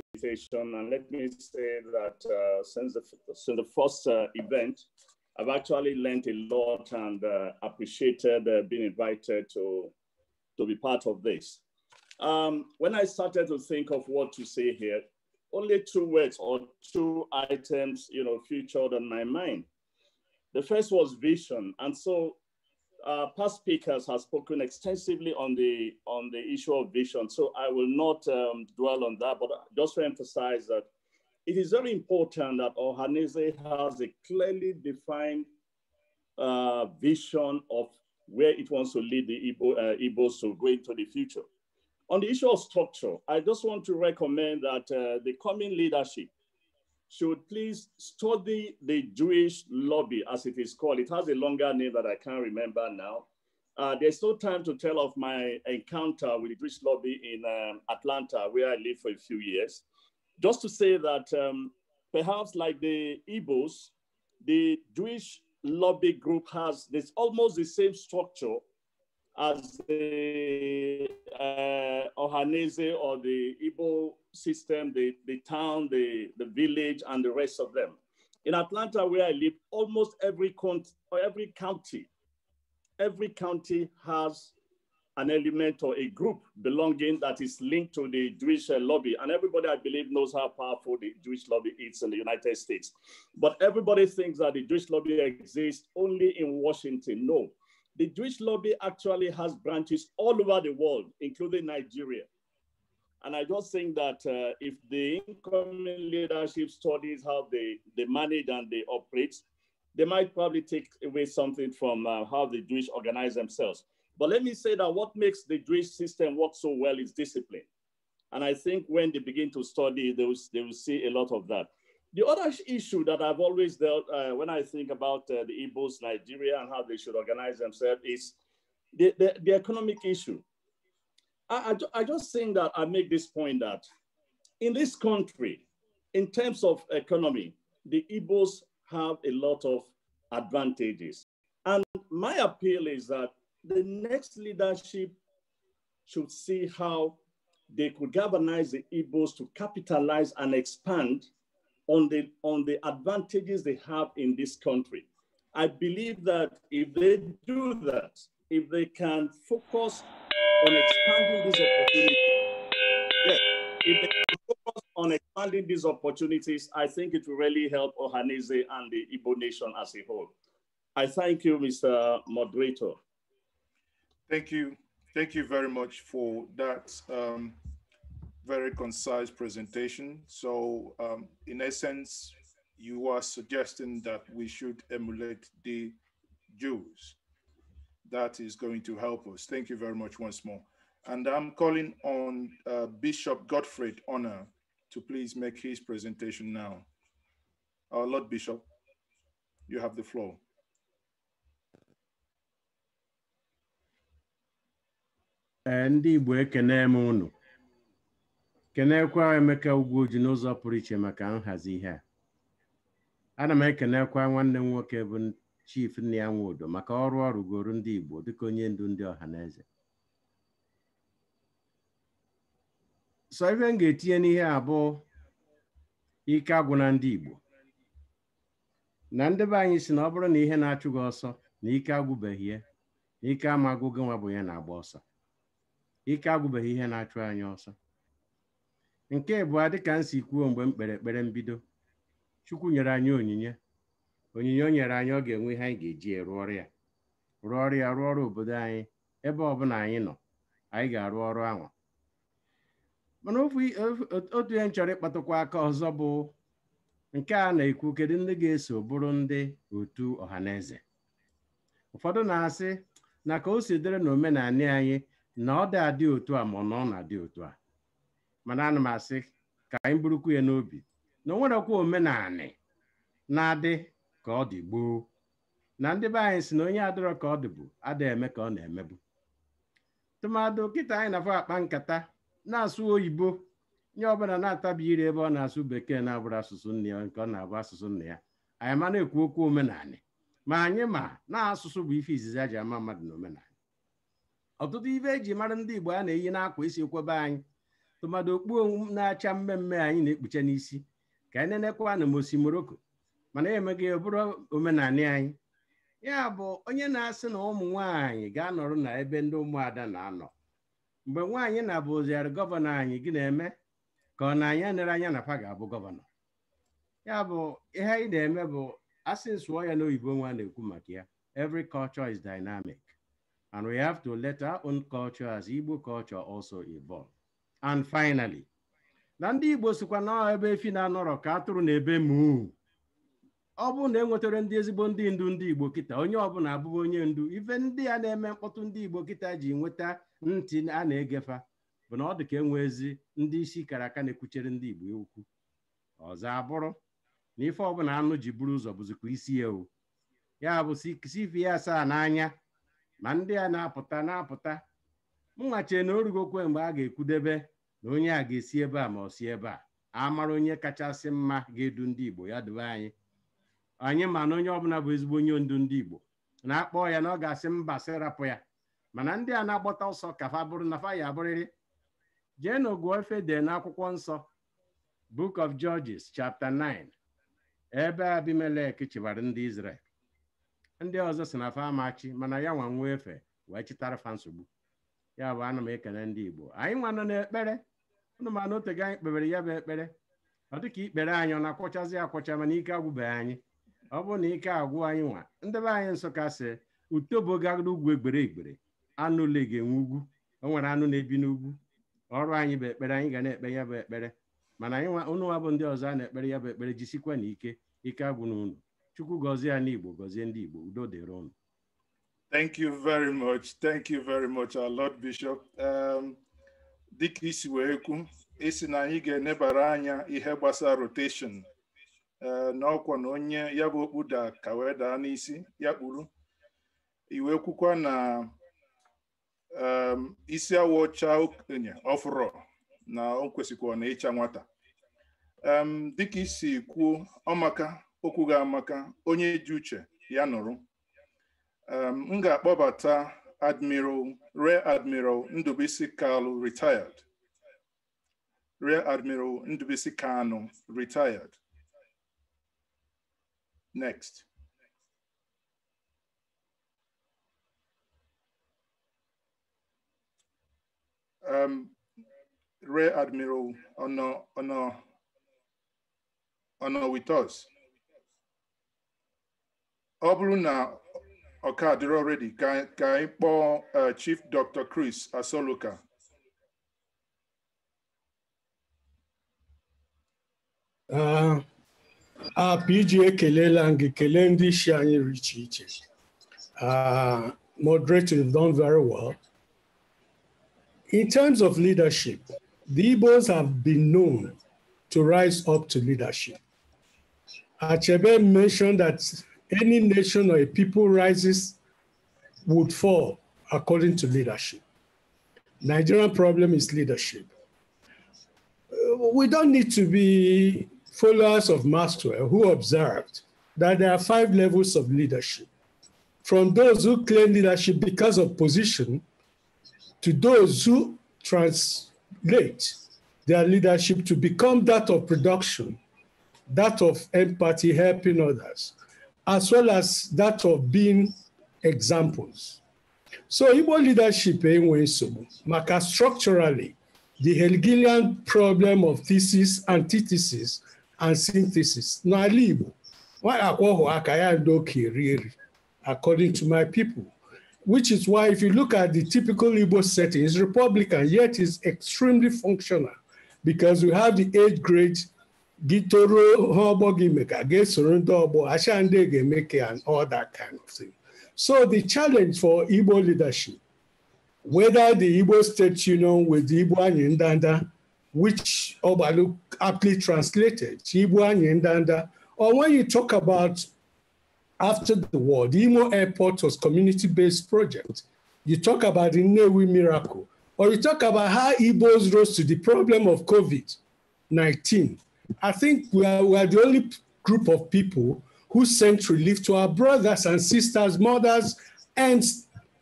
and let me say that uh, since, the, since the first uh, event, I've actually learned a lot and uh, appreciated uh, being invited to, to be part of this. Um, when I started to think of what to say here, only two words or two items, you know, featured on my mind. The first was vision. And so uh, past speakers have spoken extensively on the on the issue of vision, so I will not um, dwell on that. But just to emphasize that it is very important that Ohanese has a clearly defined uh, vision of where it wants to lead the Igbo, uh, Igbos to go into the future. On the issue of structure, I just want to recommend that uh, the coming leadership should please study the Jewish lobby, as it is called. It has a longer name that I can't remember now. Uh, there's no time to tell of my encounter with the Jewish lobby in um, Atlanta, where I lived for a few years. Just to say that um, perhaps like the Igbos, the Jewish lobby group has this almost the same structure as the uh, Ohanese or the Ibo system, the, the town, the, the village, and the rest of them. In Atlanta, where I live, almost every, cont- every county, every county has an element or a group belonging that is linked to the Jewish uh, lobby. And everybody, I believe, knows how powerful the Jewish lobby is in the United States. But everybody thinks that the Jewish lobby exists only in Washington. No, the Jewish lobby actually has branches all over the world, including Nigeria. And I just think that uh, if the incoming leadership studies how they, they manage and they operate, they might probably take away something from uh, how the Jewish organize themselves. But let me say that what makes the Jewish system work so well is discipline. And I think when they begin to study, they will, they will see a lot of that. The other issue that I've always dealt uh, when I think about uh, the Igbos, Nigeria, and how they should organize themselves is the, the, the economic issue. I, I, I, just think that I make this point that in this country, in terms of economy, the Igbos have a lot of advantages. And my appeal is that the next leadership should see how they could galvanize the Igbos to capitalize and expand on the, on the advantages they have in this country. I believe that if they do that, if they can focus on expanding these opportunities, yeah, if they can focus on expanding these opportunities, I think it will really help Ohanese and the Igbo nation as a whole. I thank you, Mr. Moderator. Thank you. Thank you very much for that. Um, very concise presentation. So um, in essence, you are suggesting that we should emulate the Jews. That is going to help us. Thank you very much once more. And I'm calling on uh, Bishop Gottfried Honor to please make his presentation now. Our Lord Bishop, you have the floor. Andy Igbo ekene m kenekwa Emeka Ugwuoji n'ụzọ pụrụ iche maka nhazi ihe a ana m ekenekwa nwanne m nwoke bụ chief nne ya Nwodo maka ọrụ ọ ndị Igbo dịka onye ndu ndị ọha na eze sọ ife m ga-etinye n'ihe abụọ ike agwụ na ndị Igbo na ndị be anyị si na ọ bụrụ na ihe na-achụ gị ọsọ na ike agwụbeghị ya na ike amagụ gị nwa bụ ya na-agba ọsọ ike agwụbeghị ihe na-achụ anyị ọsọ nke bụ adị ka si kwuo mgbe m kpere ekpere mbido chukwu nyere anyị onyinye onyinye o nyere anyị ọ ga-enwe ihe anyị ga-eji rụọ ọrụ ya rụọ ọrụ ya rụọ ọrụ obodo anyị ebe ọbụla anyị nọ anyị ga-arụ ọrụ ahụ mana otu ihe m chọrọ ịkpatụkwa aka ọzọ bụ nke a na-ekwu kedu ndị ga-eso bụrụ ndị otu ọhaneze ụfọdụ na-asị na ka o si dịrị na omenala anyị na ọ dị adị otu a ma na ọ na-adị otu a mana ana m asị ka anyị burukwu ya n'obi na o nwerekwa omenanị na-adị ka ọ dị gboo na ndị be anyị si na onye adịrọ ka ọ dị bụ ada eme ka ọ na-emebu tụmadụ kịta anyị na-afọ akpa nkata na-asụ oyibo nye ọbụla na-atabi ire ebe ọ na-asụ bekee na-abụrụ asụsụ nne ya nke ọ na-abụ asụsụ nne ya anyị ma na-ekwu okwu omenanị ma anyị ma na asụsụ bụ ife izizi a ama mmadụ na omenanị ọtụtụ ibe eji mara ndị Igbo a na-eyi n'akwa isi kwebe anyị tụmadụ okpu na-acha mmemme anyị na-ekpucha n'isi ka anyị nenekwa na mosi moroko mana emeghị ya bụrụ omenala anyị ya bụ onye na-asị na ụmụ nwanyị ga-anọrọ na ebe ndị ụmụada na-anọ mgbe nwaanyị na-abụziarị gọvanọ anyị gị na-eme ka ọ na-anya nere anya na fa ga-abụ gọvanọ ya bụ ihe anyị na-eme bụ asị nsụọ ya n'oyibo nwa na-ekwu maka ya every culture is dynamic and we have to let our own culture as Igbo culture also evolve. and finally na ndị Igbo sikwa na ebe efi na-anọrọ ka atụrụ na ebe mu ọ bụrụ na enwetara ndị ezigbo ndị ndu ndị Igbo kịta onye ọbụla na-abụba onye ndu ife ndị a na-eme mkpọtụ ndị Igbo kịta ji nweta ntị a na-egefa bụ na ọ dị ka enwe ezi ndị isi kara aka na-ekwuchere ndị Igbo okwu ọzọ abụrụ na ife ọbụla anụ ji buru ụzọ bụzikwa isi ya ewu ya bụ sifi ya asaa n'anya ma ndị a na-apụta na-apụta mnwachie na orugokwe mgbe a ga-ekwudebe na onye a ga-esi ebe a ma ọ si ebe a amara onye kachasị mma ga-edu ndị Igbo ya dube anyị anyị ma na onye ọbụla bụ ezigbo onye ndu ndị Igbo na-akpọ ya na ọ ga-asị mba sị ya mana ndị a na-agbata ọsọ ka fa bụrụ na fa ya abụrịrị jee na ogu efe de na akwụkwọ nsọ Book of Judges chapter 9 ebe Abimelek chịbara ndị Izrel ndị ọzọ si na fa amachi mana ya nwa nwa efe wee chịtara fa nsogbu ya bụ ana m ekele ndị Igbo anyị nwa nọ n'ekpere ụnụ mana otego anyị kpebere ya bụ ekpere ọ dị ka ikpere anyị ọ na-akwọchazi akwọcha mana ike agwụbeghị anyị ọ bụrụ na ike agwụ anyị nwa ndebe anyị Nsụka sị utobo gara ugwu egbere egbere anụ lege enwe ugwu o nwere anụ na-ebi n'ugwu ọrụ anyị bụ ekpere anyị ga na-ekpe ya bụ ekpere mana anyị nwa nwa bụ ndị ọzọ a na-ekpere ya bụ ekpere jisikwa na ike ike agwụ na unu chukwu gọzie ya n'Igbo gọzie ndị Igbo udo dịrị ụnụ Thank you very much. Thank you very much, Lord Bishop. Um, dịka isi wee kwu isi na anyị ga-enebara anya ihe gbasara rotation uh, na ọkwa na onye ya bụ okpu da ka wee daa n'isi ya kpuru iwe kwukwa na um, isi awọ ọcha okenye ọfụrọ na o kwesịkwa na ịcha nwata um, dịka isi kwuo ọmaka okwu ga amaka onye ji uche ya nụrụ um, m Admiral Rear Admiral Ndubisi Kalu retired. Rear Admiral Ndubisi Kanu retired. Next. Um, Rear Admiral Ono Ono Ono with us ọkadịrị already Can ka anyị chief dr chris asoluka apg ekelela m gị kelee ndị moderator you've done very well in terms of leadership the Igbos have been known to rise up to leadership Achebe mentioned that any nation or a people rises would fall according to leadership. Nigerian problem is leadership. Uh, we don't need to be followers of Maxwell who observed that there are five levels of leadership. From those who claim leadership because of position to those who translate their leadership to become that of production, that of empathy, helping others, as well as that of being examples. So Igbo leadership anyway. So, maka structurally the Hegelian problem of thesis, antithesis, and synthesis n'ala Igbo akwọhụ aka ya ndo ka eri eri according to my people which is why if you look at the typical Igbo setting, it's Republican, yet it's extremely functional because we have the eight grades gị toruo ha ọgbọ gị me ka ga-esoro ndị ọgbọ acha ndị ga-eme ka all that kind of thing so the challenge for Igbo leadership whether the Igbo State Union with the Igbo Anyị Ndanda which Ogbalu aptly translated Igbo Anyị Ndanda or when you talk about after the war the Imo airport was community-based project you talk about the Nnewi miracle or you talk about how Igbos rose to the problem of COVID-19 I think we are, we are the only group of people who sent relief to our brothers and sisters, mothers, and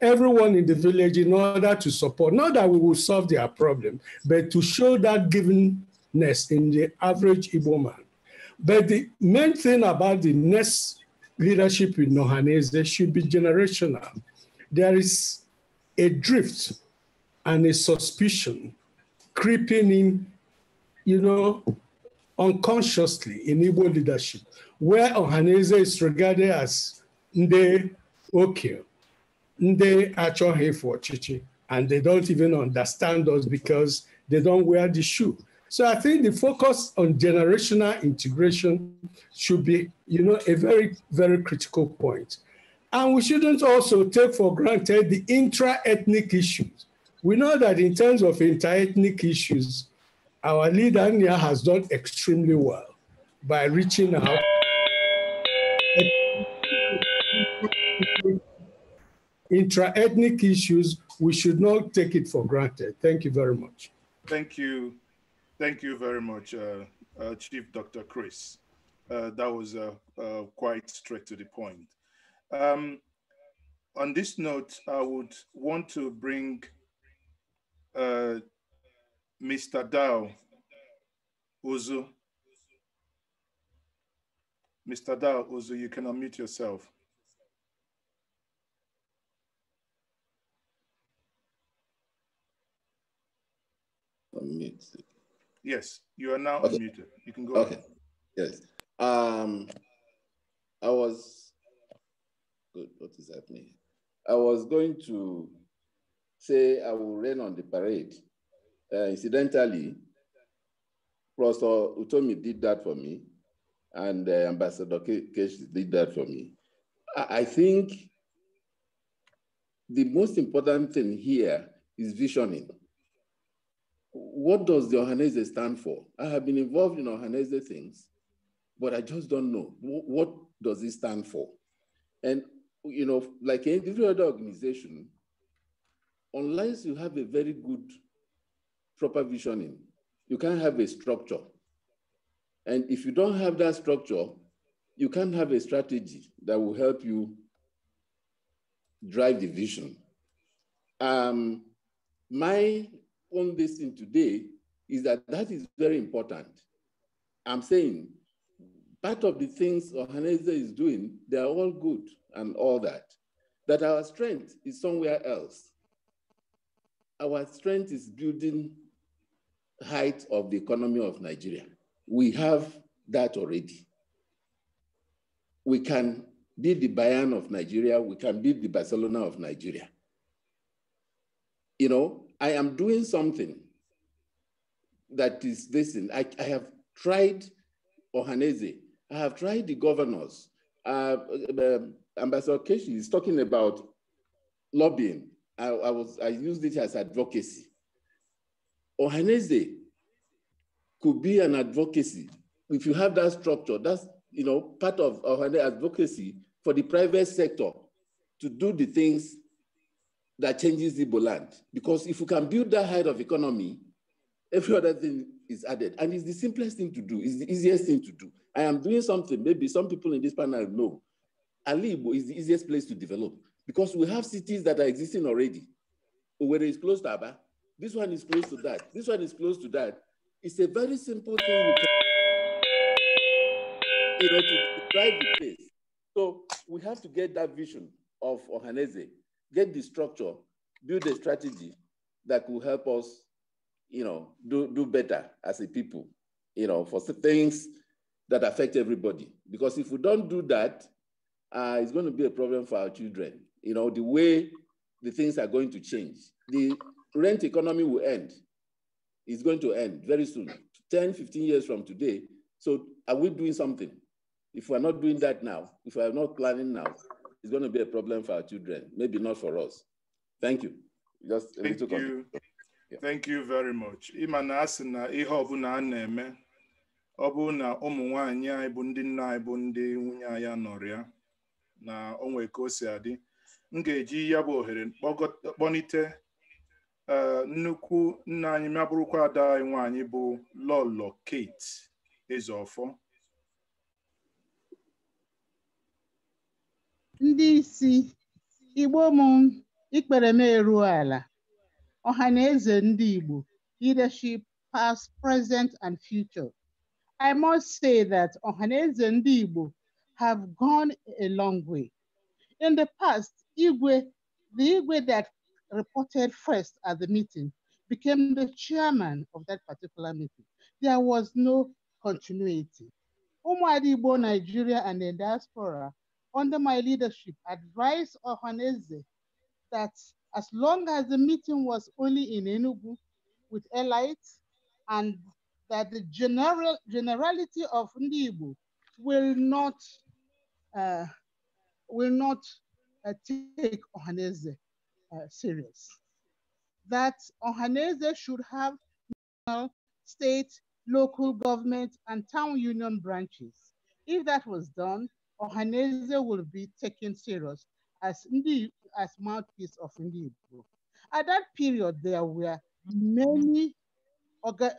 everyone in the village in order to support. Not that we will solve their problem, but to show that givenness in the average Igbo man. But the main thing about the next leadership in Nohanese should be generational. There is a drift and a suspicion creeping in, you know, unconsciously in Igbo leadership, where Ohaneze is regarded as Nde Okio, Nde Achohe for Chichi, and they don't even understand us because they don't wear the shoe. So I think the focus on generational integration should be, you know, a very, very critical point. And we shouldn't also take for granted the intra-ethnic issues. We know that in terms of inter-ethnic issues, our leader Nia has done extremely well by reaching out intra-ethnic issues, we should not take it for granted. Thank you very much. Thank you. Thank you very much, uh, uh, Chief Dr. Chris. Uh, that was uh, uh, quite straight to the point. Um, on this note, I would want to bring uh, Mr. Dow Ozu. Mr. Dow Ozu, you can unmute yourself. Unmute. Yes, you are now okay. unmuted. You can go. Okay. Ahead. Yes. Um, I was good. What is happening? I was going to say I will rain on the parade uh, incidentally, Professor Utomi did that for me, and uh, Ambassador Kesh did that for me. I, think the most important thing here is visioning. What does the Ohanese stand for? I have been involved in Ohanese things, but I just don't know. What does it stand for? And, you know, like every other organization, unless you have a very good proper visioning. You can't have a structure. And if you don't have that structure, you can't have a strategy that will help you drive the vision. Um, my own thing today is that that is very important. I'm saying part of the things Ohaneze is doing, they are all good and all that. That our strength is somewhere else. Our strength is building height of the economy of Nigeria. We have that already. We can be the Bayern of Nigeria. We can be the Barcelona of Nigeria. You know, I am doing something that is this. I, I have tried Ohaneze. I have tried the governors. Uh, uh, um, Ambassador Keshi is talking about lobbying. I, I, was I used it as advocacy or Henese could be an advocacy. If you have that structure, that's you know part of our advocacy for the private sector to do the things that changes the land. Because if you can build that height of economy, every other thing is added. And it's the simplest thing to do, it's the easiest thing to do. I am doing something, maybe some people in this panel know. Alibo is the easiest place to develop because we have cities that are existing already. Whether it's close to Aba, this one is close to that. This one is close to that. It's a very simple thing you, can, you know, to drive the place. So we have to get that vision of Ohaneze, get the structure, build a strategy that will help us, you know, do, do better as a people, you know, for things that affect everybody. Because if we don't do that, uh, it's going to be a problem for our children. You know, the way the things are going to change. The rent economy will end. It's going to end very soon, 10, 15 years from today. So are we doing something? If we're not doing that now, if we're not planning now, it's going to be a problem for our children, maybe not for us. Thank you. Just a Thank little you. Yeah. Thank you very much. Imana na asị na ihe ọbụla na na anyị bụ ndị nna anyị bụ ndị nwunye na onwe ka o adị, m eji ya bụ ohere kpọnite nnukwu nna anyị mabụrụkwa ada anyị nwaanyị bụ lọlọ kate ezeọfọ ndị isi igbo m ikpere m eru ala ọha na eze ndị igbo leadership past present and future i must say that ọha na eze ndị igbo have gone a long way in the past igwe the igwe that reported first at the meeting became the chairman of that particular meeting. There was no continuity. Umuadibo, Nigeria, and the diaspora, under my leadership, advised Ohaneze that as long as the meeting was only in Enugu with elites, and that the general generality of Ndibu will not uh, will not uh, take Ohaneze uh, serious. That Ohanese should have national, state, local government, and town union branches. If that was done, Ohanese will be taken serious as, Ndi, as mouthpiece of Ndi Igbo. At that period, there were many,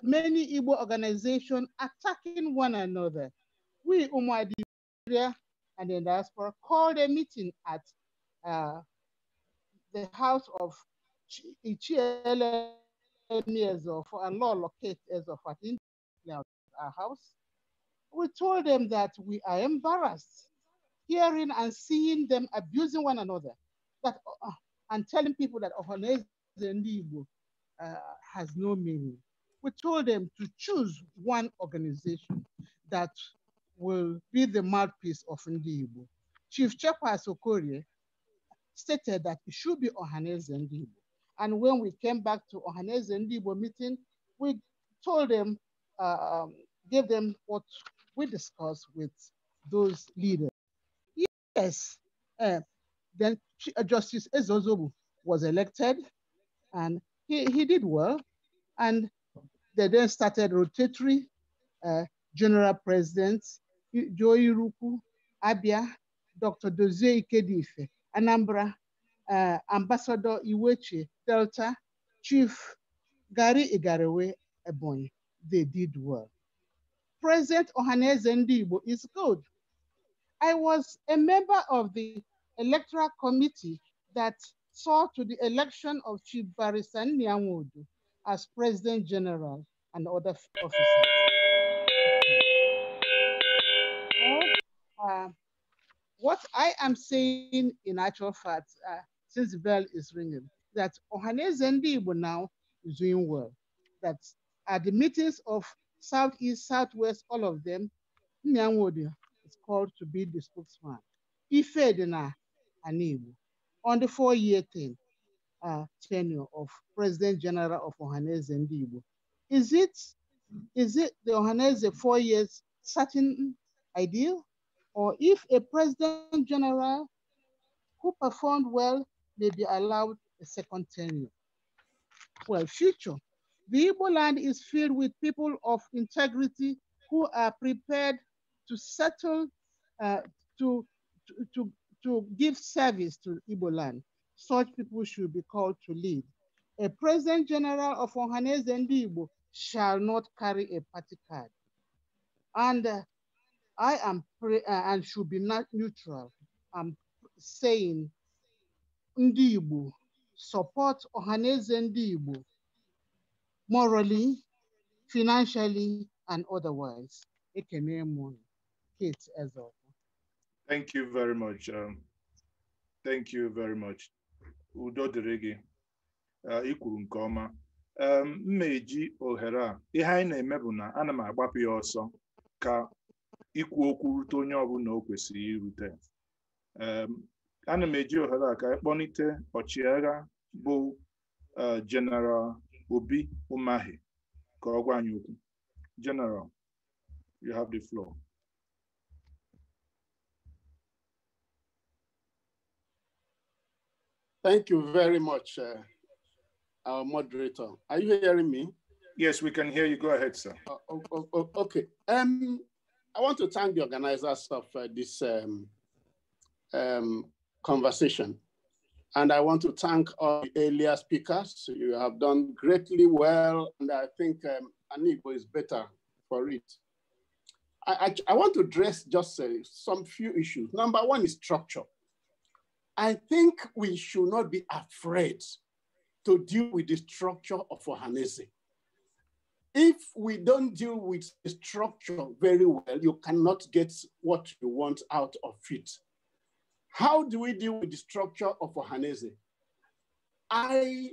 many Igbo organizations attacking one another. We, Umwadi and the diaspora, called a meeting at uh, the house of Ichiele for a law locate as of our house. We told them that we are embarrassed hearing and seeing them abusing one another that, uh, and telling people that Ohanese Ndibo uh, has no meaning. We told them to choose one organization that will be the mouthpiece of Ndibo. Chief Chapa Sokorie stated that it should be Ohaneze Ndibo. And when we came back to Ohaneze Ndibo meeting, we told them, uh, um, gave them what we discussed with those leaders. Yes, uh, then uh, Justice Ezozobu was elected and he, he did well. And they then started rotatory uh, general presidents, Joe Iruku, Abia, Dr. Dozie Ikedife, Anambra, uh, Ambassador Iwechi, Delta, Chief Gary Igarewe Ebony. They did well. President Ohaneze Ndibo is good. I was a member of the electoral committee that saw to the election of Chief Barisan Niamodu as President General and other officers. Uh, what I am saying in actual fact, uh, since the bell is ringing, that Ohanes Igbo now is doing well. That at the meetings of Southeast, Southwest, all of them, Nyangwodi is called to be the spokesman. Ife Dina Anibu on the four-year thing, uh, tenure of President General of Ohanese Ndibo. Is it is it the Ohanese four years certain ideal? or if a president general who performed well may be allowed a second tenure. Well, future. The Igbo land is filled with people of integrity who are prepared to settle, uh, to, to, to, to give service to Igbo land. Such people should be called to lead. A president general of Ohanese and Igbo shall not carry a party card. And uh, I am pre- uh, and should be not neutral. I'm saying ndị support ọhaneze ndị morally, financially, and otherwise. Ekene m Kate Ezor. Thank you very much. Um, thank you very much. Udo dịrị gị. Ị uh, kwuru nke ọma. Um, m na-eji ohere a ihe anyị na-eme bụ na ana m agbapụ ya ọsọ ka ikwu okwu rute onye ọbụla o kwesịrị irute ana m eji ohere ọchịagha bụ Obi Umahi ka ọ gwa anyị okwu you have the floor Thank you very much, uh, our moderator. Are you hearing me? Yes, we can hear you. Go ahead, sir. Uh, okay. Um, I want to thank the organizers of uh, this um, um, conversation. And I want to thank all the earlier speakers. You have done greatly well, and I think um, Anibo is better for it. I, I, I want to address just uh, some few issues. Number one is structure. I think we should not be afraid to deal with the structure of Ohanese. If we don't deal with the structure very well, you cannot get what you want out of it. How do we deal with the structure of Ohanese? I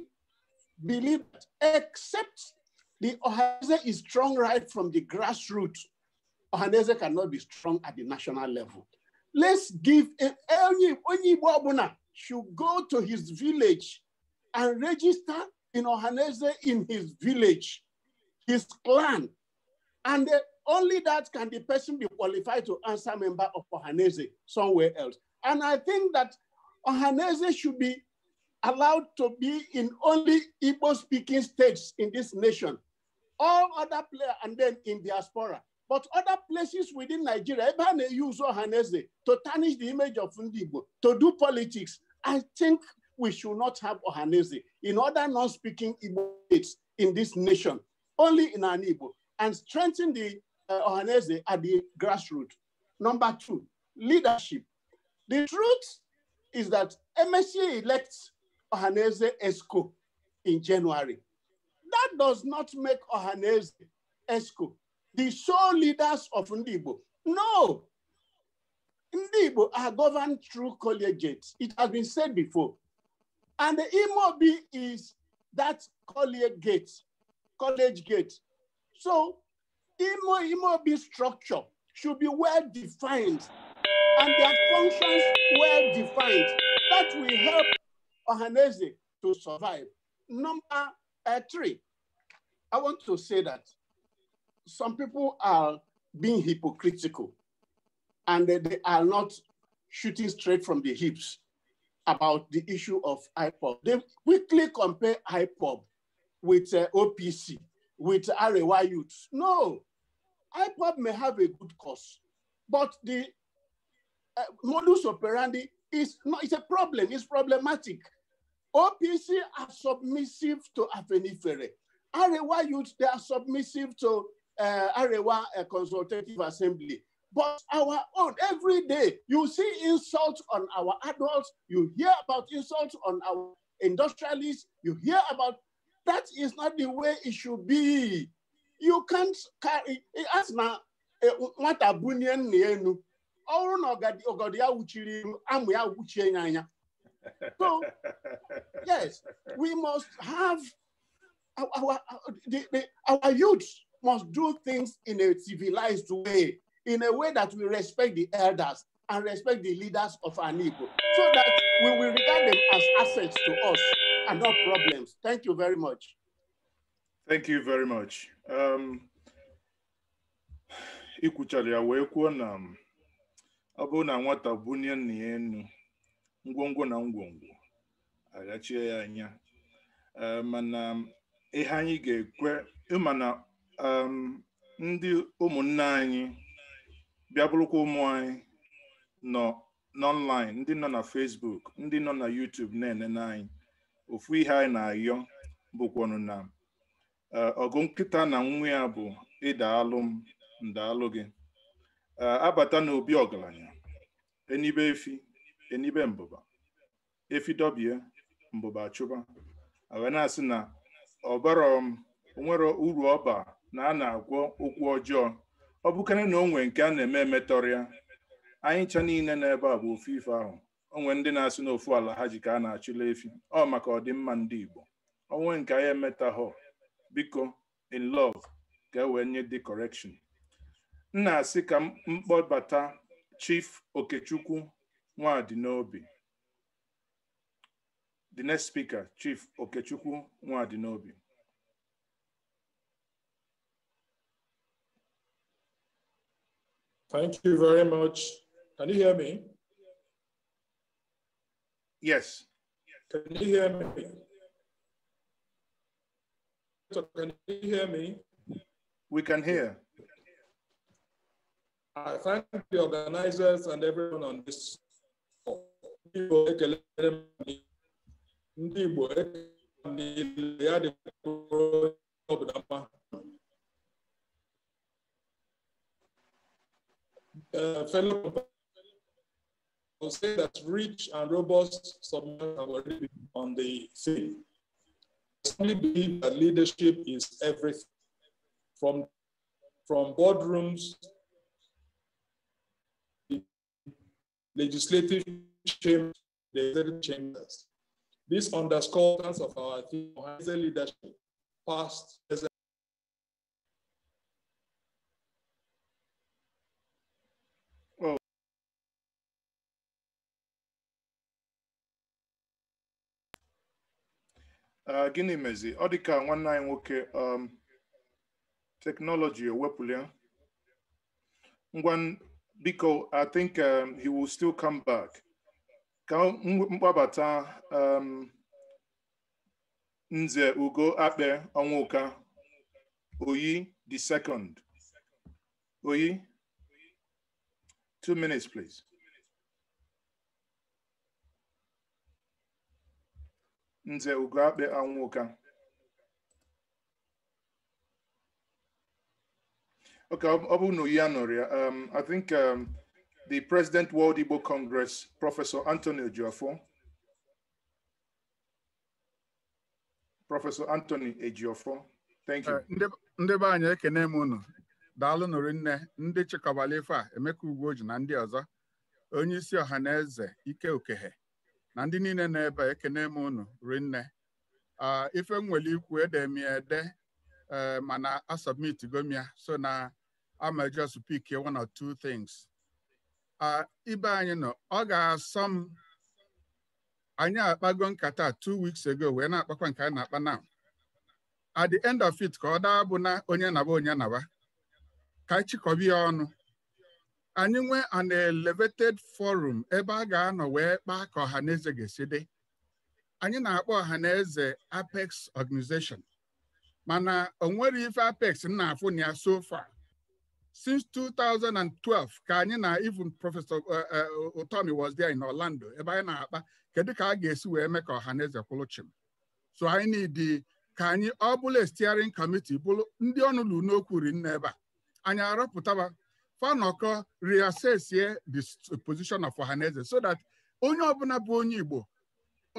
believe that except the Ohanese is strong right from the grassroots, Ohanese cannot be strong at the national level. Let's give any Onyibo Abuna should go to his village and register in Ohanese in his village his clan. And only that can the person be qualified to answer member of Ohanese somewhere else. And I think that Ohanese should be allowed to be in only Igbo speaking states in this nation. All other players, and then in diaspora. But other places within Nigeria, even they use Ohanese to tarnish the image of Ndigbo, to do politics. I think we should not have Ohanese in other non-speaking Igbo states in this nation only in an and strengthen the uh, Ohanese at the grassroots. Number two, leadership. The truth is that MSC elects Ohanese ESCO in January. That does not make Ohanese ESCO the sole leaders of Ndibo. No. Ndibo are governed through collegiates. It has been said before. And the Imobi is that collegiate College Gate. So Imo be structure should be well defined and their functions well defined. That will help Ohanese to survive. Number uh, three, I want to say that some people are being hypocritical and they, they are not shooting straight from the hips about the issue of IPOB. They quickly compare IPOB with uh, OPC, with Arewa youths. No, IPOB may have a good cause, but the uh, modus operandi is not, it's a problem, it's problematic. OPC are submissive to Afenifere. Arewa youths, they are submissive to uh, Arewa uh, Consultative Assembly. But our own, every day, you see insults on our adults, you hear about insults on our industrialists, you hear about that is not the way it should be. You can't carry as na nwata eh, bunye nna enu ọrụ na ọgọdọ ya uchiri amụ ya So yes, we must have our, our, the, the, our youth must do things in a civilized way, in a way that we respect the elders and respect the leaders of our people, so that we will regard them as assets to us. and not problems. Thank you very much. Thank you very much. Um, ikwuchara ya wee kwuo na um, ọ bụrụ na nwata bunye nna ya ngwongwo na ngwongwo agachie ya anya eh, mana um, ihe anyị ga-ekwe mana um, ndị ụmụnne anyị bịa bụrụkwa ụmụ anyị nọ n'ọnlaịn ndị nọ na Facebook ndị nọ na YouTube na-enene anyị ofu ihe anyị na-ayọ bụkwanụ na e, ọgụ nkịta na nwa ya bụ ịdaalụ m ndaalụ gị e, abata n'obi ọgaranya enibe efi enibe mbụba efi dọbie mbụba chụba wee na-asị na ọbara onwere uru ọba na a na-agwọ okwu ọjọọ ọ bụkarị na onwe nke a na-eme emetọrịa anyị ncha niile n'ebe a bụ ofu ife ahụ onwe ndị na-asị n'ofu ala ha ji ka a na-achụla efi ọ maka ọdịmma ndị Igbo onwe nke anyị emetaghọ biko in love ka e wee nye dị correction m na-asị ka mkpọbata Chief Okechukwu nwadị the next speaker Chief Okechukwu nwadị Thank you very much. Can you hear me? Yes. Can you hear me? So can you hear me? We can hear. I thank the organizers and everyone on this. Uh, fellow would say that rich and robust submissions have already been on the scene. I strongly believe that leadership is everything, from, from boardrooms, legislative chambers, the executive chambers. This underscores of our theme, leadership, past, present, Uh, gịnị mezi ọ dị ka nwanne anyị nwoke um, teknọlọji ewepụlia ngwa biko i think um, he will still come back ka mkpabata um, nze ugo akpe ọnwụka oyi the second oyi two minutes please Nze Ugoakpe Anwụka Okay, Obunu Yanoria. Um, I think um, the President World Igbo Congress, Professor Anthony Ejiofor. Professor Anthony Ejiofor. Thank you. Eh, ndị be anyị ekene m unu. Daalụ nụrụ nne, ndị chịkọbala ife a, Emeka ji na ndị ọzọ, onye isi ọha na eze Ike Okehe. na ndị niile na-ebe ekene m unu rinne ife m nwere ikwu ede m ya ede e, mana a gomia m ya so na ama just one or two things ibe anyị nọ ọ ga-asọ m anyị akpago nkata two weeks ago wee na-akpakwa nke a na-akpa na at the end of it ka ọ daa bụ na onye naba onye naba ka chịkọba ya ọnụ anyị nwee an elevated forum ebe a ga-anọ wee kpa ka ọha na eze ga-esi dị anyị na-akpọ ọha na eze apex organization mana o nwere ife apex m na-afụ na ya so far since 2012 ka anyị na even prọfesọ utomi uh, uh, was there in orlando ebe anyị na-akpa kedu ka a ga-esi wee mee ka ọha na eze kwụrụ so anyị ka anyị ọ bụla steering committee bụrụ ndị ọnụ n'okwu ri nne ebe a anyị arọpụtaba fanoko reassess the position of ohaneze so that onye ọbụla bụ onye Igbo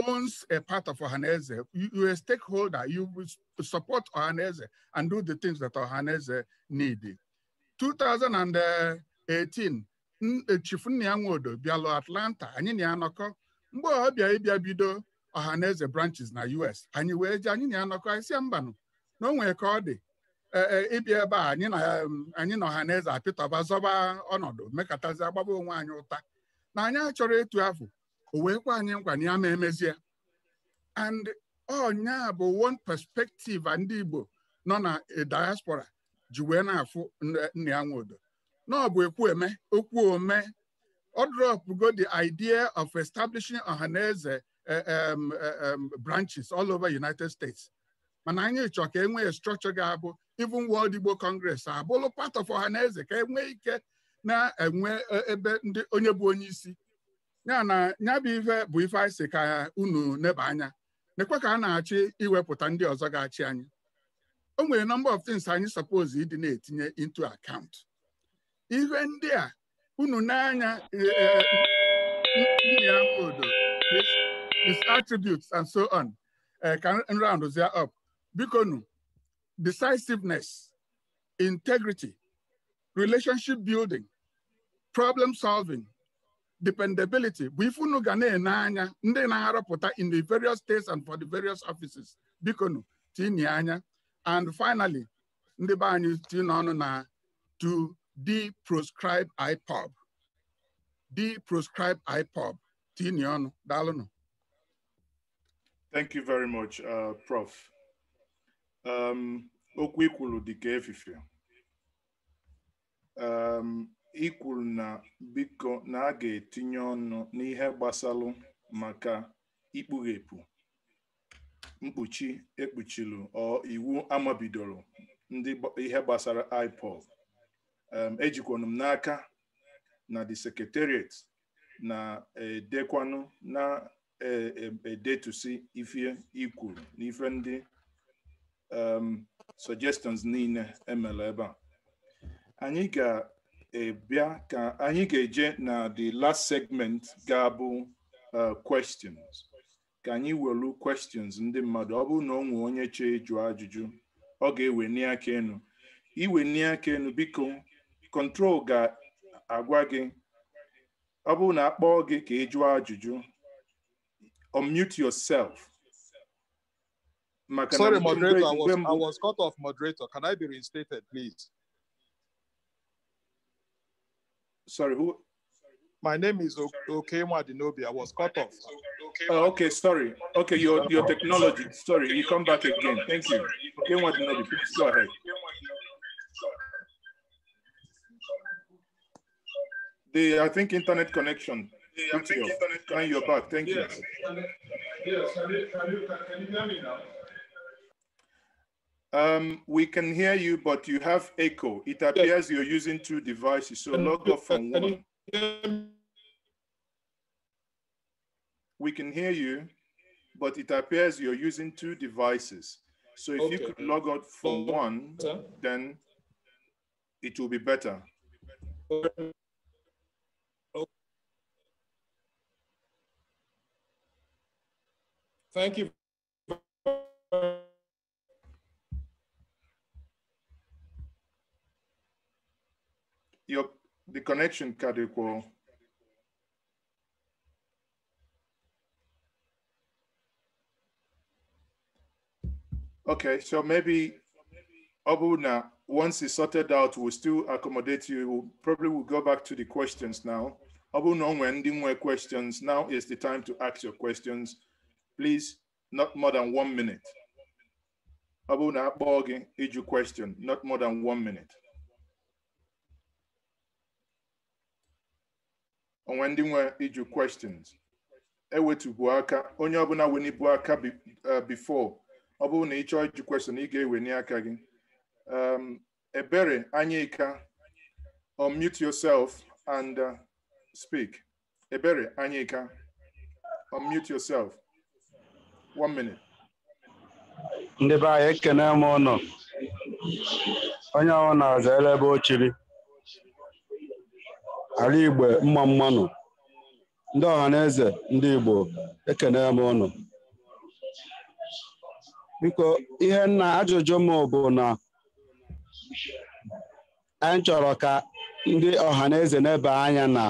owns a part of Ohaneze. You, you're a stakeholder. You support Ohaneze and do the things that Ohaneze need. 2018, e, chief Nnia Nwodo Atlanta, anyị na ya Mgbe ọ bịa ịbịa bido Ohaneze branches na US, anyị wee ji anyị na ya nọkọ anyị si mbanụ na o nwere ọ dị ịbịa ebe a anyị um, na ọha na eze apịtọba zọba ọnọdụ mekatazi agbaba onwe anyị ụta na anyị achọrọ etu afọ o wee kwa anyị nkwa na ya ma emezie and ọnya bụ one perspective ndị Igbo nọ na eh, diaspora ji wee na-afụ nna ya nwodo na ekwu eme okwu ome ọ dropụgo the idea of establishing ọhaneze eh, um, eh, um, branches all over United States mana anyị chọọ ka e nwee structure ga-abụ even World Igbo Congress abụrụ part of eze ka enwee ike na-enwe e, ebe ndị onye bụ onye isi ya na ya bụ ife bụ ife anyị si ka unu neba anya na nekwe ka a na-achị iwepụta ndị ọzọ ga-achị anyị o nwere number of things anyị suppose ịdị na-etinye into account Ihe ndị a unu n'anya e, e, his attributes and so on ka up bikonu decisiveness, integrity, relationship building, problem solving, dependability bụ na na in the various states and for the various offices bikonu tinye and finally ndị be anyị to deproscribe IPOB deproscribe IPOB tinye ọnụ daalụnụ Thank you very much, uh, Prof. Um, okwu ikwuru dịka efife um, ikwulu na biko na a ga-etinye ọnụ n'ihe gbasalụ maka ikpughepụ mkpuchi ekpuchilu ọ iwu amabidoro ndị ihe gbasara IPOB um, ejikwanụ m n'aka na the secretariat na-edekwanụ na-edetusi e, e, ife ikwuru n'ife ndị um, suggestions niile emere ebe a anyị ga-ebịa ka anyị ga-eje na the last segment ga-abụ uh, questions ka anyị welu questions ndị mmadụ ọ bụrụ na ọ nwee onye chee ịjụ ajụjụ ọ ga-eweni aka enu iweni aka enu biko control ga-agwa gị ọ bụrụ na akpọọ gị ka ị jụọ ajụjụ unmute yourself Makanam Sorry, moderator, I was, I was cut off, moderator. Can I be reinstated, please? Sorry, who? My name is Okemwa Dinobi. I was cut off. Oh, okay, sorry. Okay, your your technology. Sorry, you come back again. Thank you. Okemwa Dinobi, please go ahead. The I think internet connection. Yeah, I think internet you're back. Thank you. Yes, can can you, can you hear me now? Um, we can hear you, but you have echo. It appears yes. you're using two devices, so log off from one. We can hear you, but it appears you're using two devices. So if okay. you could log out from one, then it will be better. Thank you. your the connection, Kadeko. Okay, so maybe Obuna, once it's sorted out, we'll still accommodate you. We'll, probably we'll go back to the questions now. Obuna, when ending our questions, now is the time to ask your questions. Please, not more than one minute. Obuna, Borgi, each question, not more than one minute. onwe ndị nwe ịjụ questions ewetubu aka onye ọbụla wenibu aka uh, before ọ bụrụ na ị chọọ ịjụ question ị ga-eweni aka gị um, ebere anyịka unmute yourself and uh, speak ebere anyịka unmute yourself one minute ndị be anyị ekene m ụnụ onye ọwụ na-aza ebe o ala igbe mma mmanụ ndị ọha na eze ndị igbo na m ụnụ biko ihe nna ajụjụ m bụ na anyị chọrọ ka ndị ọha na eze na-ebe anya na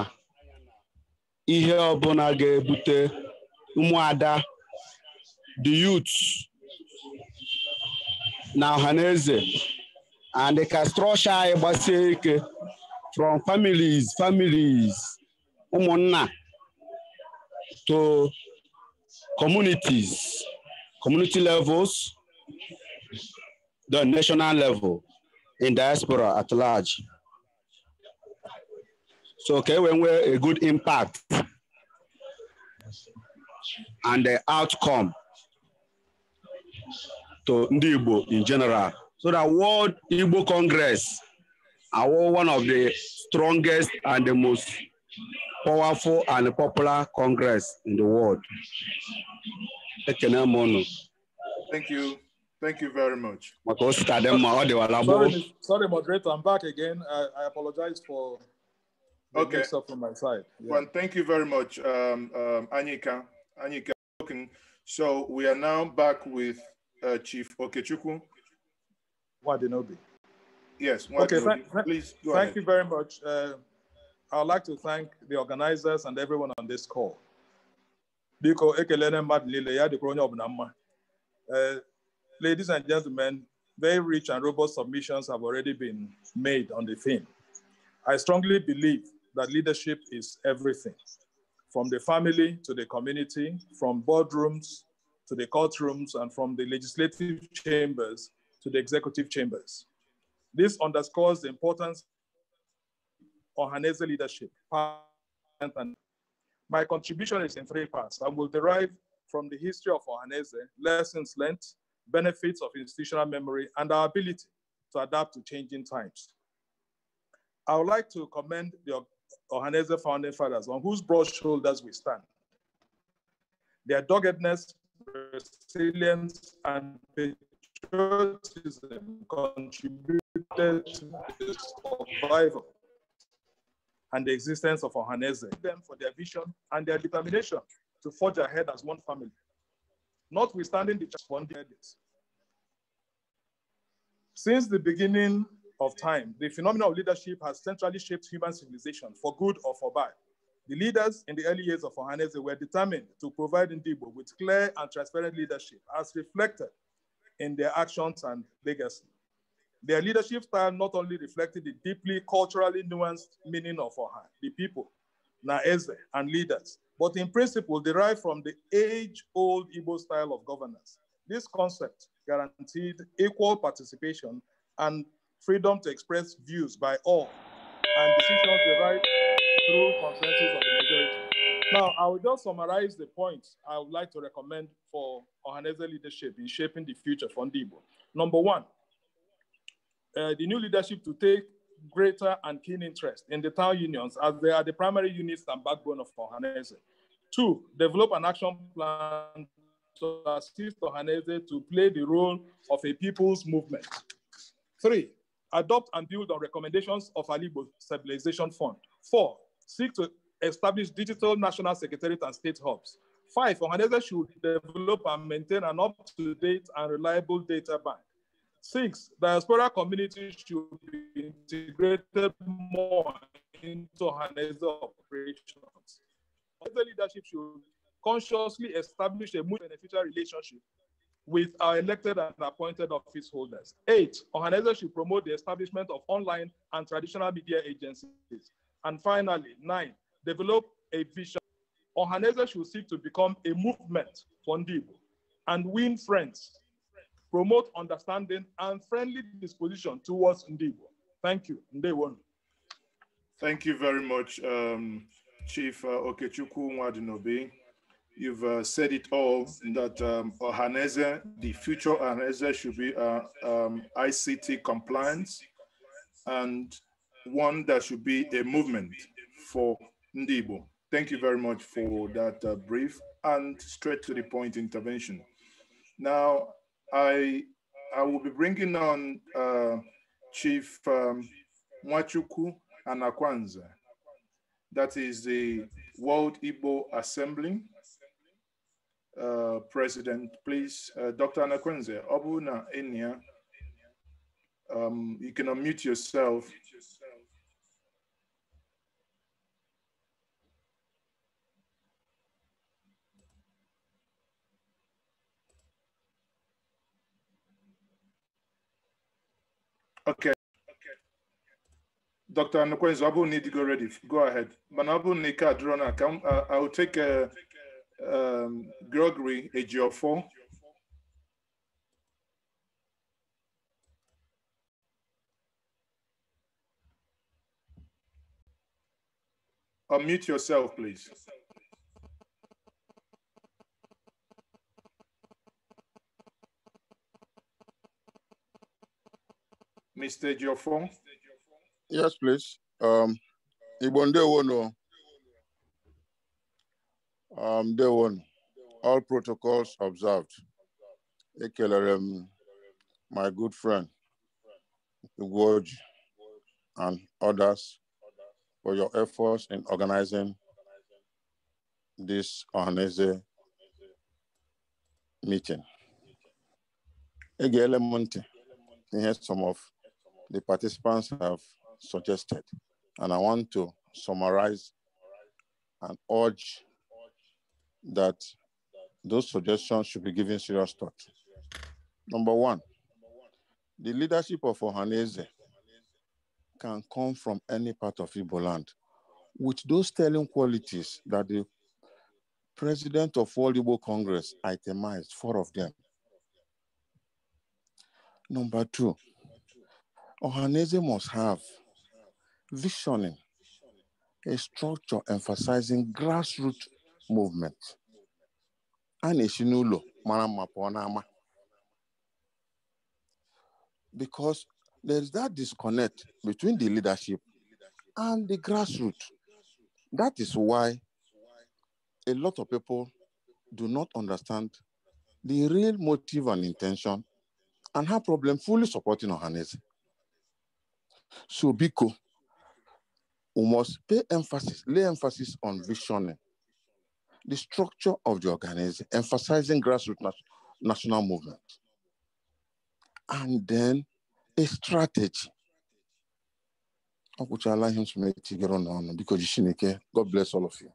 ihe ọbụla ga-ebute ụmụada the youth na ọha na eze and ka anyị gbasie ike from families, families, to communities, community levels, the national level, in diaspora at large. So okay, when we're a good impact and the outcome to Ndibo in general. So the World Igbo Congress our one of the strongest and the most powerful and popular Congress in the world. Thank you. Thank you very much. Sorry, sorry moderator, I'm back again. I, I apologize for the okay. mix up from my side. Yeah. Well, thank you very much, um, um, Anika. Anika. So we are now back with uh, Chief Okechukwu. Wadinobi. Yes. Okay. Thank, please thank ahead. you very much. Uh, I'd like to thank the organizers and everyone on this call. Biko ekelene madlile ya uh, Ladies and gentlemen, very rich and robust submissions have already been made on the theme. I strongly believe that leadership is everything, from the family to the community, from boardrooms to the courtrooms, and from the legislative chambers to the executive chambers. This underscores the importance of Hanese leadership. My contribution is in three parts I will derive from the history of Ohanese, lessons learned, benefits of institutional memory, and our ability to adapt to changing times. I would like to commend the Ohanese founding fathers on whose broad shoulders we stand. Their doggedness, resilience, and patriotism contribute survival and the existence of Ohaneze, them for their vision and their determination to forge ahead as one family, notwithstanding the challenges. Since the beginning of time, the phenomenon of leadership has centrally shaped human civilization for good or for bad. The leaders in the early years of Ohaneze were determined to provide Ndibo with clear and transparent leadership as reflected in their actions and legacy. Their leadership style not only reflected the deeply culturally nuanced meaning of Oha, the people, Naeze, and leaders, but in principle derived from the age-old Igbo style of governance. This concept guaranteed equal participation and freedom to express views by all, and decisions derived through consensus of the majority. Now, I will just summarize the points I would like to recommend for Ohaneze leadership in shaping the future for Ndibo. Number one, uh, the new leadership to take greater and keen interest in the town unions as they are the primary units and backbone of Ohanese. Two, develop an action plan to assist Ohanese to play the role of a people's movement. Three, adopt and build on recommendations of Alibo Stabilization Fund. Four, seek to establish digital national secretariat and state hubs. Five, Ohanese should develop and maintain an up-to-date and reliable data bank. Six, diaspora communities should be integrated more into Hanese operations. The leadership should consciously establish a mutual beneficial relationship with our elected and appointed office holders. Eight, organizations should promote the establishment of online and traditional media agencies. And finally, nine, develop a vision. Organizations should seek to become a movement for and win friends promote understanding and friendly disposition towards Ndibo. Thank you. Ndewo. Thank you very much, um, Chief uh, Okechukwu Mwadinobi. You've uh, said it all that um, Ohaneze, the future Ohaneze should be uh, um, ICT compliance and one that should be a movement for Ndibo. Thank you very much for that uh, brief and straight to the point intervention. Now, I I will be bringing on uh, Chief um, Mwachuku Anakwanza. That is the World Igbo Assembly uh, President. Please, uh, Dr. Anakwanza, Obuna Enya, um, you can unmute yourself Okay. Dr. Nukwenzo, ọ need to go ready, go ahead. Mana ọ bụrụ I will take uh, um, Gregory four. Unmute yourself, please. Mr. Geoffrey? Yes, please. Um, Ibonde Wono. Um, day one, all protocols observed. Ekelerem, my good friend, gorge, and others for your efforts in organizing this Ohanese meeting. Ege here's some of the participants have suggested. And I want to summarize and urge that those suggestions should be given serious thought. Number one, the leadership of Ohanese can come from any part of Igbo land with those telling qualities that the president of all Igbo Congress itemized, four of them. Number two, Ohanese must have visioning, a structure emphasizing grassroots movement. And na-esi n'ụlọ mara Because there's that disconnect between the leadership and the grassroots. That is why a lot of people do not understand the real motive and intention and have problem fully supporting Ohanese. So Biko, we must pay emphasis, lay emphasis on visioning, the structure of the organization, emphasizing grassroots nat- national movement, and then a strategy. allow him to make it on because God bless all of you.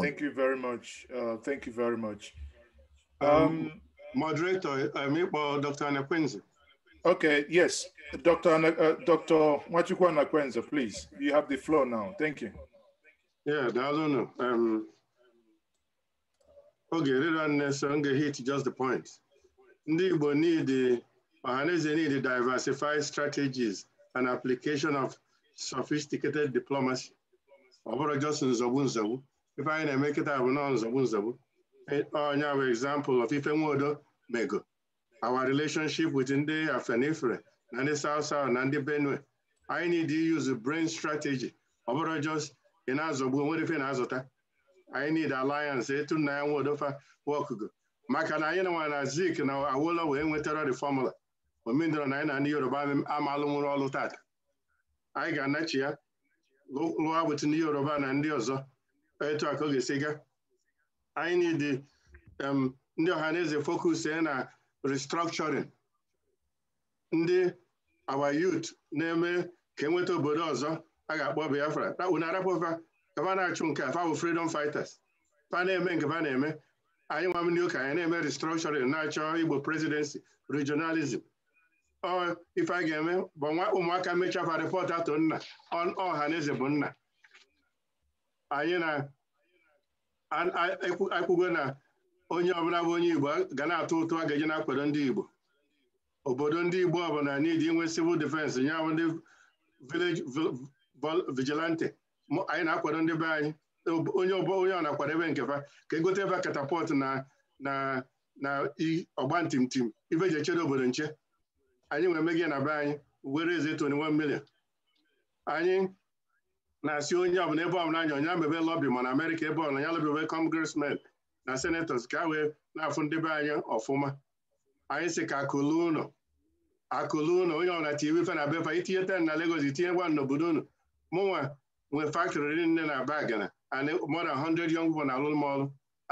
Thank you very much. Uh, thank you very much. Um, um, moderator, I mean, well, Dr. Anna Quincy. Okay, yes. Dr. Ana, uh, Dr. Machukwa Nakwenza, please. You have the floor now. Thank you. Yeah, I don't know. Um, okay, hit just the point. We need, Ọhaneze need diversified strategies and application of sophisticated diplomacy. If I just it, I will anyị na-eme kịta bụ nọ nzogbu nzogbu. Onye bụ example of ife nwodo our relationship with Ndị Afenifere na ndị South South na Benue anyị need to use brain strategy ọ bụrụ just ị na-azọgbu onwere ife na-azụta anyị need alliance etu nna ya nwaodofa wọkụgo maka na anyị nwa na Zik na Awolowo wee nwetara the formula omendọrọ na anyị na ndị Yoruba amalụ nwụrụ ọlụ tata anyị ga-anachi ya lụọ with ndị Yoruba na ndị ọzọ etu a ka ọ need um, ndị um na eze focus na restructuring ndị our youth na-eme ka enweta obodo ọzọ a ga-akpọ Biafra unu arapụfa na-achụ nke afa bụ freedom fighters fa na-eme nke fa na-eme anyị nwa ndị ụka anyị na-eme restructuring na-achọ Igbo presidency regionalism ọ ife a ga-eme bụ ụmụaka mechafa report atụ nna ọha na eze bụ nna anyị na-ekwugo na onye ọbụla bụ onye Igbo ga na-atụ ụtụ a ga-eji na-akwado ndị Igbo obodo ndị Igbo ọbụla n'idi inwe civil defense nye ahụ ndị village vigilante anyị na-akwado ndị be anyị onye onye ọ na ebe nkefa ka egote ebe katapọt na na na ọgba ntimtim ibe ji echede obodo nche anyị nwere megie na be anyị were eze 21 million anyị na-asị onye ọbụla ebe ọbụla anyị onye amebe lọbi ma na Amerịka ebe ọbụla ya lọbi ebe congressmen na senetọs ka wee na-afụ ndebe anya ọfụma anyị sị ka akụlụ ụlọ akụlụ ụlọ onye ọbụla ti iwefe na befa itinye ten na Lagos itinyekwa n'obodo unu mụnwa nwe faktrị nne na bagana and more than 100 young people na alụlụ ọrụ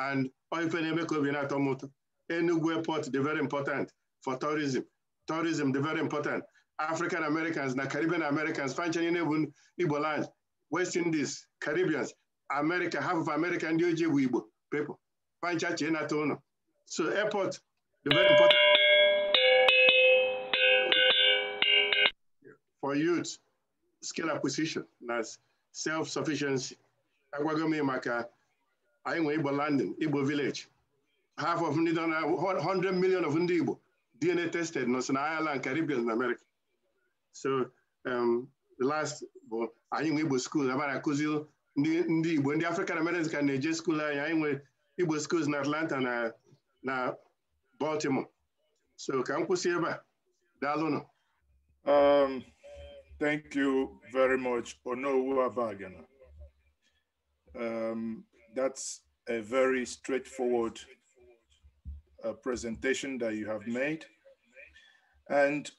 and oife na-eme ka obi na-atọ m ụtọ Enugu airport dị very important for tourism tourism de very important African Americans na Caribbean Americans fanchanye na-ebu Igbo land West Indies Caribbeans America half of America ndị ojii bụ Igbo people Pancha Chenatono. So airport, the very important for youth, skill acquisition, that's self-sufficiency. Agwagome Maka, Ibo landing, Ibo village. Half of ndị 100 million of ndị DNA tested nọ na Ireland, Caribbean and America. So um, the last bụ Ibo nwe Igbo school, abara akụziri ndị Igbo, African Americans can na school anyị, Igbo schools na Atlanta na na Baltimore. So ka m kwụsị ebe a. Daalụnụ. Um, thank you very much, Onowu Abagana. Um, that's a very straightforward uh, presentation that you have made. And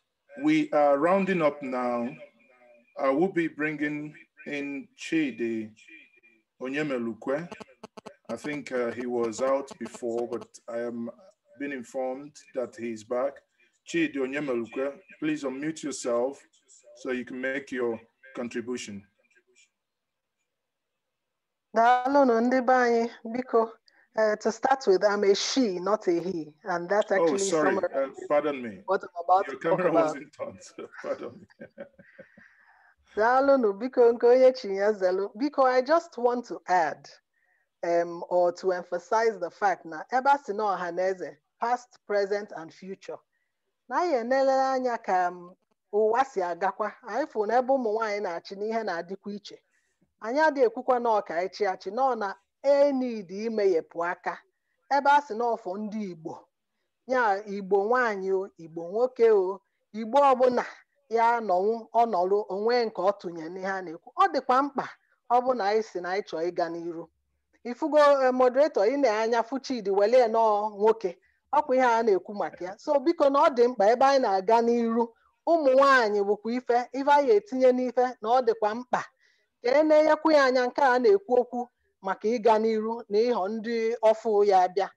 we are rounding up now. I will be bringing in Chidi Onyemelukwe I think uh, he was out before, but I am been informed that he's back. Chidi Onyemaluka, please unmute yourself so you can make your contribution. Daalụnụ ndị biko. Uh, to start with, I'm a she, not a he, and that's oh, actually. Oh, sorry. Uh, pardon me. What I'm about Your to camera wasn't on. pardon me. Daalụnụ, biko Biko, I just want to add. um, or to emphasize the fact na ebe a sị na ọha past present and future na anyị enelele anya ka um, ụwa si agakwa anyị fụ na ebe ụmụ nwaanyị na-achị n'ihe na-adịkwa iche anyị adịghị ekwukwa na ọka ịchị achị nọ na enid imeghepụ aka ebe a sị na ọfọ ndị igbo ya igbo nwaanyị o igbo nwoke o igbo ọbụla ya nọnwụ ọnọrụ onwe nke ọ tụnyere n'ihe a na-ekwu ọ dịkwa mkpa ọ bụ na anyị si na anyị chọọ ịga n'iru ifugo eh, moderator ị na-anya fuchidi Chidi nọọ nwoke ọkwa ihe a na-ekwu maka ya so biko na ọ dị mkpa ebe anyị na-aga n'iru ụmụ nwaanyị bụkwa ife ife anyị etinye n'ife na ọ dịkwa mkpa ka e na-enyekwu ya anya nke a na-ekwu okwu maka ịga n'iru na ịhọ ndị ọfụ ya bịa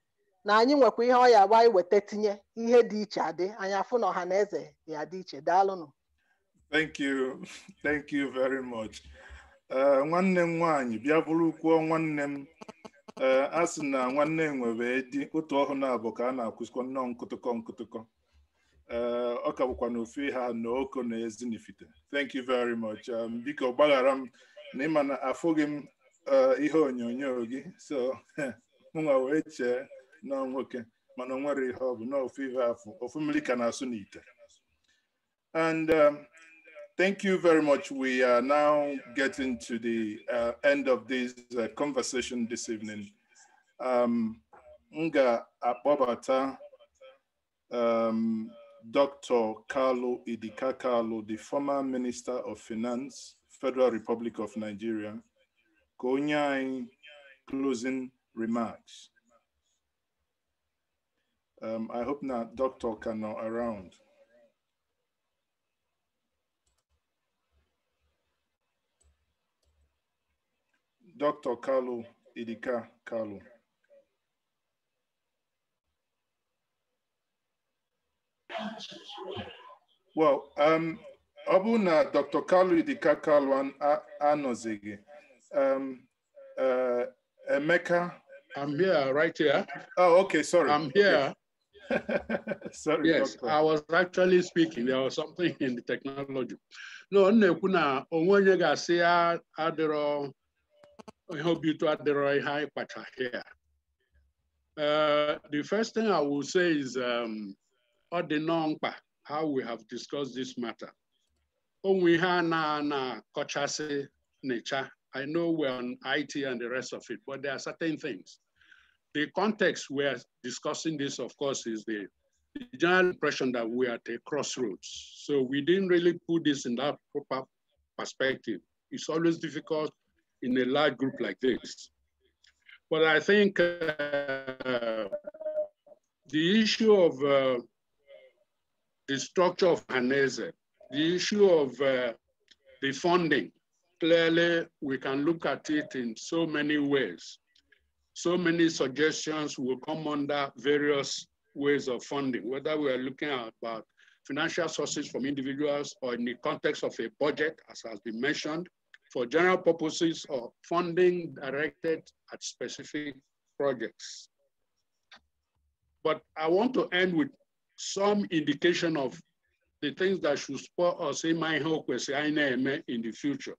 na anyị nwekwa ihe ọ ya agba iweta tinye ihe dị iche adị anyị afụ na ọha na eze ya dị iche daalụnụ thank you thank you very much. Eh, nwanne m nwaanyị bịa kwuo nwanne m eh, a sị na nwanne nwere di otu ọhụụ na-abụ ka a na-akwụsịkọ nnọọ nkụtụkọ nkụtụkọ eh, ọ ka bụkwa na ofe ha na oko na ezinifite thank you very much um, biko gbaghara m na ịma na afụghị m ihe onyonyo gị so mụnwa wee chee nọọ nwoke mana o nwere ihe ọ bụ na ofe ihe ofu mmiri ka na-asụ n'ite and um, Thank you very much. We are now getting to the uh, end of this uh, conversation this evening. Um, Nga Abobata, um, Dr. Carlo Idika Carlo, the former Minister of Finance, Federal Republic of Nigeria, Konyai closing remarks. Um, I hope now Dr. Kano around. Dr. Carlo Idika Carlo. Well, um, ọ na Dr. Carlo Idika Kalu anọzighị, um, uh, Emeka. I'm here, right here. Oh, okay, sorry. I'm here. sorry, yes, doctor. I was actually speaking. There was something in the technology. No, ọ na-ekwu na onwe onye I hope you taught the right high hypertrophy here. Uh, the first thing I will say is um, Odinongpa, how we have discussed this matter. Onwe ha na na kochasi nature. I know we're on IT and the rest of it, but there are certain things. The context we're discussing this, of course, is the, the general impression that we're at a crossroads. So we didn't really put this in that proper perspective. It's always difficult in a large group like this. But I think uh, the issue of uh, the structure of Hanese, the issue of uh, the funding, clearly we can look at it in so many ways. So many suggestions will come under various ways of funding, whether we are looking at about financial sources from individuals or in the context of a budget, as has been mentioned, for general purposes or funding directed at specific projects. But I want to end with some indication of the things that should spur us in my hope in the future.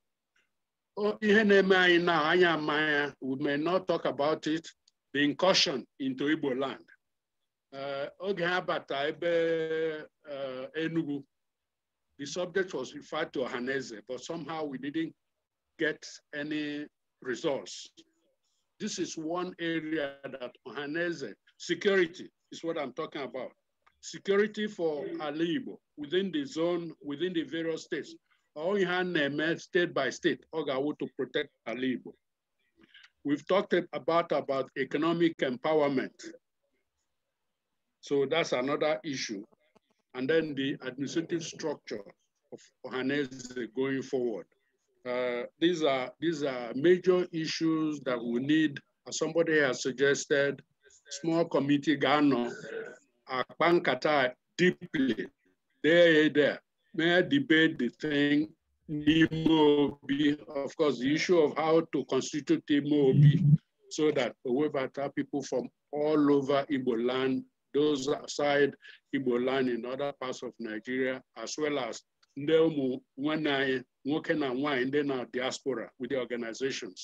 Oh, we may not talk about it, the incursion into Igbo land. Uh, oge ebe uh, Enugu, the subject was referred to Haneze, but somehow we didn't get any results. This is one area that Ohanese security is what I'm talking about. Security for Alibo within the zone, within the various states. Ohaneme state by state, Ogawu to protect Alibo. We've talked about, about economic empowerment. So that's another issue. And then the administrative structure of Ohanese going forward. Uh, these are these are major issues that we need. As somebody has suggested, small committee Ghana, Akpankata deeply, there, there, may I debate the thing. Imobi, of course, the issue of how to constitute Imobi so that Owebata people from all over Ibo land, those outside Ibo land in other parts of Nigeria, as well as ndị ụmụ nwanne anyị nwoke na nwaanyị ndị na diaspora with the organizations.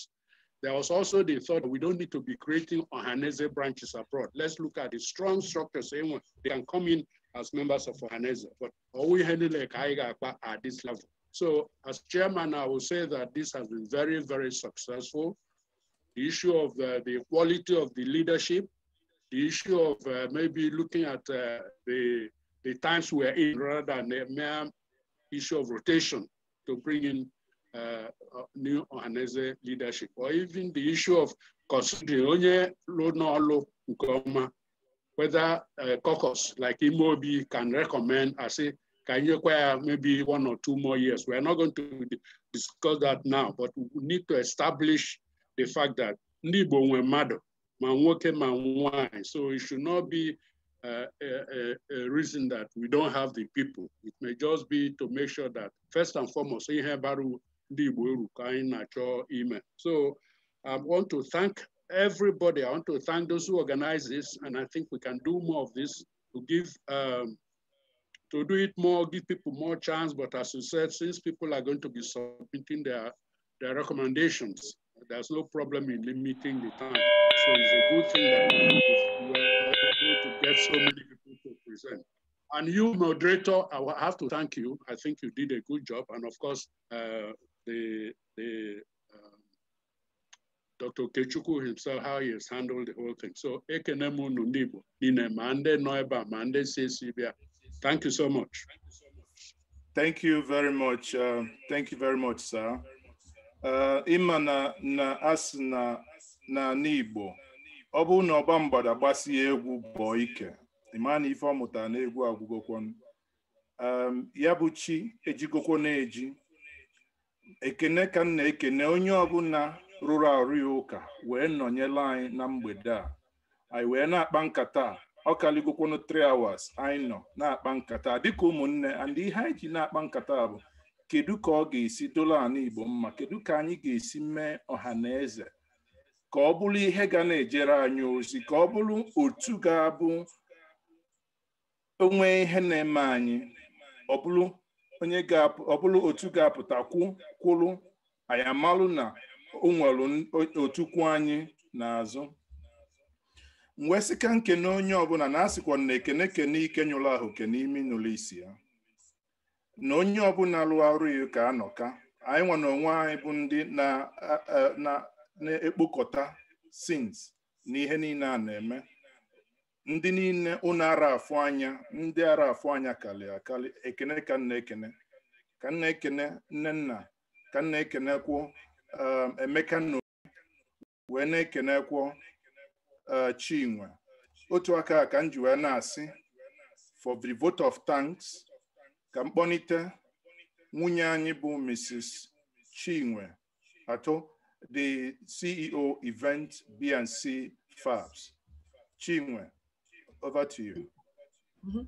There was also the thought we don't need to be creating Ohaneze branches abroad. Let's look at the strong structures. Eh, they can come in as members of Ohaneze, but all we handle like at this level. So as chairman, I will say that this has been very, very successful. The issue of uh, the quality of the leadership, the issue of uh, maybe looking at uh, the, the times we're in rather than the mere issue of rotation to bring in uh, uh new ọhaneze leadership or even the issue of considering onye whether uh, caucus like Imobi can recommend I say can you acquire maybe one or two more years. We're not going to discuss that now, but we need to establish the fact that Nibo Mado, my wine, So it should not be uh, a, a, reason that we don't have the people. It may just be to make sure that first and foremost, So I want to thank everybody. I want to thank those who organize this, and I think we can do more of this to give um, to do it more, give people more chance. But as you said, since people are going to be submitting their their recommendations, there's no problem in limiting the time. So it's a good thing that we to get so many people to present. And you, moderator, I have to thank you. I think you did a good job. And of course, uh, the, the um, Dr. Kechuku himself, how he has handled the whole thing. So, Ekenemu Nundibo, Nine Mande Noiba, Mande Thank you so much. Thank you very much. Uh, thank you very much, sir. Uh, ima na, na as na, na Nibo. ọ bụrụ na ọba mgbada gbasie egwu bọọ ike ịma na ife ọ mụtara na egwu agwụgokwon ya bụ chi ejigokwo na-eji ekene ka nna ekene onye ọbụla rụrụ arụ ya ụka wee nọnyela anyị na mgbede a anyị wee na-akpa nkata ọ kalịgokwonu 3 hours anyị nọ na-akpa nkata dịka ụmụnne and ihe anyị ji na-akpa nkata bụ kedu ka ọ ga-esi dola ala Igbo mma kedu ka anyị ga-esi mee ọha na eze ka ọ bụrụ ihe ga na-ejere anyị ozi ka ọ bụrụ otu ga-abụ onwe ihe na-eme anyị ọ bụrụ otu ga-apụta kwụrụ anyị amalụ na o nwere otukwu anyị n'azụ mwesika e sị ka nkene onye ọbụla na asịkwa na ekene kene ike nyụrụ ahụ ke n'ime nụlụ isi ya na onye ọbụla lụọ ọrụ ya ka anọka anyị nwa onwe anyị bụ ndị na na-ekpokọta sins na ihe niile a na-eme ndị niile ụnụ ara afụ anya ndị ara afụ anya kalị akali ekene ka nna ekene ka nna ekene nne nna ka nna ekenekwụ um, emeka na wee na-ekenekwụ uh, chinwe otu aka ka m ji wee na-asị for the vote of thanks ka mkpọnite nwunye anyị bụ mrs chinwe atọ the CEO event BNC Fabs. Chinwe, over to you. Mm -hmm.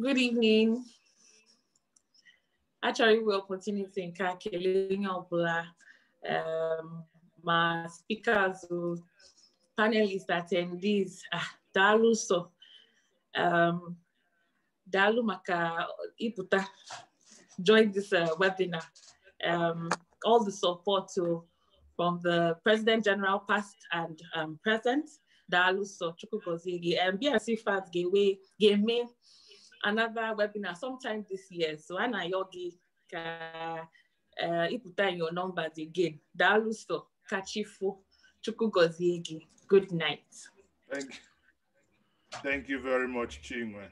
Good evening. Actually, we are continuing calculating our black. Um, my speakers, panelists, attendees, ah, Dalu so, um, Dalu maka iputa join this uh, webinar. Um, all the support to, from the President General, past and um, present, Daluso Chukwukozigi, and BRC fans gave me another webinar sometime this year. So Anna Yogi, uh, put down your numbers again. Daluso Kachifu Chukukozigi. Good night. Thank you. Thank you very much, Chinwe.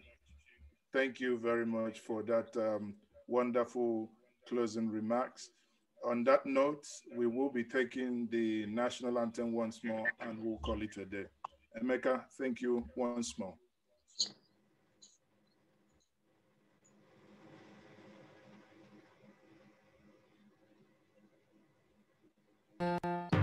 Thank you very much for that um, wonderful closing remarks. On that note, we will be taking the national anthem once more and we'll call it a day. Emeka, thank you once more. Thank you.